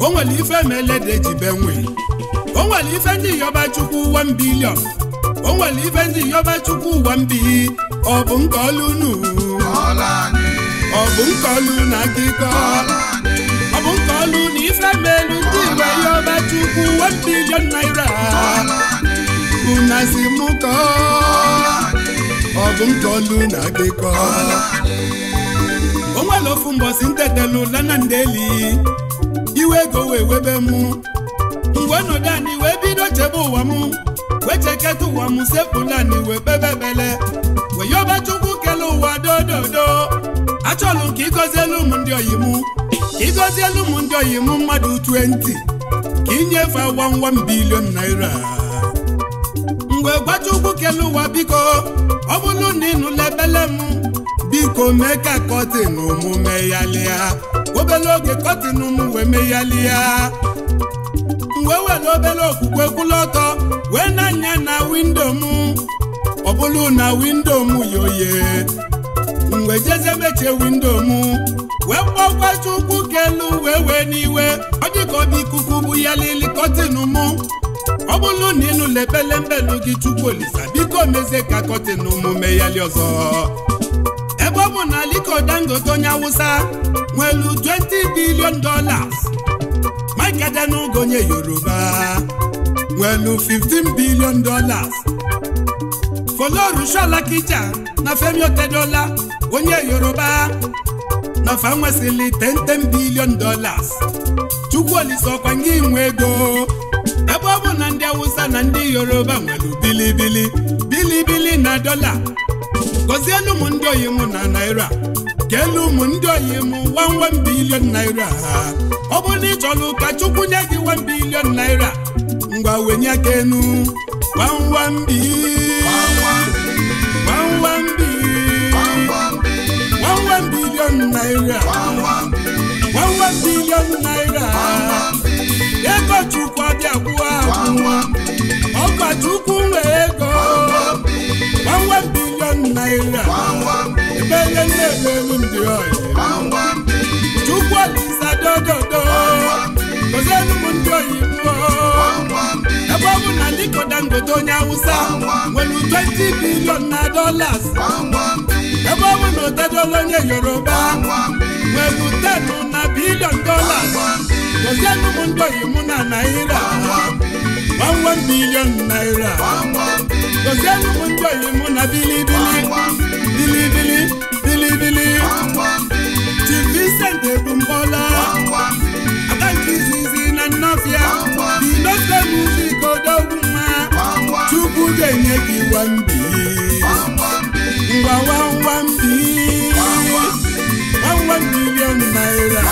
o nwere ife melede jibe nwe o nwere ife ndị yọba chukwu ụwa mbilion o nwere ife ndị yọba chukwu ụwa bi ọ bụ nke ọlụ unu ọ bụ nke ọlụ na aka ịkọ ọ bụ nke ọlụ na ife melu ndị igwe yọba chukwu ụwa mbilion naira unazi mụkọọ ọ bụ nke na-adịkọ onwere ofu mbọsi ntetelu lana ndeli iwe ego wee webe m mgbe ọnọdụ anyị wee bido chebe ụwa m wee cheketa ụwa m sepụla anyị wee bebebele wee yọba chukwu kele ụwa dododo achọlụ ka ịgọzielu m ndị oyi m ka ịgọzielu m ndị oyi m mmadụ 20 ka inyefe wam m bilion naira mgbe gbacha ugwu kele ụwa biko ọ bụrụ na ịnụla ebele m biko mee ka kọtin mụ meghalịa obere oge kọtin m wee meghalịa mgbe were obere okwukwe kwụlụ ọtọ wee na-anya na windo m ọ bụrụ na windo m yoye mgbe jeze mechie windo m wee kpọkwa chukwu kelu wee wee n'iwe ọ dị ọ bụ ikuku bụ ya lili kọtin mụ ọ bụrụ na ịnụla ebele mbelu gị chukwu olisa biko mezie ka kọtin omume ya li ọzọ ebe ọ bụ na Aliko Dangote onye Awụsa nwelu 20 billion dolas Mike Adenuga onye Yoruba nwelu 15 billion dollars Folorunsho Alakija na Femi Otedola onye Yoruba na fa nwesịrị 10 dolas dollars Chukwuolise Okwangị nwe ego ebe ọ bụ na ndị Awụsa na ndị Yoruba nwere bilibili bilibili na dọla elu ụmụ ndị oyi mụ na naira elu ụmụ ndị oyi m wanwe bilion naira ọ bụrụ na ị chọrọ ụka chukwu nye gị wan bilion naira ngwa wenye aka enu ego chukwu abịa kwụọ akwụ enweghị nna ebe nye nne na-eru m dị ọyị chukwu ọdịsa dododo ozienu m ndị oyibo ebe ọ na Aliko Dangote onye Awụsa nwere 20 bilion na dollars ebe ọ na otedola onye Yoruba nwere 10 na bilion dollars ozienu m ndị oyibo na naira 11 bilion naira gozie nnukwu ndị oyi mụ na bilibili bilibili bilibili ji Vincent ebumbọla aka nke izizi na nnọfịa dinofe muzik odogwu mma Chukwu ga-enye gị wambi ngwa wamwambi wamwam naira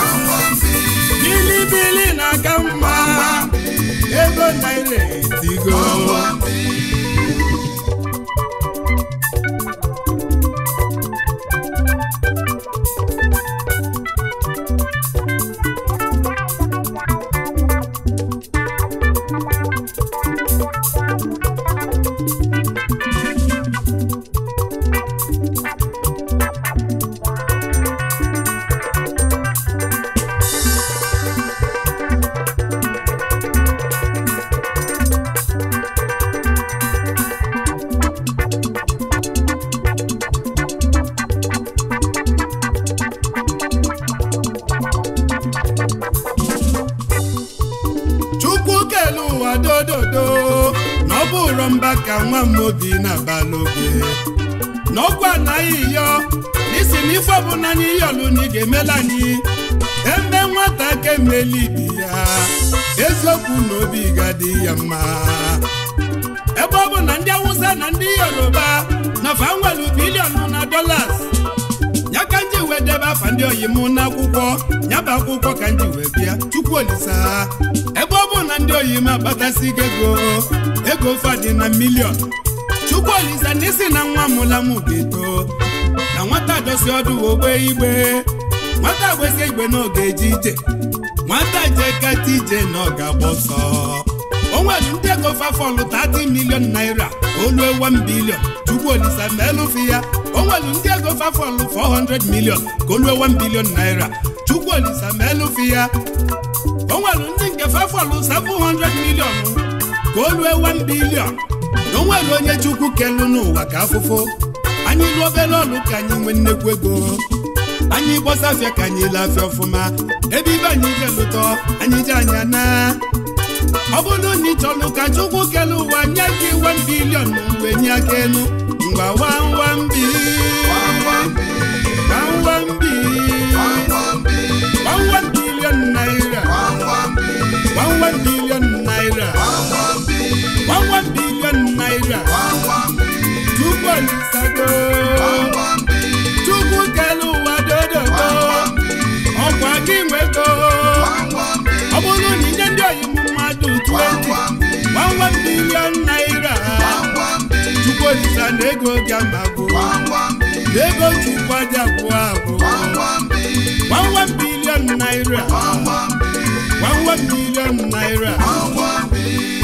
bilibili na-aka mma ego naira etigo n'ime m akpatasi gị ego ego fadị na milion chukwu olise na na nwa mụla m ga-eto na nwata dosi ọdụ ogbe igbe nwata gbesi igbe na oge eje ije nwata jee kata ije na ọ ga-agba ọsọ o nwere ndị ego fafọlụ 30 milion naira olu ewa bilion chukwu olise meelụfi ya o nwere ndị ego fafọlụ 400 milion ka olu ewa bilion naira chukwu olise meelụfi ya o nwere ndị fefọlụ 700 million ka lue 1 billion na onwere onye chukwu kelu n'ụwa ka afụfụ anyị lụ obere ọlụ ka anyị nwee nnekwu ego anyị gbọsafịa ka anyị lafịa ọfụma ebe ibe anyị ga-elụtọ anyị ji anya na ọ bụrụ na ị chọrọ ka chukwu kele ụwa nye gị 1 bilion mgbe nye aka elu mgbe wawambi wawambi 1 bilion naira 11 billion naira 11 billion naira chukwu olisago chukwu kele ụwa dododo ọkwa gị nwego ọ bụrụ na inye ndị oyibo mmadụ billion naira chukwu olisa dị amagbo na billion naira one one million naira. one one million.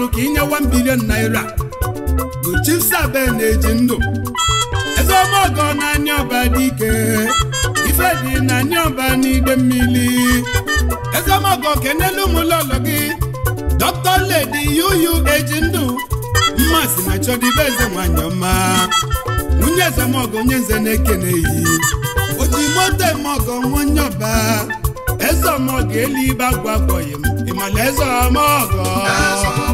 ọnụ ka inye 1 bilion naira bụ chief na-eji ndụ eze ọmọgọ na anya ọba dị ike ife dị na anya ọba n'ide mmiri eze ọmọgọ kenelu ụlọ gị dọkịta ledi yuyu eji ndụ mmasị na chọdịbe eze nwanyị ọma nwunye eze ọmọgọ onye nze na-ekeneghị oji moto ọmọgọ nwanye ọba eze ọmọgọ elu ibe agwa akpọghị m ịmala eze ọmọgọ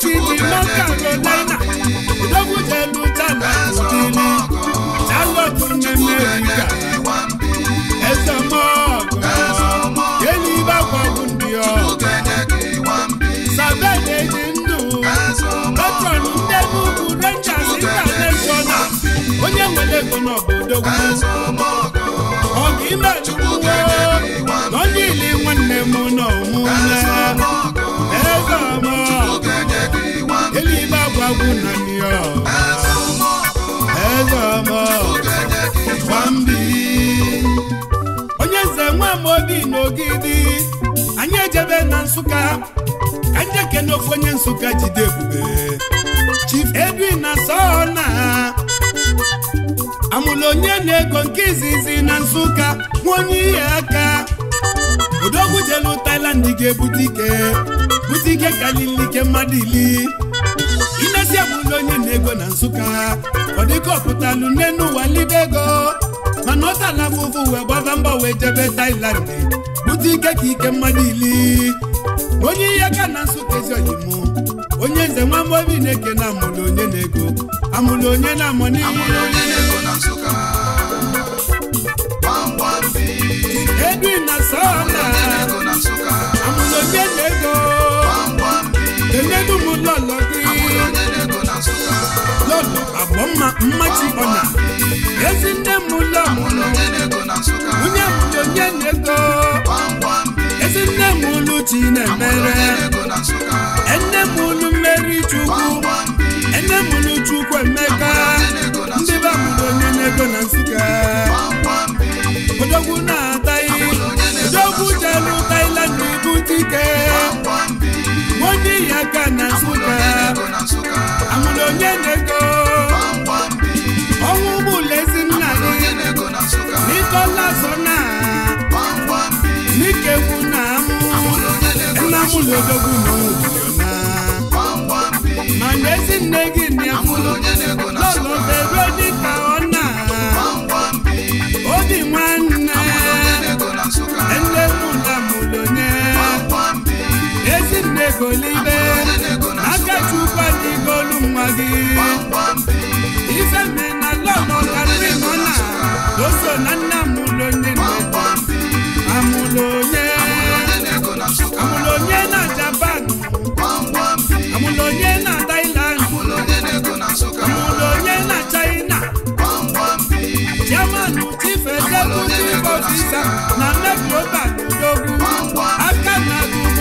Bauchi dị North Carolina Dobujelu Ghana Odili Charlotte America Ezemọgụ Yelibakwabu ndị ọgụ Sabene dị ndụ ndị Enugu Rangers International onye nwere ego Ọ ọgụ ime chukwuwo nwanne m n'ọmụme eluigbe agwagwu na New York eze ọma onye nze nwa Amobi na Ogidi anyị ejebe na Nsụka ka ndị ekene onye Nsụka jide ebube Chief Edwin na Sona amụla onye na-ego nke izizi na Nsụka nwa onye ihe aka odogwu jelu Thailand ga-ebute ike bute ike karịa ike mmadụ ili inesi abụrụla onye na-ego na nsụka ọ dịka ọpụtalụ n'enu ụwa libe ego mana ọ tala m ụfụ wee gbaba mba wee jebe Thailand bute ike ka ike mmadụ ili onye ihe ka na nsụka ezi oyimụ onye nze nwa mgbobi na-eke na amụlụ onye na-ego amụlụ onye na-amụ Edwin na sọla amụlụ onye na-ego enyedu m ụlọ ọlọdị lọlọ agbọ mma mmachi ọnya ezi nne m ụlọ onye mụrụ onye na-ego ezi nne m ụlụ chi na-emere enne m ụlụ mmeri chukwu enne m ụlụ chukwu emeka ndị be mụrụ onye na-ego na nsụka odogwu na-ataghị odogwu jelu tailand na ibu dike wodi yaka na nsuka amudo nye nego ọnwụ gbulezi nna gị n'ịkọla zọna n'ikegbu na amụ nna m lodogwu na ụmụna ma n'ezi nne gị nịafụ lọlọ bebe dịka ọ na obi nwanne nne mụ na mụ lonye egolibe aka chukwu dị golu nwa gị ife mme na lọnọkarịrị nọ na oso na nna amụlụ onye amụlụ onye amụlụ onye na japan amụlụ onye na thailand amụlụ onye na china jaman chief executive officer na nebi oba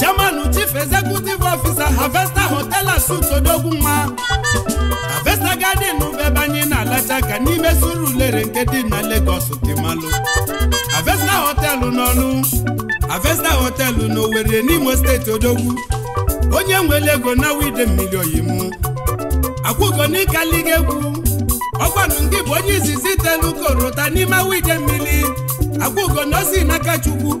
German. chief executive officer Harvester hotel asut odogwu nwa Harvester garden bebe anyị na-alacha ka n'ime suru ulere nke dị na Lagos dị malụ Harvester hotel n'ọlụ Harvester hotel n'Owerri n'Imo steeti odogwu onye nwe ego na wide mmiri oyimu akwụgo n'ikaliga egwu ọkwanụ ndị bụ onye izizi itelu korota n'ime wide mmiri akwụgo na n'aka Chukwu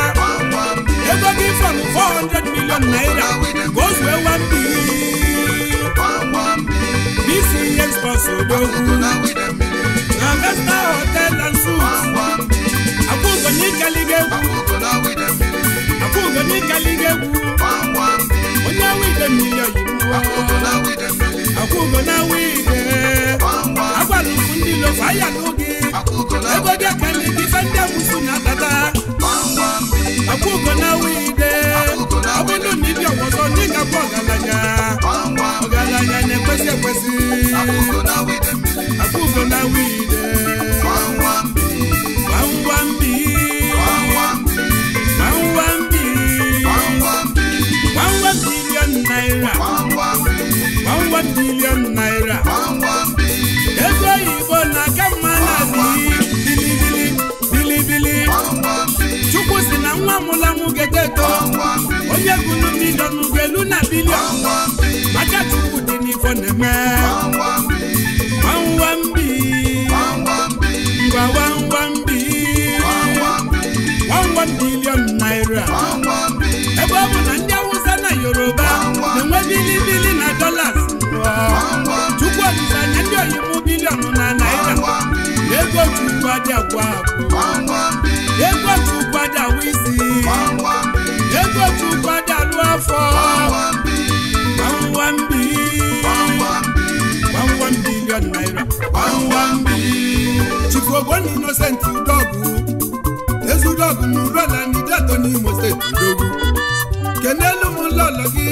ego gị from 400 million naira goes wee 1 billion BCX bus odogwu na Vesta Hotel and Suites akwụgo n'ikaliga egwu onye wide million akwụgo na wide agwara ndị lofa ya n'oge ego ekele ndị abụsụ na-atata akwụko na wide ọ bụrụ na ibi ọgwọzọ ndị ga-abụ ọgaranya ọgaranya na-ekwesị ekwesị akwụko na wide gbangwa mbi mbi naira gbangwa bilion naira mụlanwụ geteto onye gụlụ milion ugelu na bilion maka chukwu dị n'ifo na-eme wawambi ngwawambi wawa bilion naira ebe ọ bụ na ndị awụsa na yoruba na-enwe bilibili na dolas chukwu ọdịnanya ndị oyibo bilion na naira egwotukwada gwa egwotukwada wa isi egwotukwada lụ afọ gbamgbambi gbamgbam bilion naira gbamgbambi chikogbon innocent udogwu ezudogwu na urola nidato Imo steeti udogwu kenelu m lọlọ gị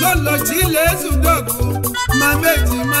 lọlọ chi ile ezudogwu ma mejima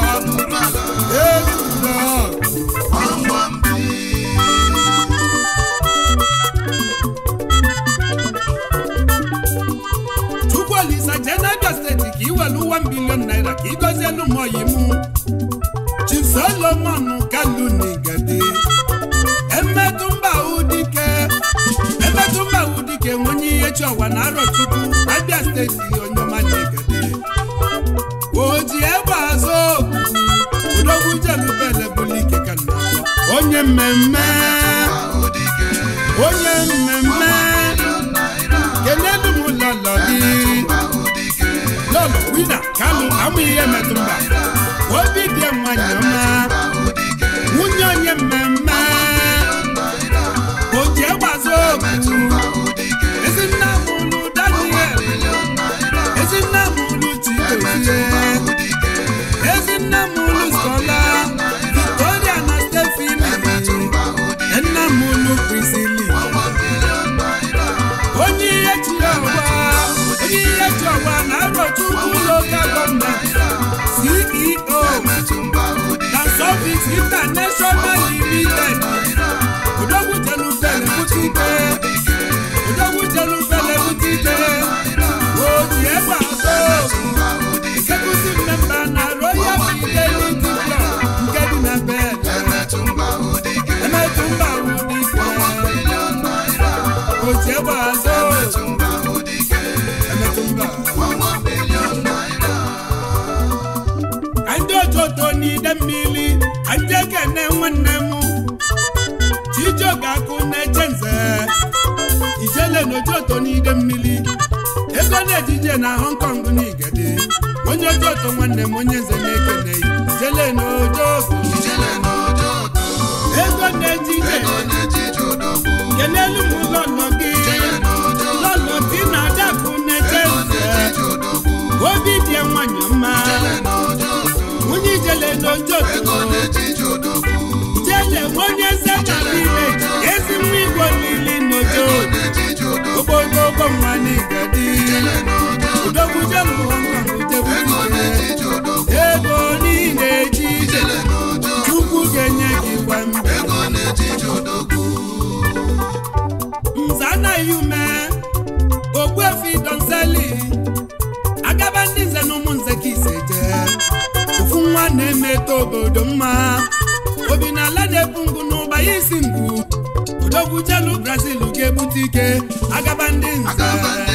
olùmọ̀yì mu chisolomonu kalu n'igede emetụmba udike emetụmba udike onye ihe chiọwa na arọ chukwu steeti onyoma ni gade oji egbe azụ odogwu jelubele bụlike ka nna onye mmemme onye amụghị ihe metụ mba obi dị nwanyị ọma international limited òdòkùtẹ̀lùfẹ̀lù kùtì gbé. na-eji oto n'ide mmiri ego na-ejije na Hong Kong na Igede onye oji oto nwanne m onye nze na-ekene ijele na ego na-eji ije kelelu m ụlọ gị lọlọ dị na adapụ na-eje obi dị nwanyị mma onye ijele jele onye nze na niile ezi niile okpokoko mmanụ igadi udokwuje mụọnụutekwuje ego niile eji chukwu ga-enye gị gwa mza anaghị ume ogbuefi donseli agaba ndị nze na ụmụ nze ka ise je, ofu nwa na-emeta obodo mma obi na ala ogwujelu brazil ga egbute ike agaba ndị nze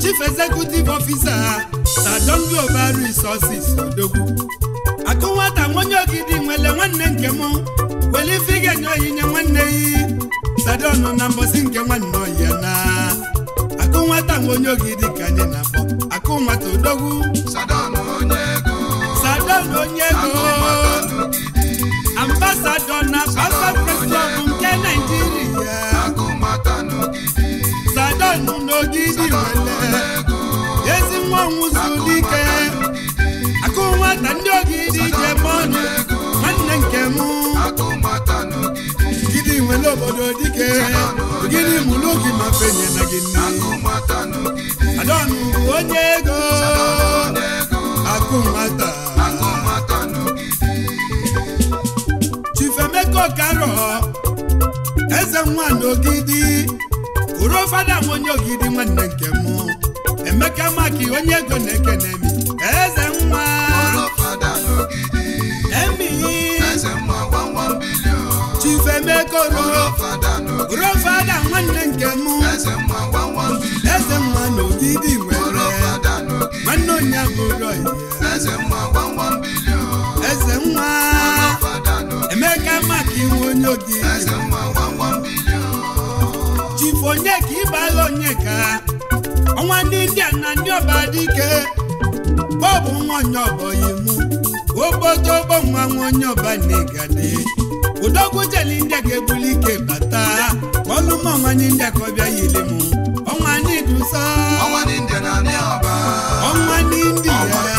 chief executive officer na dongo ba resources odogwu nwele nwanne nke m wele ife ga enye nye nwanne yi stadion na mbosi nke nwanne oyi na akụ nwata ogidi ka anyị na-akpọ akụ odogwu stadion onye ego ambasadọ na pasa nke naijiria Jenu n'ogidi wele ezi nwa nwụzulike akụ nwata ndị ogidi jemọnụ nwanne nke m gidi nwere obodo dike gịnị mụrụ gị ma fenye na gị nne adọnụ onye ego akụ nwata chifemeko karọ eze nwa n'ogidi bụrụ fada m onye ogidi nwanne nke m emeka maki onye ego na eke na emi eze nwa emi fada nwanne nke m eze nwa na nwere nwanne onye eze emeka maki onye ogidi onye ka ịbala onye ka ọnwa ndị india na ndị ọba dị ike bọbụ nwa onye ọba oyiwu obodo ọgbọ nwa nwa onye ọba na-egade udogwu jeli india ga-ebuli ike bata ọlụmọ nwanyị india ka ọ bịa yiri m ọnwa ndị dusa ọnwa ndị ndị india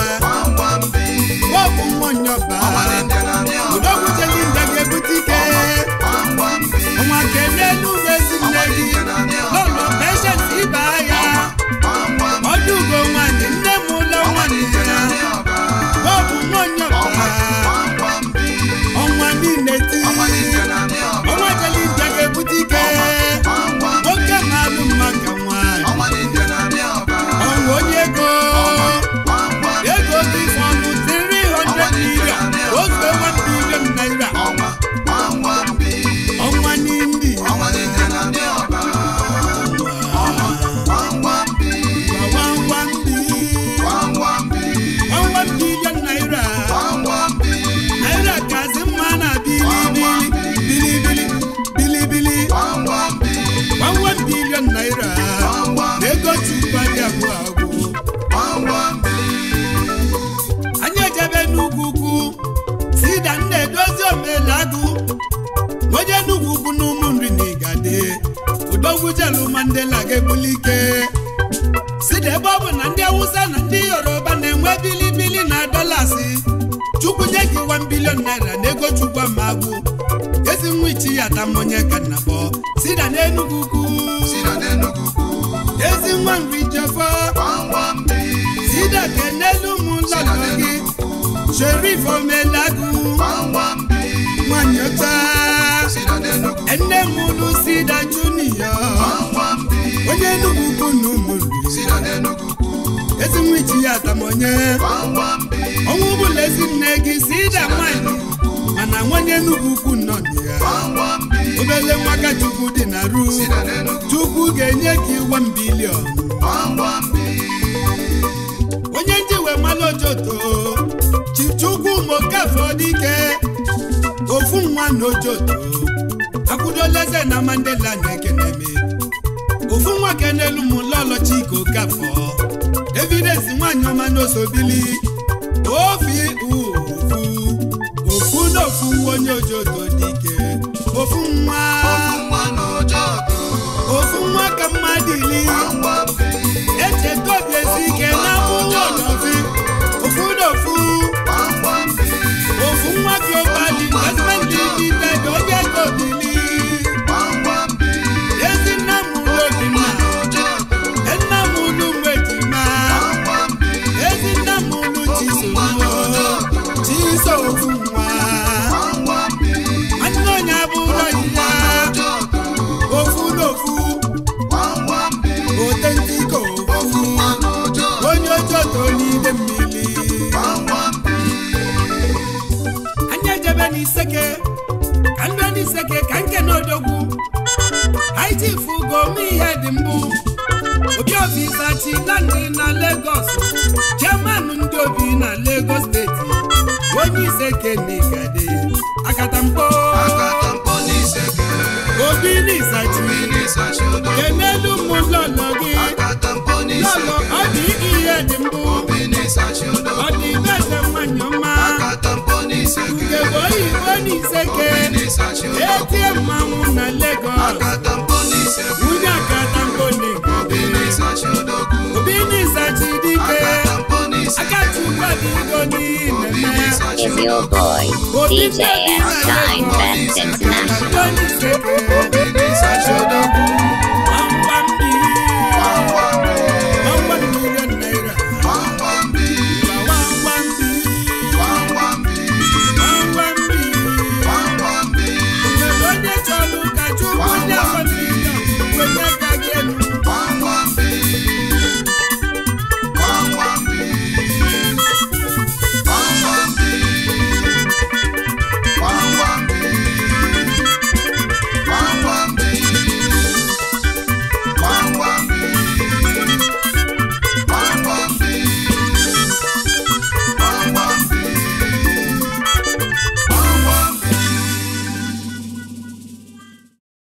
igwe bilibili na dọlasị chukwu nye gị 1 bilion naira n'ego chukwu ama agwụ ezi nwa ichi ya ata mmụnye ka nna bọ sida n'enugu ukwu ezi nwa nri jefọ sida ka n'elu ụmụ ụlọ gị sherif omelagụ nwanyị ọcha nne m sida junior onye enugu ukwu na ụmụ ezi nwa iji ya atamonye ọnwụ bụla ezi nne gị si ịda nwanyị mana nwanye Enugu ukwu nnọdụ ya obele nwaka Chukwu dị na ru Chukwu ga-enye gị one billion onye ndị we mmanụ ojoto Chukwu mokafe ike. ofu nwa na ojoto akwụdola eze na Mandela na ekeneme ofu nwa kenelu mụlọlọchika okafọ evidence nwaanyị ọma n'osobili obi ofu ofu n'ofu onye ojoto dike ofu nwa ofu nwa ka mmadụili echeta obi ezi ike na ụlọ n'ofi ofu n'ofu ofu nwa gị ụbadị husband dị dị obi ego obili chifu gome ihe dị mbụ Obiobi na legos jeman ndị obi na Lagos steeti onye ise na Isachi enelu lọlọ gị lọlọ ọ dị ihe dị mbụ ọ dị ibe nke bụ oyibo na iseke eti mmanwụ